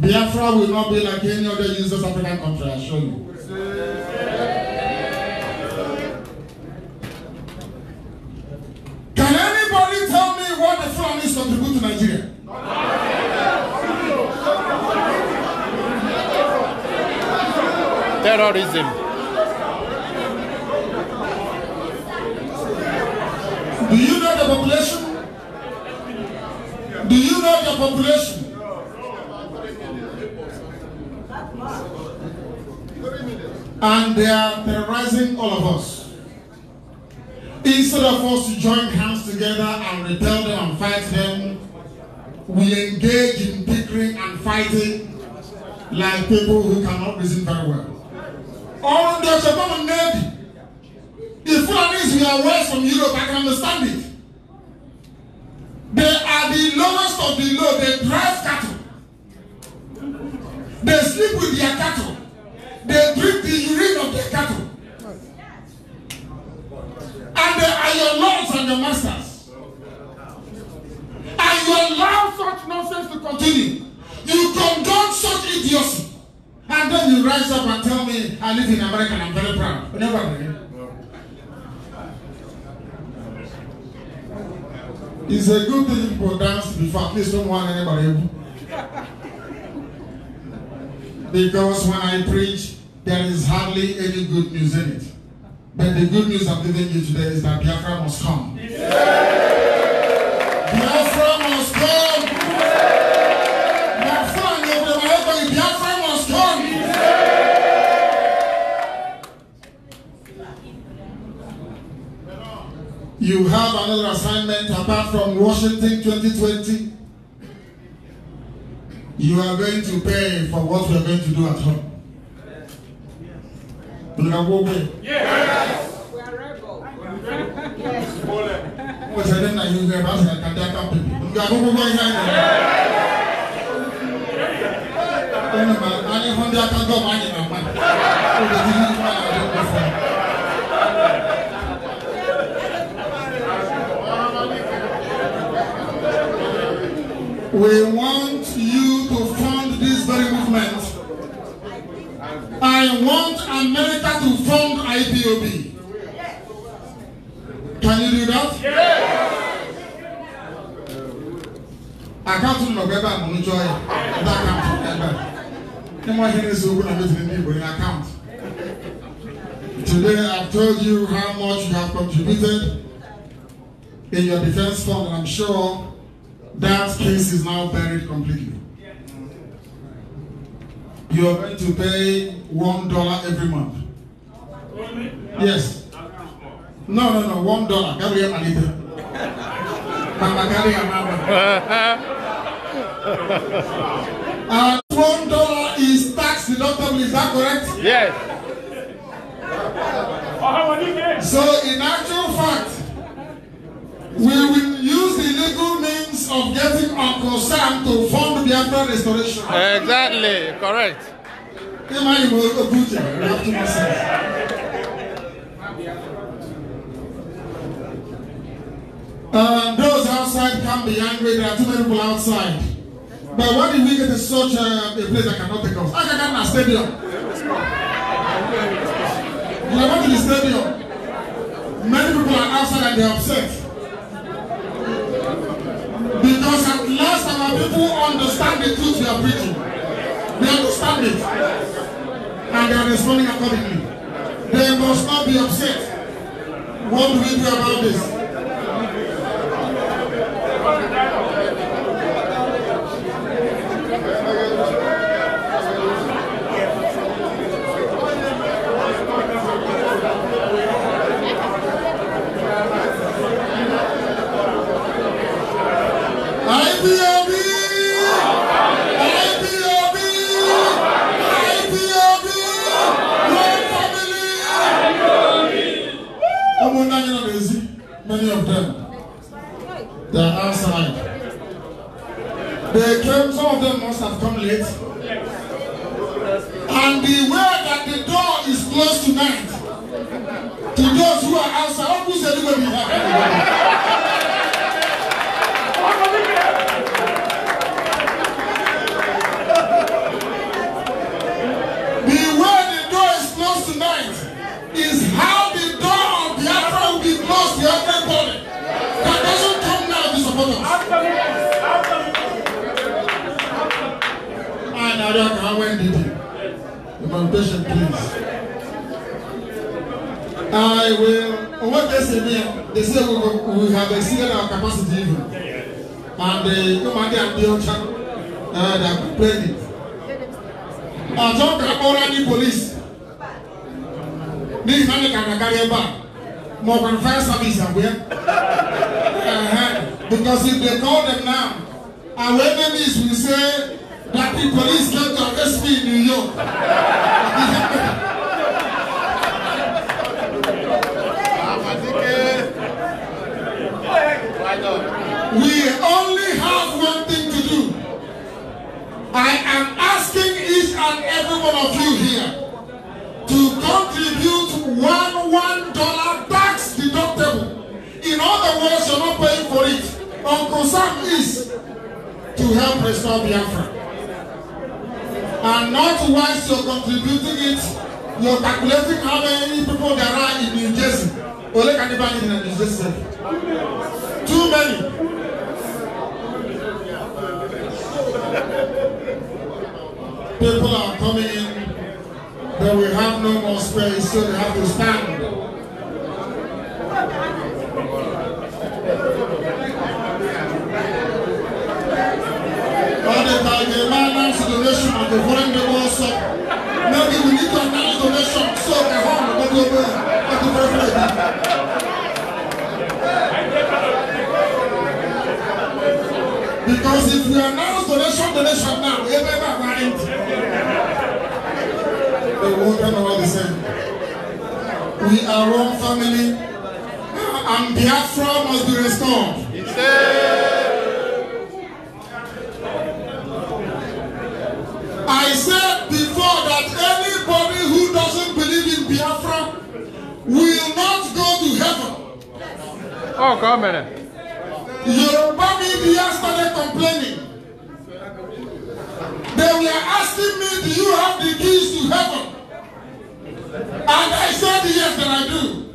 [SPEAKER 1] Biafra will not be like any other useless African country, I assure you. Can anybody tell me what the flood is contribute to Nigeria?
[SPEAKER 4] terrorism.
[SPEAKER 1] Do you know the population? Do you know the population? And they are terrorizing all of us. Instead of us to join hands together and repel them and fight them, we engage in bickering and fighting like people who cannot reason very well. Or there's a woman named the foreigners we are west from Europe, I can understand it. They are the lowest of the low. They drive cattle. They sleep with their cattle. They drink the urine of their cattle. And they are your lords and your masters. And you allow such nonsense to continue. You condone such idiocy. And then you rise up and tell me, I live in America and I'm very proud. You never agree. It's a good thing people dance before, please don't want anybody. because when I preach, there is hardly any good news in it. But the good news I'm giving you today is that Biafra must come.
[SPEAKER 2] Yeah.
[SPEAKER 1] You have another assignment apart from Washington 2020. You are going to pay for what we are going to do at home. You can go away. Yes. We are rebel. Yes. What's the name that you have asked? I can't help you. You are going to go inside. Only man, only Honda can We want you to fund this very movement. I want America to fund IPOB. Can you do that? Àkáǹtì nọ̀gbẹ́ bá mò ń jọ ẹ̀ ẹ̀dá àkáǹtì ẹ̀gbẹ́. Kí wọ́n ṣe ní sọ ogún àbí tìrì ní ìbò Today I've told you how much you have contributed in your defense fund and I'm sure. That case is now buried completely. You are going to pay one dollar every month. Yes. No, no, no, one dollar. Carry a liter. a And one dollar is tax deductible, is that correct? Yes. So, in actual fact, we will use the legal means of getting Uncle Sam to fund the Biafra restoration.
[SPEAKER 4] Exactly, correct.
[SPEAKER 1] Uh, those outside can be angry. There are too many people outside. But why did we get to such a, uh, a place that cannot take us? I can get a stadium. You are going to the stadium.
[SPEAKER 6] Many people are outside and they are
[SPEAKER 1] upset. Because at last our people understand the truth we are preaching. They understand it. And they are responding accordingly. They must not be
[SPEAKER 2] upset. What do we do about this?
[SPEAKER 1] come late. And beware that the door is closed tonight, to those who are outside, open the door. Madam Hawen Didi, implementation please. I will, what they say there, they say we, oh, oh, oh, we have exceeded our capacity even. And uh, the commander there at the ocean, they have complained it. don't kakọ́ra ní police ní ìsàlẹ̀ kàkàkárí ẹ̀ bá more than fire service àgbẹ̀. Uh uh-huh. Because if they call them now, our enemies will say. That the police came to arrest me in New York. <laughs> we only have one thing to do. I am asking each and every one of you here to contribute one one dollar tax deductible. In other words, you're not paying for it. Uncle Sam is to help restore Biafra and not once you're contributing it you're calculating how many people there are in New Jersey ole ka ní báyìí New Jersey too many. people are coming in but we have no more space so they have to stand. the when
[SPEAKER 2] the world suffer. Maybe we need to acknowledge the so the harm will go well. Thank you very much.
[SPEAKER 1] Because if we announce the nation, the nation now, everybody right. The world cannot the same. We are one family. And Biafra must be restored. It's
[SPEAKER 2] there.
[SPEAKER 3] Oh, come on.
[SPEAKER 1] Yoruba media started complaining. They were asking me, do you have the keys to heaven? And I said, yes, that I do.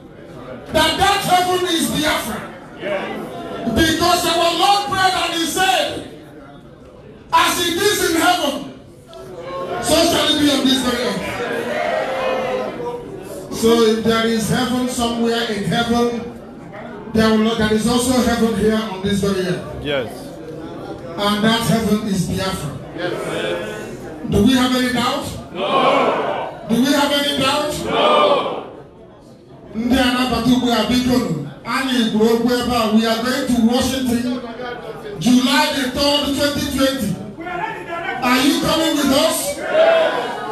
[SPEAKER 1] That that heaven is the Yeah. Because our Lord prayed and he said, as it is in heaven, so shall it be on this very earth. So if there is heaven somewhere in heaven, There, will, there is also heaven here on this very earth. Yes. And that heaven is Biafra. Yes. Do we have any doubt? No. Do we have any doubt? No. Ndị anabata ugbu a bikonu, anyị gwuru okwu ebe a, we are going to Washington, July the 3rd, 2020.
[SPEAKER 2] Are you coming with us?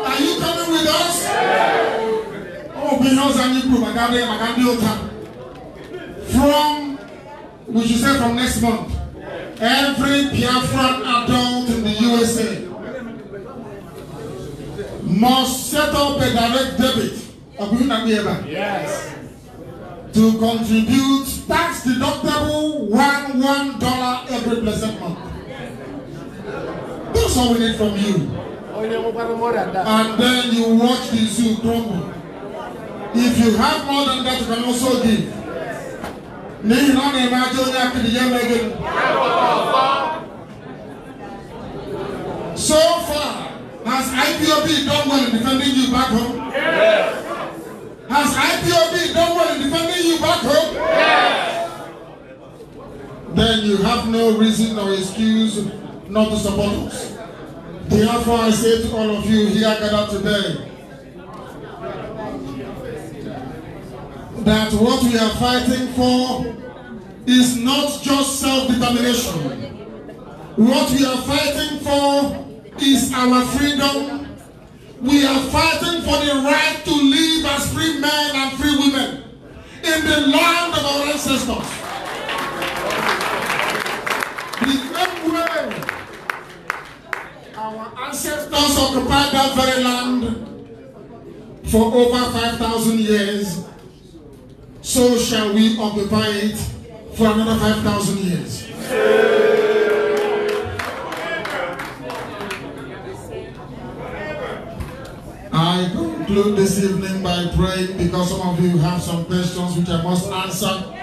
[SPEAKER 1] Are you coming with us? Ọ bụ ihe ọzọ anyị kwuru maka abịa maka ndị ụka from we should say from next month every Biafran adult in the USA must set up a direct debit yes. to contribute tax deductible one one dollar every blessed month. That's all we need from you.
[SPEAKER 4] Oh,
[SPEAKER 1] And then you watch the zoo crumble. If you have more than that, you can also give n'ihi na ọ na-eme onye akịrị ya emeghị so far has ipob done well in defending you back home yes. has ipob done well in defending you back home yes. then you have no reason or excuse not to support us therefore i say to all of you here gathered today that what we are fighting for is not just self-determination. What we are fighting for is our freedom. We are fighting for the right to live as free men and free women in the land of our ancestors. The same way
[SPEAKER 2] our ancestors
[SPEAKER 1] occupied that very land for over 5,000 years so shall we occupy it for another 5,000 years. I conclude this evening by praying because some of you have some questions which I must answer.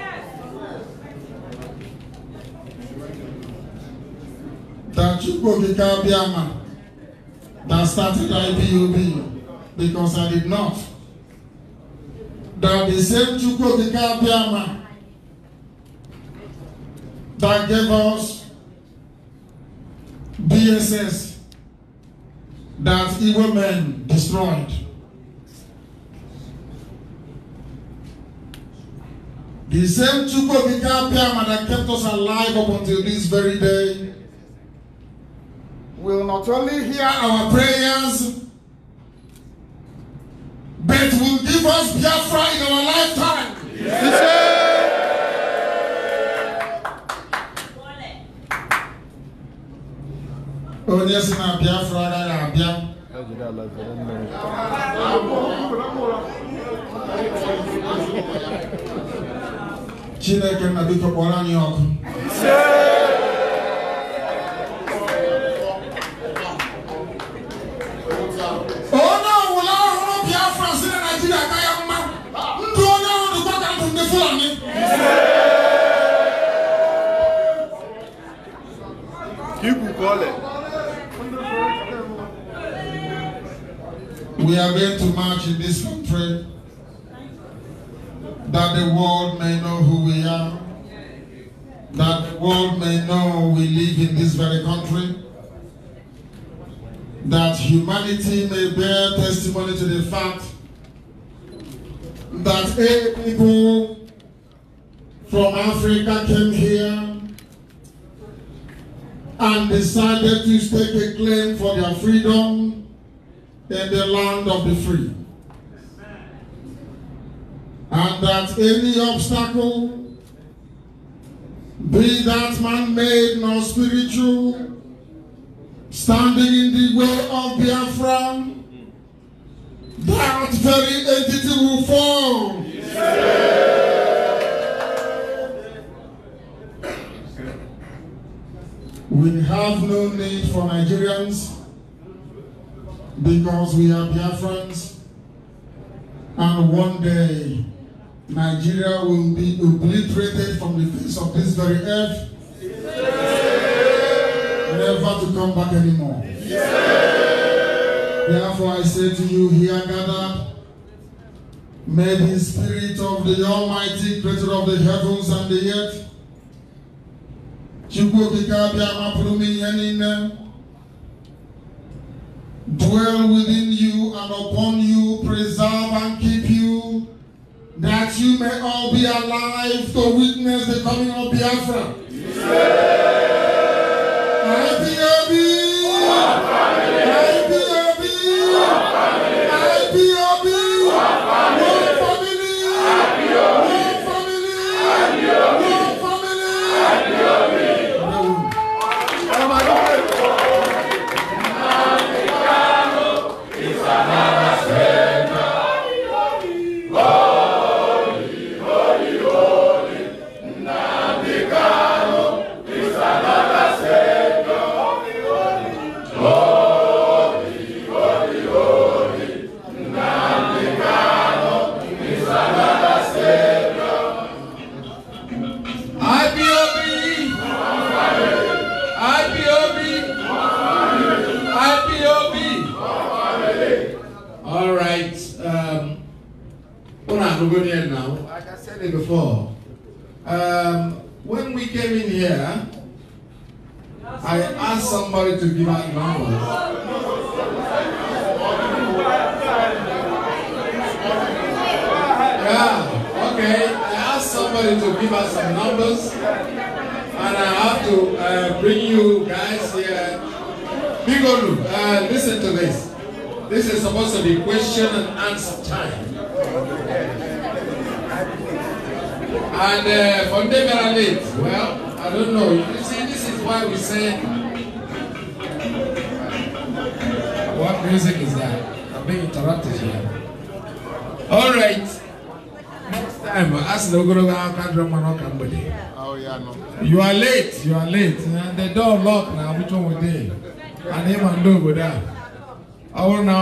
[SPEAKER 1] That you go to Kabiama that started IPOB because I did not the same Chukwu Okike Abịama that gave us BSS that evil men destroyed. The same Chukwu Okike Abịama that kept us alive up until this very day will not only hear our prayers but will give us Biafra in our
[SPEAKER 2] lifetime. Onye si oh, na Biafra am abịa.
[SPEAKER 1] Chineke nna biko kpọrọ anyị ọkụ. wà ní.
[SPEAKER 2] Kíkù kọ́lẹ̀.
[SPEAKER 1] We are going to march in this country that the world may know who we are, that the world may know we live in this very country, that humanity may bear testimony to the fact that eight people from Africa came here and decided to stake a claim for their freedom in the land of the free. And that any obstacle, be that man-made nor spiritual, standing in the way of Biafra, that very entity will fall. We have no need for Nigerians because we are Biafrans and one day Nigeria will be obliterated from the face of this very earth yeah. never to come back anymore. Yeah. Therefore I say to you here gathered may the spirit of the almighty creator of the heavens and the earth dwell within you and upon you, preserve and keep you, that you may all be alive to witness the coming of Biafra. Yeah.
[SPEAKER 2] IPOB!
[SPEAKER 4] to give us some numbers.
[SPEAKER 2] And
[SPEAKER 4] I have to uh, bring you guys here. Bigolu, uh, listen to this. This is supposed to be question and answer time.
[SPEAKER 2] And uh, for them late, well, I don't know. You see,
[SPEAKER 4] this is why we say, what music is that? I'm being interrupted here. All right. time asị na ogologo aka dịrị mmanụ ọka mgbede oh, you are late you are late and eh? the door lock na abụcha onwede and ịma ndị obodo a I bụrụ na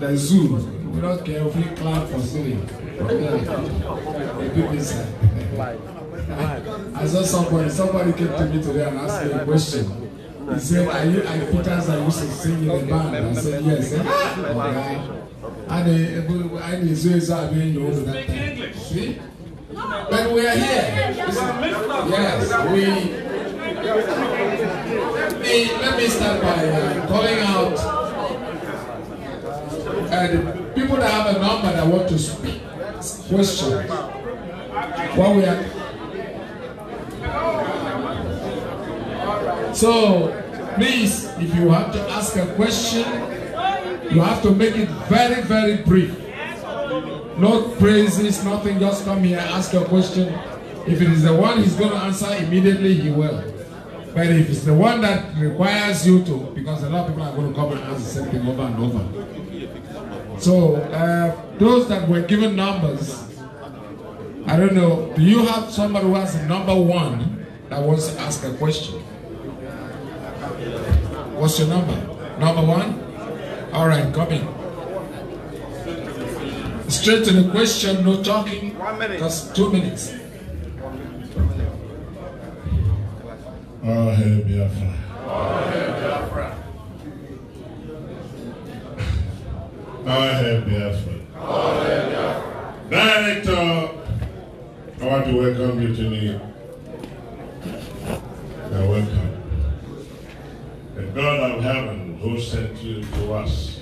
[SPEAKER 4] the zoo we don't care if we clap for silly I saw somebody, somebody came to me today and asked me a question. He said, Are you, are you Peters? Are you to in the band. I said, Yes. Eh? Speak English. See? But we are here. Yes, we. The,
[SPEAKER 2] let me start by uh, calling out
[SPEAKER 4] uh, people that have a number that want to speak questions. What we are. So, please, if you have to ask a question, you have to make it very, very brief. No praises, nothing. Just come here, ask your question. If it is the one he's going to answer immediately, he will. But if it's the one that requires you to, because a lot of people are going to come and ask the same thing over and over. So, uh, those that were given numbers, I don't know, do you have somebody who has number one that wants to ask a question? What's your number? Number one? All right, come in. Straight to the question, no talking. One minute. Just two minutes.
[SPEAKER 3] Oh, hey, Biafra. Oh, hey, Biafra. Oh, hey, Biafra. Oh, hey, Biafra. Director, I want to welcome you to me. You're welcome. The God of heaven who sent you to us?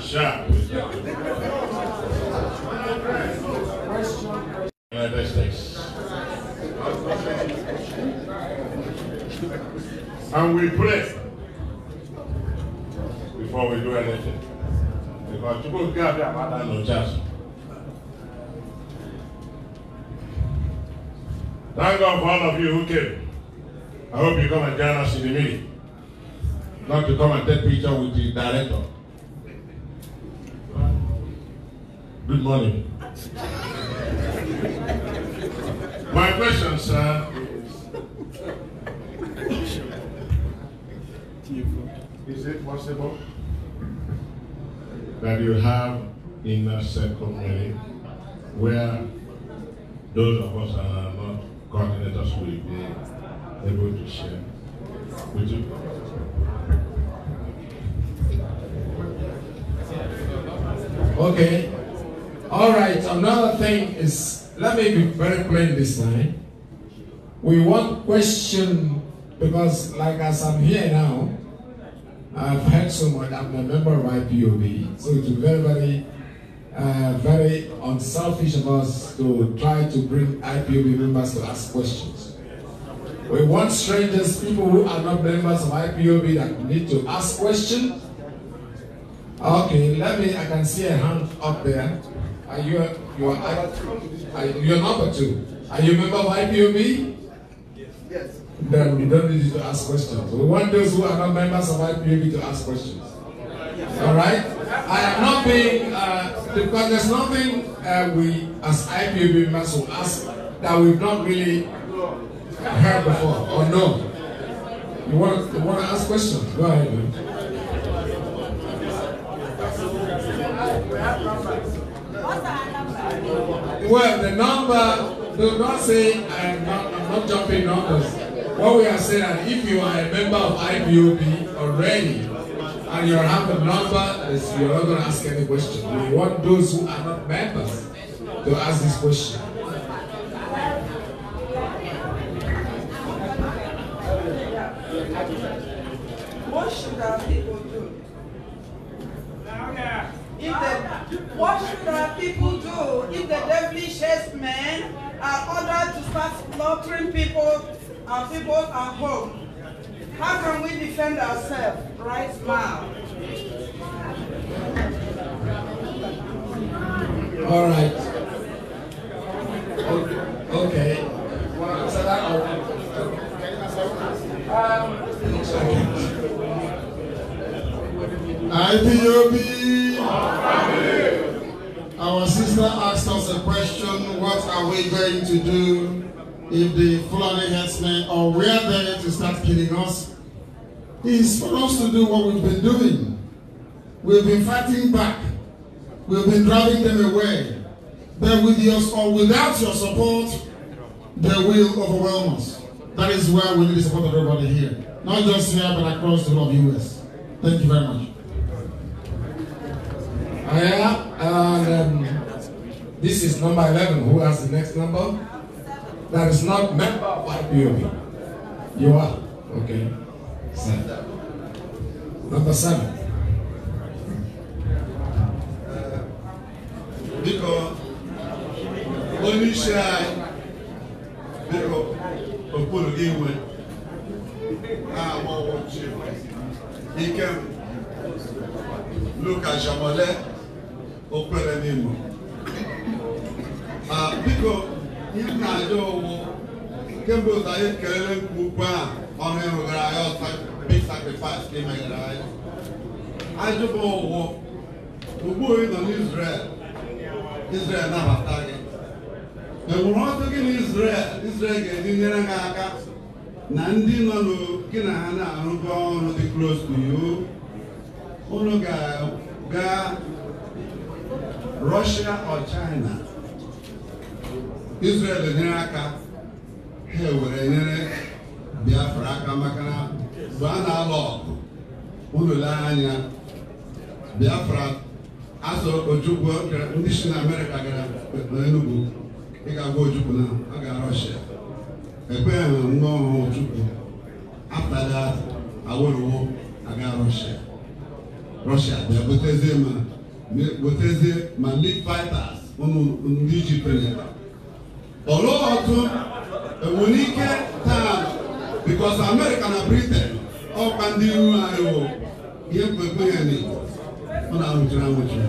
[SPEAKER 3] Shall United <laughs> And we pray before we do anything. Because you people get their mother no chance. Thank God for all of you who came. I hope you come and join us in the meeting not to come and take picture with the director. Good morning. My question, sir, is Is it possible that you have in a circle meeting where those of us that are not coordinators will be able to share
[SPEAKER 4] with you? Okay. All right. Another thing is, let me be very plain this time. We want question because, like as I'm here now, I've heard so much. I'm a member of IPOB, so it's very, very, uh, very unselfish of us to try to bring IPOB members to ask questions. We want strangers, people who are not members of IPOB that need to ask questions. Okay, let me, I can see a hand up there. Are you, you are, are you number two. Are you a member of IPOB? Yes. yes. Then we don't need you to ask questions. We want those who are not members of IPOB to ask questions. All right? I am not being, uh, because there's nothing uh, we as IPOB members will ask that we've not really heard before or oh, no? You want, you want to ask questions? Go ahead, man. Well, the number, do not say I'm not, I'm not jumping numbers. What we are saying is if you are a member of IPOB already, and you have a number, you're not going to ask any question. We want those who are not members to ask this question.
[SPEAKER 6] people do? If the, what should our people do if the devilish men are ordered to start slaughtering people and people at home? How can we defend ourselves right now? All right.
[SPEAKER 4] Okay. okay. Um, okay.
[SPEAKER 1] IPOB. Our sister asked us a question, what are we going to do if the Fulani headsmen are where there to start killing us? It's for us to do what we've been doing. We've been fighting back. We've been driving them away. But with your or without your support, they will overwhelm us. That is why we need the support of everybody here. Not just here, but across the whole of the U.S. Thank you very much.
[SPEAKER 4] Yeah, and um, this is number 11. Who has the next number? That is not member of IPOB. You are? Okay. Seven. Number seven.
[SPEAKER 11] Biko, of àyè, biko, òpólò ìwé, àwọn He can look at Jamọ̀lẹ́ o kwere n'imo ma biko ihe na-aja ụwụ kemgbe ụzọ anyị kelele nke ukwu a ọrụ ịrụgara anyị ọsa big sacrifice ka imegara anyị ajụba ụwụ ugbu ị nọ n'Israel Israel nabata gị enwere ọtụ gị na Israel Israel ga-eji nyere gị aka na ndị nọ gị na ha na-arụgo ọrụ dị close to you unu ga Russia or China Israel nyere aka ha were nyere Biafra aka maka na mgbe a na-alụ ọgụ unu lee anya Biafra azụ Ojukwu ndị si na Amerịka gara n'enugu ịga gwa Ojukwu na ọ ga Russia ekweghị nwa ọhụụ Ojukwu after that aga Russia Russia bịa butezie ma wetezie ma league fighters ụmụ ndị ji penyere ọlụ ọtụ enwere ike taa bikos amerịka na briten ọkwa ndị ihu anyị wụ ihe mkpekpe ya na ọ na-anwụchiri anwụchi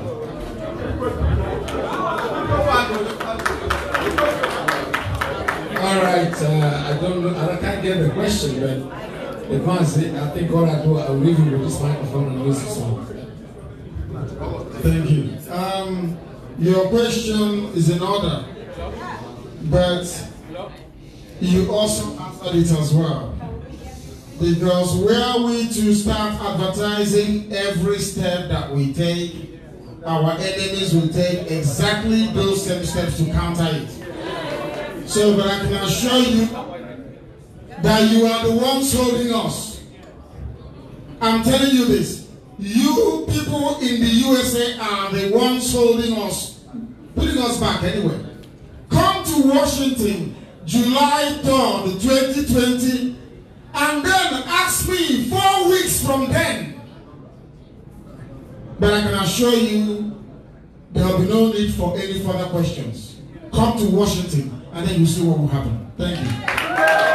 [SPEAKER 4] All right, uh, I don't know, I can't get the question, but the I think all I do, I'll leave you with this microphone and use this one.
[SPEAKER 1] Thank you. Um, your question is in order, but you also answered it as well. Because where we to start advertising every step that we take, our enemies will take exactly those same steps to counter it. So, but I can assure you that you are the ones holding us. I'm telling you this. You people in the USA are the ones holding us, putting us back anyway. Come to Washington July 3rd, 2020, and then ask me four weeks from then. But I can assure you there will be no need for any further questions. Come to
[SPEAKER 13] Washington and then you see what will happen. Thank you.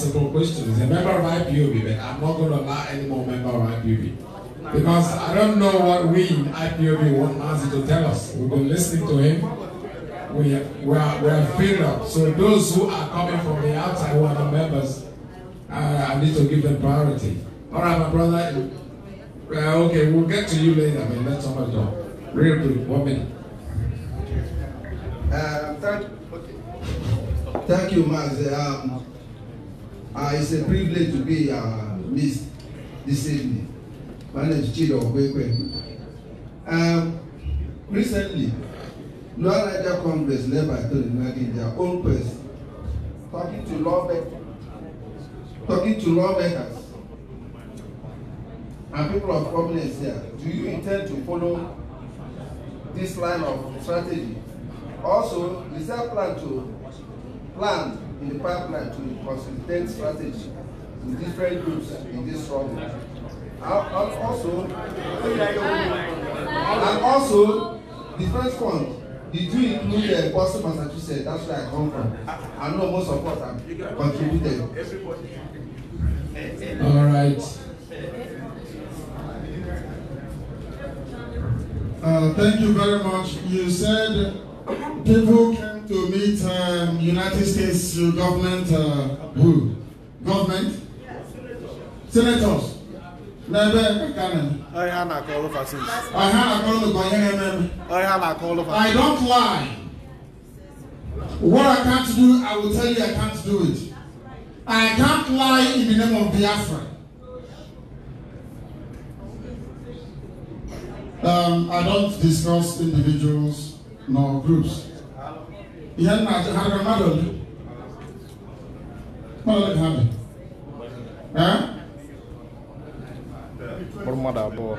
[SPEAKER 4] simple questions. A member of IPOB, but I'm not going to allow any more member of IPOB. Because I don't know what we in IPOB want Mazi to tell us. We've been listening to him. We, we, are, we are filled up. So those who are coming from the outside who are the members, uh, I need to give them priority. All right, my brother. Uh, okay, we'll get to you later, but let somebody go. Real quick, one minute.
[SPEAKER 11] Uh, thank, okay. thank you, Maz. Um, Uh, it's a privilege to be uh, missed this evening. My name is Chido Okwekwe. Um, recently, North Niger Congress led by Tony Nagi their own person, talking to lawmakers, talking to lawmakers and people of prominence here. Do you intend to follow this line of strategy? Also, is there a plan to plan in the partner to consultant strategy with different groups in this struggle. And also, and also, the first fund they do include uh, Boston, Massachusetts. That's where I come from. I know most of us have contributed.
[SPEAKER 13] All right.
[SPEAKER 1] Uh, thank you very much. You said people can to meet um, United States government uh, who?
[SPEAKER 11] Government? Yes. Senators. I don't lie. What I
[SPEAKER 1] can't do, I will tell you I
[SPEAKER 11] can't do it.
[SPEAKER 1] I can't lie in the name of Biafra. Um, I don't discuss individuals nor groups.
[SPEAKER 6] ihe nna achọ ha ga mmadụ ole
[SPEAKER 1] mmadụ ha bi mmadụ abụọ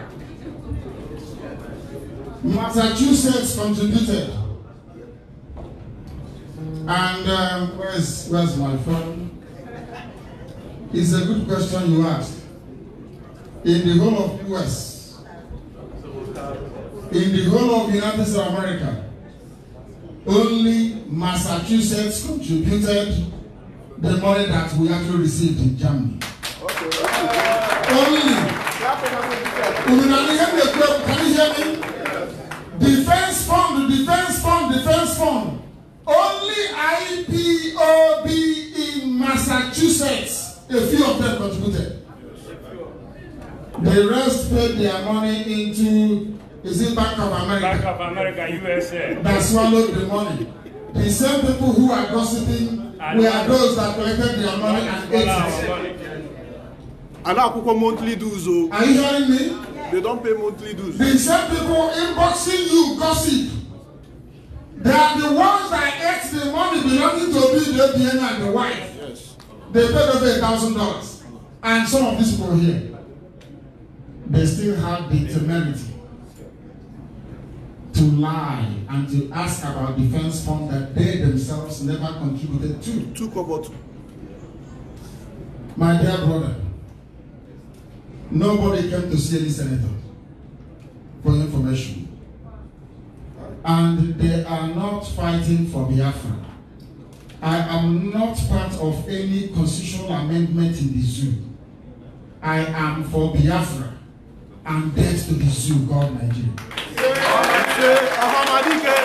[SPEAKER 1] Massachusetts contributed and um, where's where's my phone it's a good question you asked. in the whole of US in the whole of United States of America Only Massachusetts contributed the money that we actually received in Germany. Okay,
[SPEAKER 5] okay. Only.
[SPEAKER 1] Can you hear me? Defense fund, defense fund, defense fund. Only IPOB in Massachusetts, a few of them contributed. The rest paid their money into Is it Bank of America? Bank of America, USA. That swallowed the money. The same people who are gossiping and are those that collected their money and ate
[SPEAKER 5] it. monthly dues. Oh? Are you hearing me? They don't pay monthly dues.
[SPEAKER 1] The same people inboxing you gossip. They are the ones that ate the money belonging to the Diana and the wife. Yes. They paid over a thousand dollars. And some of these people here, they still have the temerity to lie and to ask about defense funds that they themselves never contributed to. Took kobotu. My dear brother, nobody came to see any senator for information. And they are not fighting for Biafra. I am not part of any constitutional amendment in the zoo. I am for Biafra and death to the zoo, God Nigeria. Yeah.
[SPEAKER 5] Monsieur Ahamadike.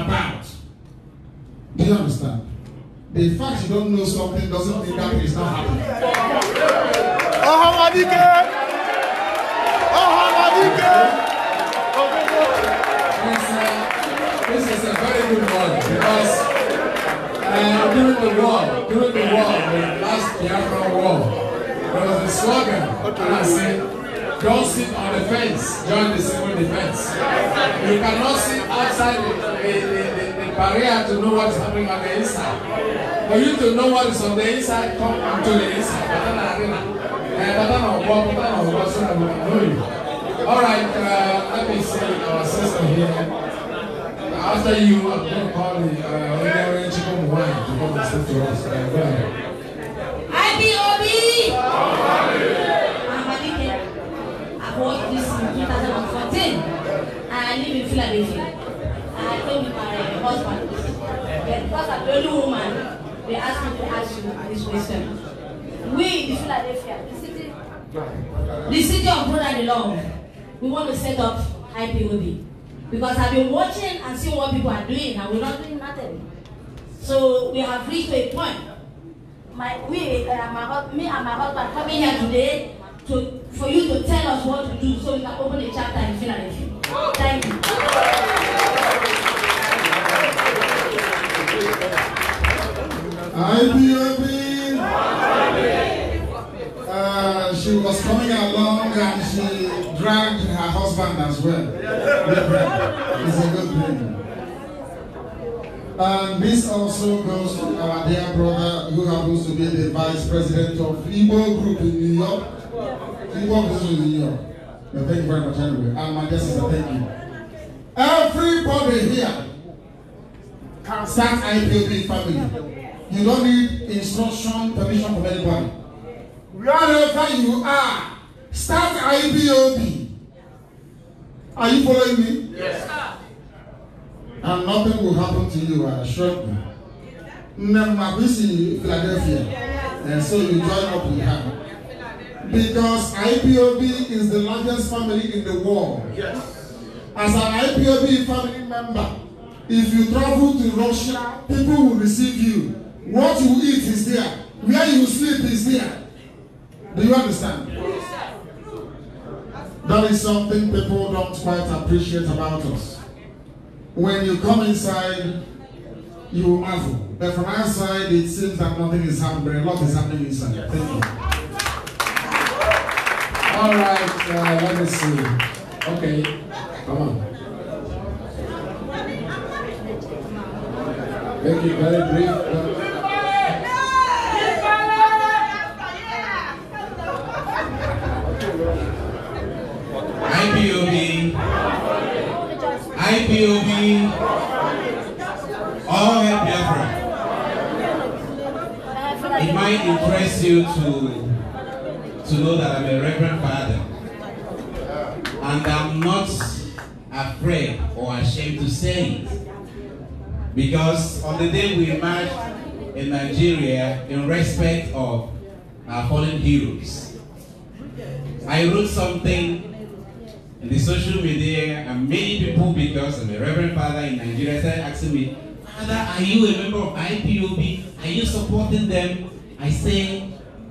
[SPEAKER 1] about. Do you understand? The fact you don't know something doesn't mean that it's not happening. Ọ̀hán Adike!
[SPEAKER 2] Ọ̀hán Adike! Uh,
[SPEAKER 4] this is a very good one because uh, during the war, during the war, the last Biafra war, there was a slogan, okay. and I said, Don't sit on the fence. Join the civil defense. You cannot sit outside the, the, the, the barrier to know what's happening on the inside. For you to know what is on the inside, come onto the inside. Eh, Alright, uh, let me see our sister here. After you, I'm going to call the uh, Chicken Wine to come and speak
[SPEAKER 2] to us. Uh, go ahead.
[SPEAKER 6] IBOB!
[SPEAKER 10] bought this in 2014. I live in Philadelphia. I came with my husband. because I'm the only woman, they asked me to ask you this question. We in Philadelphia, the city,
[SPEAKER 2] the city of
[SPEAKER 10] the love, we want to set up IPOD Because I've been watching and seeing what people are doing, and we're not doing nothing. So we have reached a point. My, we, uh, my, me and my husband coming here today to, for you to tell us what to do so we can open a chapter and finish Philadelphia. Thank you.
[SPEAKER 1] IBOB. Uh, she was coming along and she dragged her husband as well.
[SPEAKER 2] it's a good thing.
[SPEAKER 1] And this also goes to our dear brother who happens to be the vice president of Igbo Group in New York. He walks in here. thank you very much anyway. I'm my guest thank you. Everybody here can start IPOB family. You don't need instruction, permission from anybody. Wherever you are, start IPOB. Are you following me? Yes. Sir. And nothing will happen to you, I assure you. Never busy Philadelphia. And so you join up with her.
[SPEAKER 2] Because
[SPEAKER 1] IPOB is the largest family in the world. Yes. As an IPOB family member, if you travel to Russia, people will receive you. What you eat is there. Where you sleep is there. Do you understand? Yes. That is something people don't quite appreciate about us. When you come inside, you marvel. But from outside, it seems that nothing is happening. A lot is happening inside. Thank you.
[SPEAKER 4] All right, uh, let me see. Okay, come on. Thank you very brief. But...
[SPEAKER 2] IPOB,
[SPEAKER 12] IPOB, all help Biafra.
[SPEAKER 10] It might impress
[SPEAKER 12] you to to know that I'm a reverend father. And I'm not afraid or ashamed to say it. Because on the day we marched in Nigeria in respect of our fallen heroes, I wrote something in the
[SPEAKER 4] social media and many people because I'm a reverend father
[SPEAKER 12] in Nigeria started asking me, Father, are you a member of IPOB? Are you supporting them? I say,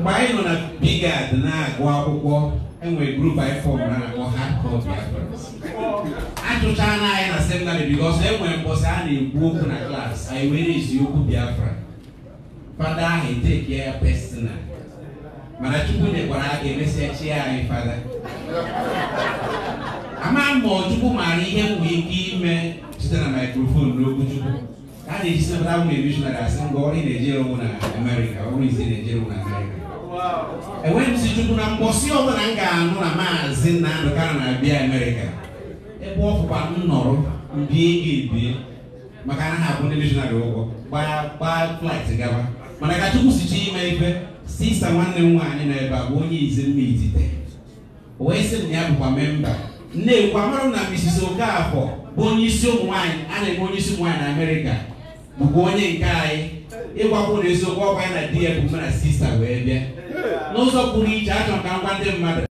[SPEAKER 12] mgbe anyị nọ na bigad na-agụ akwụkwọ enwere grup anyị fọm na na-akpọ hardcore biafrans achụchaa na anyị na seminarị bikos enwere mbọsị a na-ekwu okwu na klaasị anyị were eziokwu biafra fada ahụ eteke ya pesina mana chukwu nyekwara aka emesịa chi anyị fada ama ma chukwu maara ihe m nwee ike ime site na maikrofon n'okwu chukwu a na-eji sepụta ụmụ emishonarị asị ngwa ọrụ ị na-ejere onwe na amerịka ọrụ izi na-ejere onwe na amerịka enweghịzichukwu na mkpọsi ọbụla m ga-anụ na maazị Nnamdi Kanu na-abịa Amerịka ebe ọ fụkwa nnọrọ mbie ga-ebie maka na ha abụ ndị mishonarị ụgwọ gbaa flaịt gaba mana ka Chukwu sichi ime ife sista nwanne m nwaanyị nọ ebe a bụ onye izi mma izite o wee sị m ya bụkwa memba nnekwu amarụ m na Mrs Okafọ bụ onye isi ụmụ nwaanyị a na-eme onye isi ụmụ na Amerịka bụkwa onye nke anyị ịgwakwụ na eziokwu ọkwa ya na di ya bụ mụ na sista wee bịa No pụrụ iche achọrọ ka m gwa